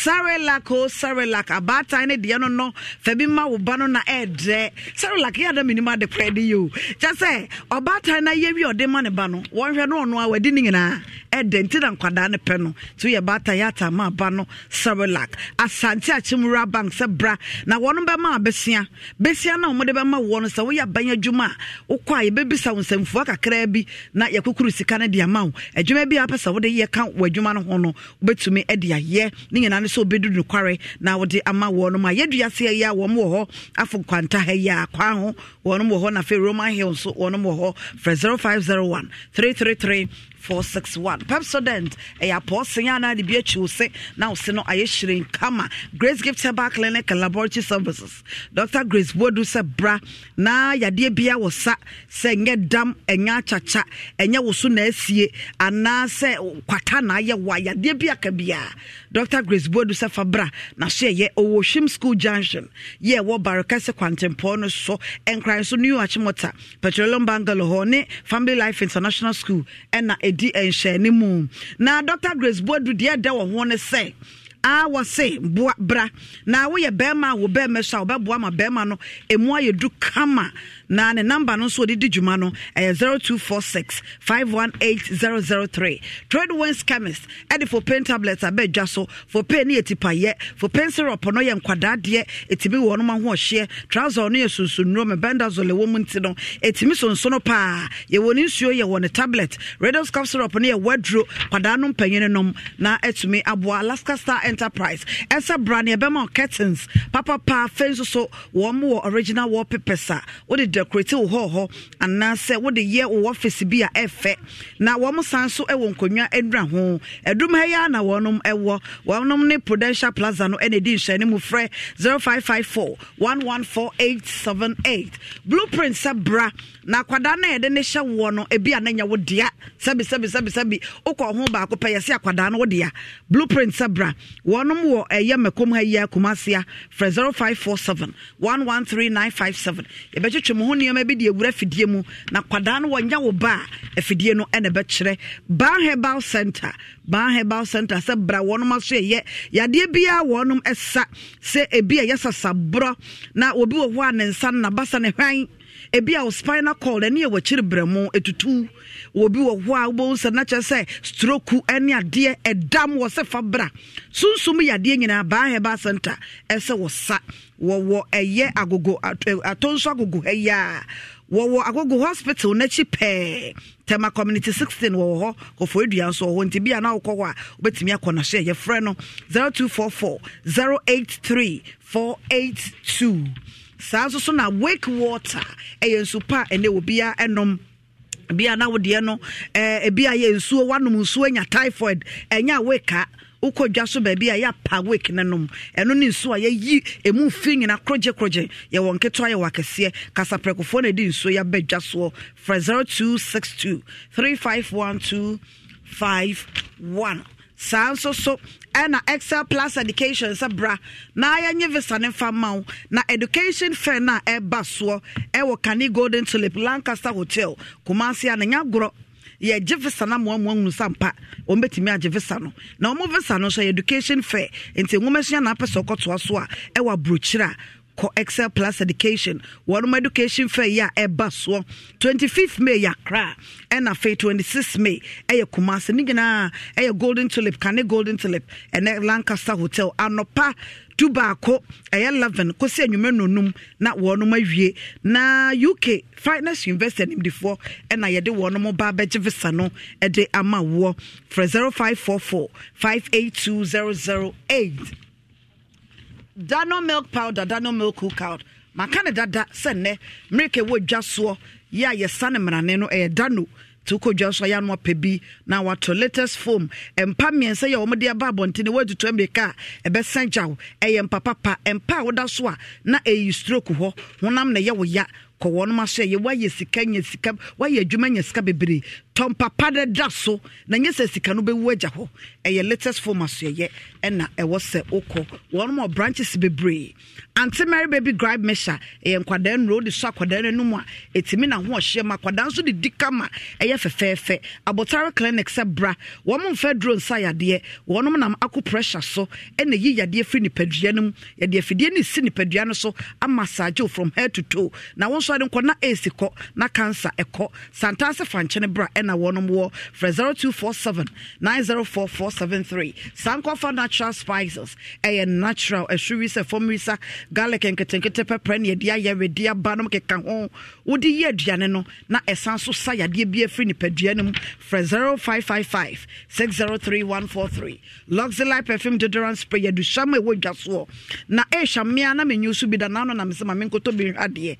sarelac o oh, sarelac abaatan ne deɛ no no fa ma wo ba no na ɛɛdrɛ sarelac yɛ ada menim ade korɛ de yi o kyɛ sɛ ɔbaatan no yɛ wi ɔde ma ne ba no wɔnhwɛ no ɔno a wadi ne nyinaa ɛdɛ nti na nkwadaa no pɛ no nti woyɛ baatan yɛ atama aba no sarelac asante akyemwura bank sɛ bra na wɔno bɛma besia bɛsia no a wɔmde bɛma woɔ no sɛ woyɛ aban adwuma a wokɔ a yɛbɛbisa wo nsɛmfua kakraa bi na yɛkokuru sika no de ama wo adwuma bi a sɛ wode yɛ ka w'adwuma no ho no wobɛtumi de ayɛ ne nyinaa no sɛ obɛdu nokware na wode ama wɔnom a yɛaduaseɛ yi a wɔm wɔ hɔ afo kwantaha yi a kwaa ho wɔnom wɔ hɔ na afei roman hill nso wɔnom wɔ hɔ frɛ 0501 333 461 pepsodent ɛyɛ apɔɔsen anaa de bi akyi se na wo no ayɛ kama grace gift herbal clinic and laboratory services dr grace bodu sɛ bra na yadeɛ bia wɔ sa sɛ dam ɛnyɛ akyakya ɛnyɛ wo so na asie anaa sɛ kwata na ayɛ wa yadeɛ dr grace bodu sɛ fa bra na so ɛyɛ ɔwɔ hwim school junction yɛ ɛwɔ barekɛse kwantempɔn no so ɛnkran so new achimota petroleum hɔ ne family life international school ɛna ɛdi nhyɛne mu na dr grace boadu deɛ ɛda wɔ ho ne sɛ a wɔse boa bra na woyɛ bɛrima a wo bɛrima so a wobɛboa ma bɛrima no ɛmu ayɛ du kama na ne number no nso ɔde di dwuma no ɛyɛ 0246 518003 trade wins chemist ɛde for pain tablets abɛdwa so for pain ne yɛ tipayɛ for pain syrup no yɛ nkwadaa deɛ ɛtumi wɔ ɔnom ahoɔhyeɛ trouser no yɛ sunsumnuro mebendazole wɔ mu nti no ɛtumi sonsono paa yɛwɔ ne nsuo yɛwɔ ne tablet radios cup syrup no yɛ waduro kwadaa no mpanyini nom na ɛtumi aboa alaska star enterprise ɛsɛ bra ne ɛbɛma curtains Papa afei nso so wɔn wɔ original wallpapers a wode decorate wo hɔ hɔ anaasɛ wode yɛ wo office bi a ɛfɛ na wɔn san so wɔ nkonnwa adura ho adum ha yi ara na wɔnom wɔ wɔnom ne prudential plaza no na edi nhyɛn mu frɛ seven eight blueprint sɛ bra na akwadaa no yɛde ne hyɛ woɔ no ebi a n'anya wo dea sɛbi sɛbi sɛbi sɛbi wokɔ ho baako pɛ yɛsi akwadaa no wo dea blueprint sɛbra wɔnom wɔ ɛyɛ eh, mɛkɔm ha yi akumasia frɛ zero five four seven one one three nine five seven yɛbɛtwitwi mu ho nneɛma bi de ewura fidie mu na akwadaa no wɔnya wo ba afidie no ɛna ɛbɛkyerɛ ban herbal center ban herbal center sɛ bra wɔnom aso yɛ yadeɛ biara wɔnom ɛsa sɛ ebi a yɛ sasaborɔ na obi wɔ hɔ a ne nsa no nabasa ne hwan ebi a wo spinal cord ɛne ɛwɔ akyiri brɛmo etutu wɔ bi wɔ hɔ a wobɛhu sɛ na kyerɛ sɛ stroke ɛne adeɛ ɛdam wɔ sɛ fa bra sunsum yɛ adeɛ nyinaa baa herbal center ɛsɛ wɔ sa wɔwɔ ɛyɛ agogo atonso agogo ha yi a wɔwɔ agogo hospital n'akyi pɛɛ tema community sixteen wɔwɔ hɔ kɔfɔ adua nso wɔ hɔ nti bi a na wokɔ hɔ a wobɛtumi akɔ n'ahyɛ yɛfrɛ no 0244 083 482 saa nso so na wake water ɛyɛ nsu pa ɛnɛ obia ɛnom bia na wodeɛ no ebi ayɛ yɛ nsuo wanom nsuo anya typhoid ɛnya weka wokɔ dwa so baabi a yɛapa wek no nom ɛno ne nsuo a yɛyi ɛmu fi nyina korɔgyekorɔgye yɛwɔ nketewa yɛwɔ akɛseɛ kasaprɛkofoɔ na ɛde nsuo yɛaba dwa soɔ frɛ 0262 351251 saa nso so ɛna excel plus education sɛ bra na yɛnye visa ne fa ma wo na education fair no a ɛba soɔ ɛwɔ kane golden tulip lancaster hotel kumase a ne nya gorɔ yɛgye visa no amoamoa hunu sa ɔmbɛtumi agye visa no na ɔmo visa no nso yɛ education fair nti nwoma sua na apɛ sɛ ɔkɔtoa so a ɛwɔ aburokyire a kɔ excel plus education wɔnom education fair yi a ɛba soɔ 25th may yɛ akra ɛna afei may ɛyɛ kumase ne nyinaa ɛyɛ golden tulip kane golden tulip ɛnɛ lancaster hotel anɔpa du baako ɛyɛ 11 kɔsi anwummerɛ nonum na wɔnom awie na uk finance university animdifoɔ ɛna yɛde wɔnom ba bɛgye visa no ɛde ama woɔ frɛ 0544 582008 dano milk powder dano milk cookout maka ne dada sɛ nnɛ mmerika wɔ dwa soɔ yɛ a yɛsa ne mmarane no ɛyɛ dano to kɔ dwa so yɛano apɛ bi na wato latest foam mpa mmiɛnsa yɛ wɔmde aba abɔnten woatutu mmirika a ɛbɛsa gyaw ɛyɛ mpapapa mpa a woda so a na ɛyi stroke hɔ honam na ɛyɛ wo ya kɔ wɔnom aso ɛyɛ woayɛ sika nya sika woayɛ adwuma nya sika bebree tɔmpapa no da so na nyɛ sɛ sika no bɛwu agya hɔ ɛyɛ latest form asoɛyɛ ɛna ɛwɔ sɛ wokɔ wɔnom wɔ branches bebree ante mary baby gribe measure ɛyɛ nkwadaa nnuro wode so akwadaa no anom a ɛtumi na ho ɔhyeɛ ma akwadaa nso de di kama ɛyɛ fɛfɛɛfɛ abotare clinic sɛ bra wɔn mfa duro nsa yadeɛ wɔnom nam aku pressure so ɛna yi yadeɛ firi nipadua no mu yɛde afidie no si nipadua no so ama saagyew from head to toe na wɔn nso ade nkɔ na ɛɛsi kɔ na cancer ɛkɔ santaase fankyɛn bra ɛ ɛna wɔnom wɔ frɛ 0247 904473 sankɔfa natural spices ɛyɛ natural ɛhwiri sɛ fam risa garlic nketenkete pɛprɛ dia yɛde ayɛ wedi aba nom keka ho wode yɛ aduane no na ɛsan so sa yadeɛ bi afiri nipadua no mu frɛ 0555 603143 perfume deodorant spray yɛduhyam a ɛwɔ dwa soɔ na ɛhyɛ eh, mmea na menyi so bi da naano na eh. mesɛ ma menkɔtɔ bi nhwadeɛ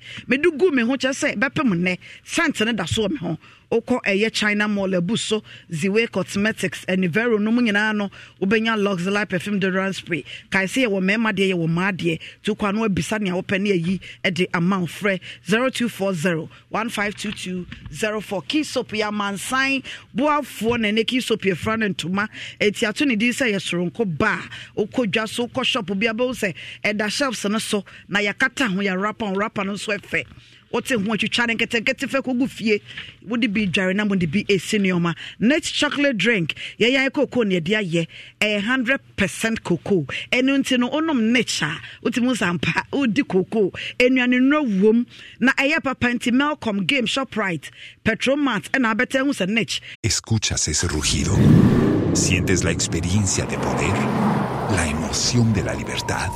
gu me ho kyerɛ sɛ bɛpem nnɛ sɛnte ne da soɔ me ho wokɔ ɛyɛ china mall abu so ziwe cosmetics anivero no mu nyinaa no wobɛnya luxury perfume deodorant spray kae sɛ yɛwɔ mmarima deɛ yɛwɔ mmaa deɛ nti wokɔ ano abisa nea wopɛ ne ayi de amount frɛ 0240 152204 key soap yɛ amansan boafoɔ na ɛnɛ key soap yɛfra no ntoma ɛtiato ne din sɛ yɛ soronko ba a wokɔ dwa so wokɔ shop bi abɛwo sɛ ɛda shelves no so na yɛakata ho yɛrapa ho rapa no nso ɛfɛ wote ho atwitwa ne nketenkete fɛ kɔgu fie wode bi dware na mode bi ɛsi nneɔma net chocolate drink yɛyɛ koko ne ɛde ayɛ ɛyɛ 100 percent ɛno nti no wonom nech a wotumi sampa wodi cocoa nnuane nnuro wom na ɛyɛ papa nti melcom game shoprite petromat ɛna abɛtɛ hu sɛ nech escuchas ese rugido sientes la experiencia de poder la emoción de la libertad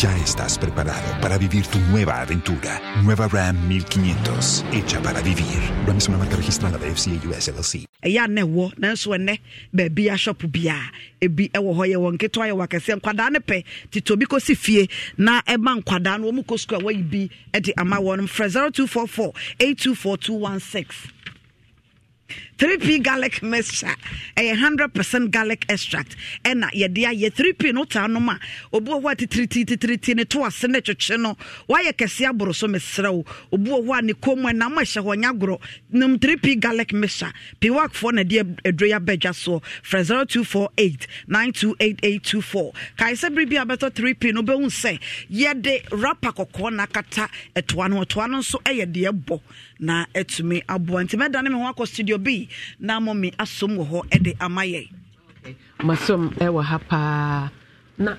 Ya estás preparado para vivir tu nueva aventura. Nueva Ram 1500, hecha para vivir. Ram es una marca registrada de FCA US LLC. Ya ne wo, nanso ene baabi a shop bia, ebi ewo hɔ yɛ wɔn ketewa yɛ wakɛse nkwadaa ne pɛ tete obi kɔsi fie na ɛma nkwadaa no wɔn mu kɔ sukuu a wɔyi bi de ama wɔn 0244-824216. 3p garlic mixture a 100 percent garlic extract ɛna yɛde ayɛ 3p no taa nom a obuo hɔ a titirititi ne to ase ne twetwe no wayɛ kɛse aboro so mesrɛ wo obuo hɔ a ne kɔn mu ɛnam ɛhyɛ hɔ nya agorɔ nom 3p garlic mixture piwakfoɔ na de aduro yɛ abɛdwa soɔ frɛ 0248 928824 kae sɛ bere a bɛtɔ 3p no wobɛhu sɛ yɛde rapa kɔkɔɔ na akata ɛtoa no ɛtoa no nso ɛyɛ deɛ bɔ na atumi aboa nti mɛdane me ho akɔ studio bi na mmɔ me asom wɔ hɔ de ama yɛ masom ɛwɔ ha paa na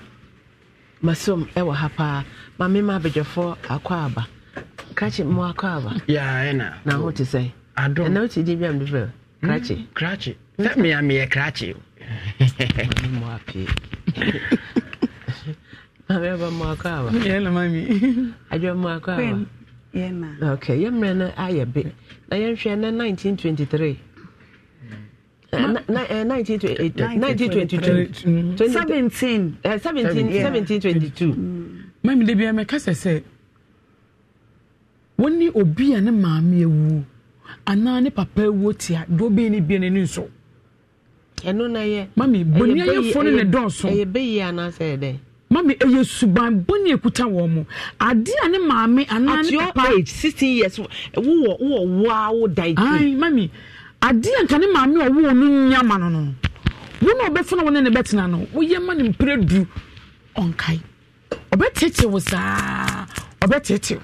masom ɛwɔ ha paa ma mema abadwafoɔ akɔ aba krakye mo akɔ aba na ho te sɛ ɛna wote di bi amde frɛ hmm? krakye krakye sɛ mea meyɛ krakye (laughs) mo apee (laughs) (laughs) mame aba mo akɔ aba adwa mo akɔ aba okay yɛmmerɛ no ayɛ be na yɛnhwɛ uh, uh, na 1923 uh, mm. mami da bia mɛka sɛ sɛ wɔne obi a ne maame awuo anaa ne papa awuo tia deɛ ɔbɛi no bia n'ani nso ɛno na yɛ mami bɔniayɛfoɔ no ne dɔɔso ɛyɛ bɛyi anaasɛ ɛdɛn mami ɛyɛ suban bɔnni ekuta wɔn mo ade a maame anaa ne papa at your age sixteen years wowɔ wowɔ waa da ike ayi mami ade a nka ne maame a wowɔ no nyama no no wɔn a ɔbɛfuna wɔn ne bɛtena no woyɛ ma ne mpere du ɔnkae ɔbɛtete wo saa ɔbɛtete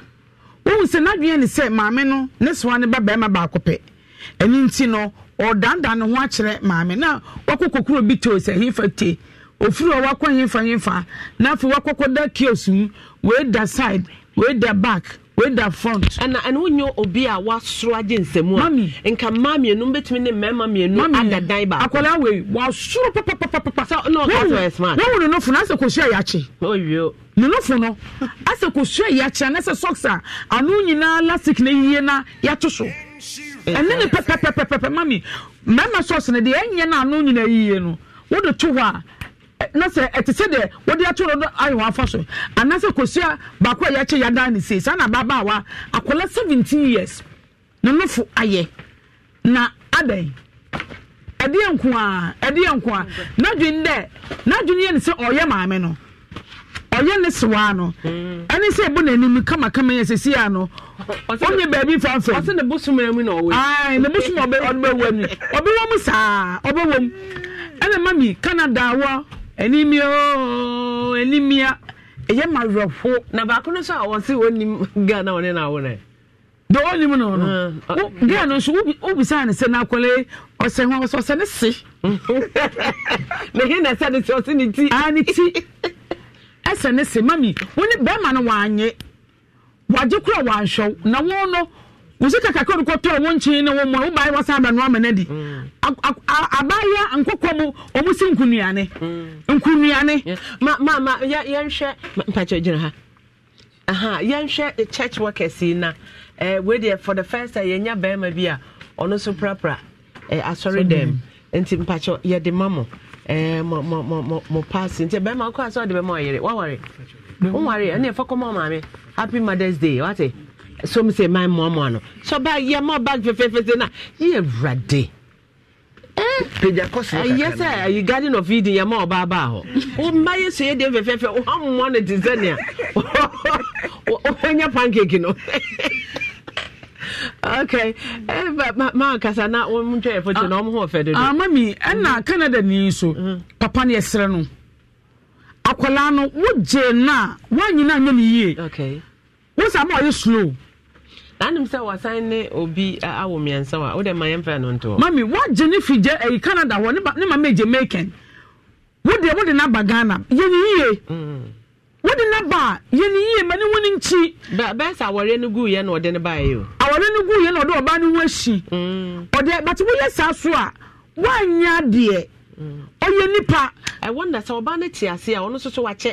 wɔn sɛ n'adwene ne sɛ maame no ne soa ne ba barima baako pɛ ɛne nti no ɔdandan ne ho akyerɛ maame na wakɔ kokoro bi to sɛ hin fa te. ofiri a wakɔ nyimfa nyimfa na afei wakɔkɔ da kiosk mu wei da side wei da back wei da front. ɛna ɛna wonye obi a wasoro agye nsɛmú a. mami nka mmaa mienu bɛtumi ne mmarima mienu ada dan baako. akwadaa wei wasoro papapapapa. sa. ɔna ɔka sɛ ɔyɛ smart. wɔn wɔn nɔfo na asɛ kosua yakye. oyo. ne nɔfo no asɛ kosua yakye anasɛ socks a ano nyinaa lasik na yie na yato so. ɛne ne pɛpɛpɛpɛpɛ mami mmarima socks no deɛ ɛnyɛ na ano nyinaa yie no wɔde to hɔ a. na sɛ ɛte sɛ deɛ wɔde atoro no ayɛwɔ afa so anaasɛ kosua baako a yɛakye yɛadan ne sei saa na ababaawa akwadaa seventeen years ne nofo ayɛ na adan ɛdeɛ nko a ɛdeɛ nko a n'adwene dɛ n'adwene yɛ ne sɛ ɔyɛ maame no ɔyɛ ne sewaa no mm. ɛne sɛ ebu n'anim kamakama yɛ sɛsi a no ɔnyɛ beebi fanfɛ ɔsɛ ne bosom mu na ɔwɔ ayi ne bosom ɔbɛwɔ mu ɔbɛwɔ mu saa ɔbɛwɔ mu ɛna mami Canada wɔ. enimia ooo enimia ɛyɛ ma werɛfo. na baako no nso a wɔn si wɔn nim ghana wɔn ne na wɔn rɛ. de wɔn nim na wɔn no ghana no nso wobisa ne sɛ n'akɔlɛ ɔsɛ hɔn ɔsɛ ɔsɛ ne se. na (laughs) na ɛsɛ ne se ɔsɛ ne ti. aa ne ti ɛsɛ ne se mami wɔn ne bɛrima no wɔn anye wɔn agye kura wɔn ahyɛw na wɔn no musika kakra no kɔtɔ ɔmo nkyen ne wɔn mu a wo baayɛ wɔsa abɛn wɔn amena di mm. abaayɛ nkokɔ mu ɔmo si nkunuane mm. nkunuane. ma ma ma yɛ yɛnhwɛ mpakyɛ gyina ha aha yɛnhwɛ eh, church workers yi na ɛɛ eh, for the first time yɛnya barima bi a ɔno nso prapra ɛɛ eh, asɔre dɛm nti mpakyɛ yɛde ma mo mo mo mo mo mo paasi nti barima akɔ asɔre de bɛma ɔyere waware waware ɛna yɛfɔ kɔma ɔmaame happy mothers day wate. so mi sɛ man mmoamoa no sɛ ɔba yɛ ma ɔba na yɛ wurade ɛyɛ sɛ ayi garden of eden yɛ ma ɔba baa hɔ ɔmma yɛ so yɛ deɛ fɛfɛɛfɛ ɔmmoa no te sɛ nea ɔhɛnyɛ pancake no okay kasa na wɔn ntwa yɛ foto na wɔn ho dodo. amami ɛna canada ni so mm-hmm. papa ni ɛsrɛ no no na nyinaa nyɛ yie ama slow. anim sɛ wasan ne obi awɔ mmiɛnsa a wode ma yɛmfrɛ no ntoɔ mami wagye ne figye ɛyi eh, canada hɔ ne ma megye maken wode wode no aba ghana yɛne yie mm. wode no ba a yɛne yie ma ne wo no nkyi bɛɛ sɛ awɔreɛ no guiɛ na ɔde no baeɛ o awɔreɛ no guiɛ na ɔde ɔbaa no ho ahyi mm. ɔde bate woyɛ saa so a woanyɛ adeɛ mm. ɔyɛ nipa ɛwɔ nda sɛ ɔbaa no te ase a ɔno nso so wakyɛ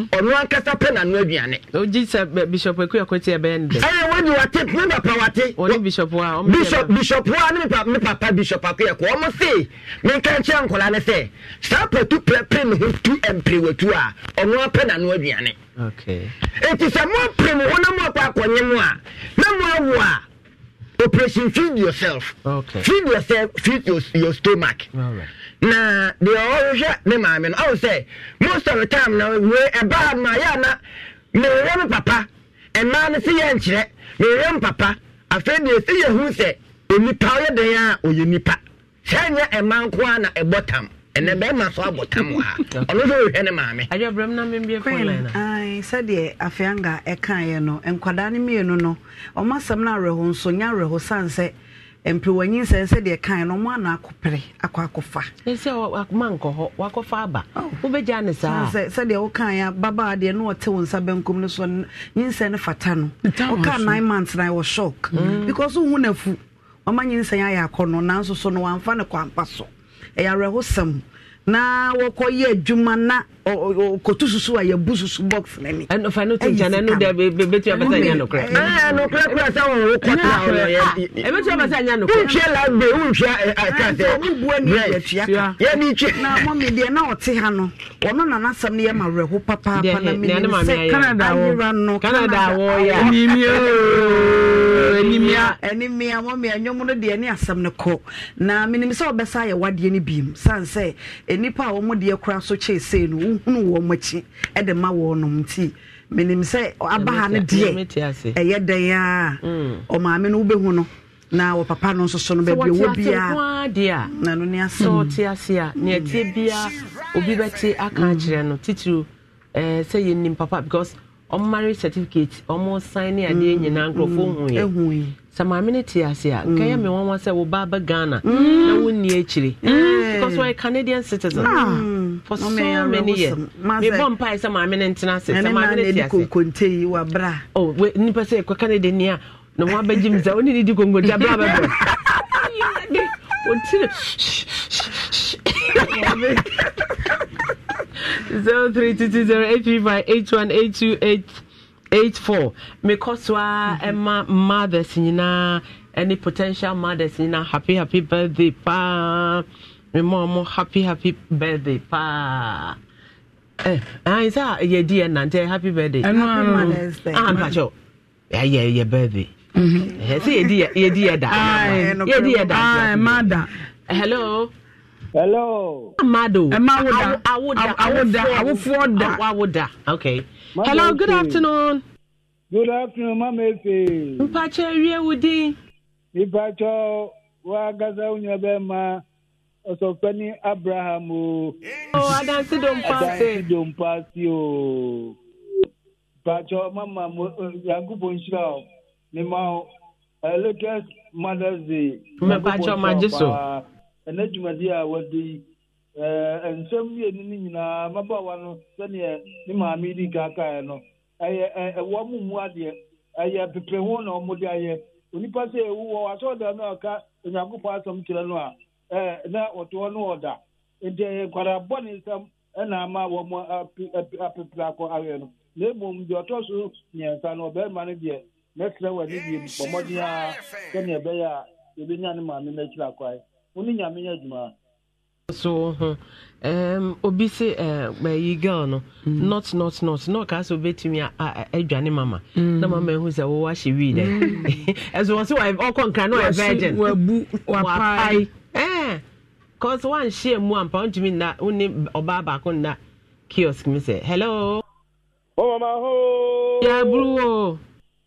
ɔno mm. ankasa pɛ na aduane ogye sɛ bishop akua kɔte ɛbɛyɛ no dɛ ɛyɛ wɔde wate me papa wate ɔne bishop a bishop a ne me papa bishop akua kɔ ɔmo se menka nkyerɛ nkɔla ne sɛ saa patu pɛpɛ ne ho tu ɛmprewatu a ɔno apɛ na aduane ɛti sɛ moapere mo ho na moakɔ akɔnye mo a na moawo a operation feed yourself okay. feed yourself feed your, stomach na deɛ ɔhwehwɛ ne maame no ɔwɔ sɛ most of the time na we ɛbaa ma yɛ ana mewere me papa ɛmaa no se yɛ nkyerɛ mewere me papa afei deɛ ɛsɛ yɛhu sɛ onipa ɔyɛ den a ɔyɛ nipa sɛ nyɛ ɛma nko a na ɛbɔ tam ɛnɛ bɛrima so abɔ tam wɔ ha (laughs) ɔno nso ɔhwɛ ne maame. adwabrɛm na mmebie kɔlɛn na. sɛdeɛ afeanga ɛkaeɛ no nkwadaa no mmienu no ɔmo asɛm no awerɛho nso nyɛ awerɛho san sɛ mpewanyinsɛn sɛdeɛ kan no ɔmo ana akɔpere akɔ akɔfa. ɛsɛ ɔma nkɔ hɔ wakɔfa aba wobɛgya ne saa. sɛ sɛdeɛ ɔkan ya babaa deɛ no ɔte wɔn nsa benkum no so nyinsɛn no fata no ɔka nine months na ɛwɔ shock because ohun na fu ɔma nyinsɛn ayɛ akɔnɔ nanso so no wɔamfa ne kɔ ampa so ɛyɛ awerɛhosɛm na wɔkɔ yɛ adwuma na. kotu susu a yɛbu susu box na ni. ɛnu fa ne to nkyɛn ɛnu de bɛ tuya basa nya nukurɛ. ɛɛ nukura kura sɛ wɔn o kɔta o yɛ. ɛbɛ tuya basa nya nukurɛ. n tiɛ la be n tiɛ kan tɛ brɛ yɛ ni tiɛ. na mɔ mi deɛ na ɔte ha no ɔno nana sɛm ne yɛ ma wɛrɛ ko papaapa na mi sɛ Canada wɔ Canada wɔ ya. enimia ooo enimia. enimia mɔ mi ɛnyɔmu no deɛ ne asɛm ne kɔ na minimisɛn ɔbɛsa ayɛ wadeɛ ne bi mu sansɛ enipa a wɔn deɛ kura so kyɛ esee no nhunu wɔn akyi de ma wɔn nti menim sɛ aba no deɛ ɛyɛ dɛn a mm. ɔmaame no wobɛhu no na wɔ papa no nso so no biara na no ne ase sɛ ɔte ase a ne ɛteɛ biara obi bɛte aka mm. akyerɛ no titiri sɛ papa because ɔmo marriage certificate ɔmo sign ne adeɛ mm, nyinaa nkurɔfoɔ mm, hu yɛ sɛ maame ne te ase a nkɛyɛ mm. me wɔn sɛ wo ba bɛ ghana na wo ni akyire because wɔyɛ canadian citizen ah. for so many years mebɔ mpae sɛ maame ne ntena ase sɛ maame ne te ase oh nipa sɛ ɛkɔ canada ni a na wɔn abɛgye mi sɛ ɔne ne di konkonte abira bɛbɔ. (laughs) wɔtiri zero three two two zero eight three five eight one eight two eight eight four mekɔ so a ɛma mothers nyinaa ɛne potential mothers nyinaa happy happy birthday paa mema ɔmo happy happy birthday paa ɛn sɛ yɛdi yɛ nante happy birthday ɛno ano ah mpakyɛw ɛyɛ yɛ birthday sɛ yɛdi yɛ dayɛdi yɛ damada hello hello amado awụda. da awoda okay hello good afternoon good afternoon mama efe mpakyɛ wie wo din nipakyɛ wagasa wo nua ma, ɔsɔfani abraham o oh, adansi dompaase o mpakyɛ mama eh, yankopɔn nhyira o mema Lakers Mothers Day mmepacha ọmaji so ɛnɛ dwumadi a wɔde yi nsɛm mmienu no nyinaa mmabaawa no sɛdeɛ ne maame di kaakaeɛ no ɛyɛ ɛwɔ mu mu adeɛ ɛyɛ eh, pepe ho na wɔde ayɛ onipa sɛ ɛwu wɔ asɔɔda no a ɔka onyankopɔn asɛm kyerɛ no a ɛɛ eh, na ɔtoɔ no ɔda nti ɛyɛ eh, nkwadaa bɔ ne nsɛm ɛna ama wɔn apepere akɔ ayɛ no na emom deɛ ɔtɔ so mmiɛnsa no ɔbɛrima no deɛ mɛsrɛ w'ani bie bɔ mmɔden a sɛnea ebe ya yɛbɛnya e ne maame no akyiri akwae wo ne nyame yɛ adwuma so um, obi se bayi eh, uh, girl no mm. not not not na ɔka sɛ obɛtumi adwane mama mm. na mama ɛhu sɛ wowɔ ahyɛ wii dɛ ɛso wɔ ɔkɔ nkra na ɔyɛ virgin wabu wapae eh, cause e mu ampa nna wone ɔbaa baako nna kiosk mi sɛ hello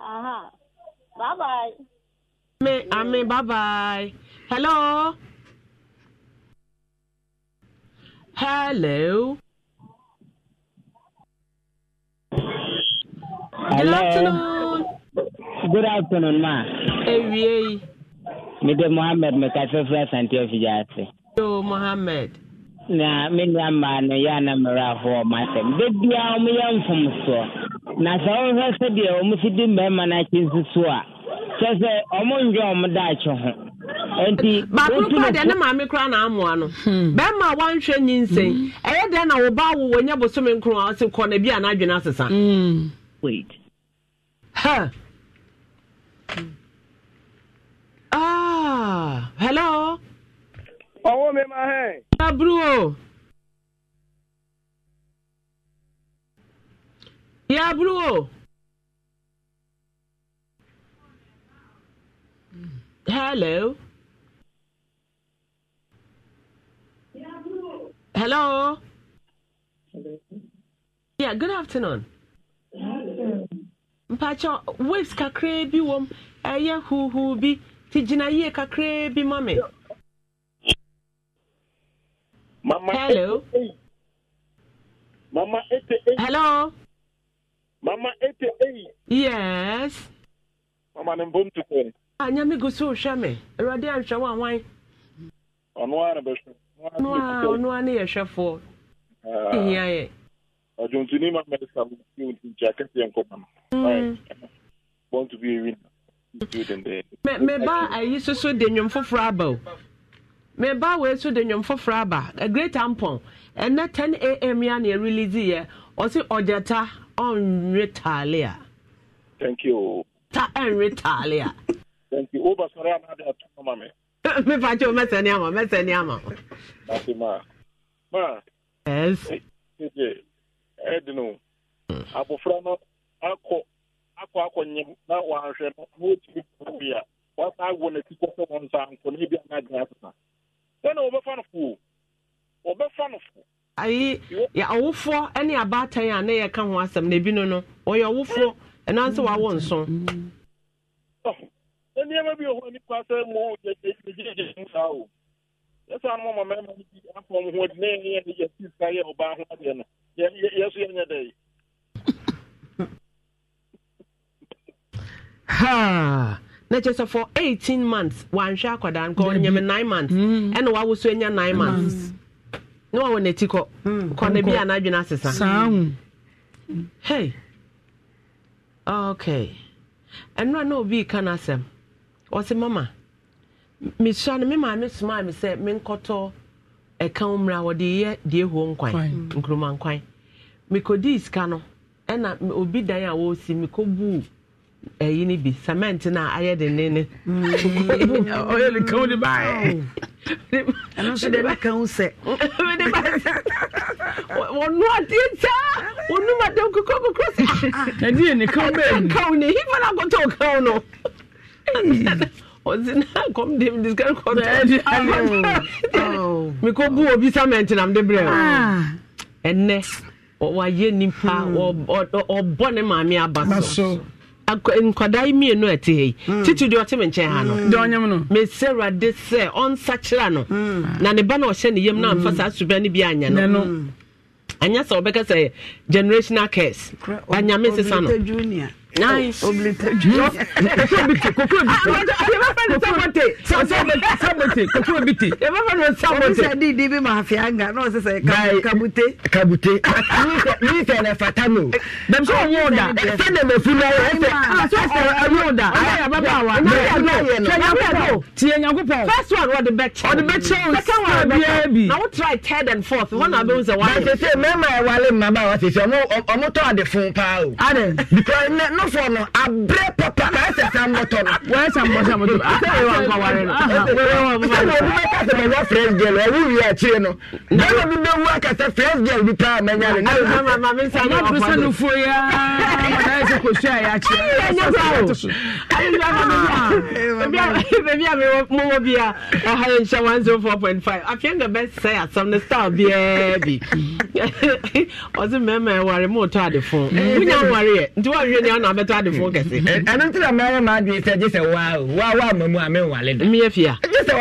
uh Bye bye. Amen. Amen. Bye bye. Hello. Hello. Hello. Good afternoon. Good afternoon, ma. Ewie. Me de Mohammed me ka fefra santi ofija ase. Yo Mohammed. Na me nua ma no ya na mra ho ma sem. De bia o me yam fom so. na sɛ wohwɛ sɛdeɛ ɔmo si di mmarima no akyi nsi so a kyɛ sɛ ɔmo ndwe daakye ho nti baako deɛ ne maame kora na amoa no hmm. bɛrima a wanhwɛ nyinsɛn hmm. ɛyɛ dɛn na woba wo wɔnyɛ bosome nkron a ɔse kɔ na bi a n'adwene asesa hmm. wait ha ah hello ɔwɔ me ma hɛ yabluwo hello hello yeah good afternoon mpakyɛ waves kakraa bi wɔ m ɛyɛ huuhuu bi nti gyina yie kakraa bi ma me hello hello Mama 88. Yes. Mama ne mbom tu kwen. Anya ah, mi gusu ushame. Erade ansha wa wai. Onwa na besho. Onwa onwa ne yeshafo. Ah. Ihia ye. Ojuntuni mama esa mti unti jakati yanko mama. Mm. Right. Born to be a winner. meba ayi soso de nnwom foforɔ aba o meba wei so de nnwom foforɔ aba a great ampon ɛnɛ 10 am ya na ɛrelease yɛ ɔse ɔgyata ɔnwe taale a. thank you. ta ɛnwe taale a. thank you (laughs) o basɔrɔ yà máa di ato ọmọ mi. mi fa tí o mẹsẹ ama. àmọ mẹsẹ ní àmọ. láti máa máa. yes. ẹ jẹ ẹ dinu mm. abofra náà akọ akọ akọ nyim na wahwɛ no na wɔtumi bi a wasa awo n'akyi kɔ sɛ wɔn nsa nkɔ ne bi a n'agyina asesa sɛ na wɔbɛfa no fo wɔbɛfa no fo ayi awofoɔ ne abaatan a ne yɛ ka ho asɛm na ebi no no wɔyɛ awofoɔ ɛna nso mm. wawo nso. ne mm. oh, nneɛma bi wɔ ma no bi afɔ mo ho adi na yɛn yɛ yɛ si sa yɛ ɔbaa ho adeɛ no yɛ so yɛnyɛ dɛ (laughs) na kyerɛ sɛ for months na wawɔ n'ati hmm, kɔ na bi a n'adwene asesa hmm. hey okay ɛno na obi ka n'asɛm ọsị mama mesua no me maame somaa me sɛ menkɔtɔ ɛka wo mmra wɔde yɛ die huo nkwan nkuruma nkwan mekɔdii sika no ɛna obi dan a wɔresi mekɔbuu ɛyi ni bi cement na ayɛ de ne ne mm. ɔyɛ ne kan de baayɛ ɛno nso de bɛ kan sɛ (laughs) de ba wɔnu adeɛ taa wɔnu ma dɛm koko kokoro sɛ (laughs) ɛdi yɛ ne kan bɛɛ mu kan ne hifa na akɔtɔ kan no (laughs) ɔsi na kɔm de mi disika kɔtɔ akɔtɔ mi ko bu obi cement na mi de brɛ o ah. ɛnɛ wayɛ nipa hmm. ɔbɔ ne aba so. nkwadaa yi mmienu a ɛte ha yi titi deɛ ɔte me nkyɛn ha no deɛ no mesɛ awurade sɛ ɔnsakyera no na ne ba na ɔhyɛ ne yam na amfa saa suba no bi anyɛ no anyɛ sɛ wɔbɛka sɛ generational cares anyame sesa no nice obilite kokoobite kokoobite obisɛ di di bi ma afi anga n'o sisɛ kabute. kabute min fɛ dɛ fata mi o bɛn sɔn y'o da fɛn de bɛ funu awo ɛfɛ ɛfɛ y'o da ala yaba b'a wa tiɲɛnyanko tiɲɛnyanko pɔ first one ɔdi bɛ tiɲɛ ɔdi bɛ tiɲɛ o sɛ biɛ bi na o try third and fourth wɔn na bɛ n sɛ adɔfoɔ no abere papa na ɛsɛ sɛ mmɔtɔ no. ɛsɛ mmɔtɔ a yɛ akyire. ɛyɛ abɛtɔ adefoɔ kɛse hmm. ɛno nti na mɛyɛ ma adeɛ sɛ gye sɛ waa waa waa ma mu a menwale da meyɛ fia gye sɛ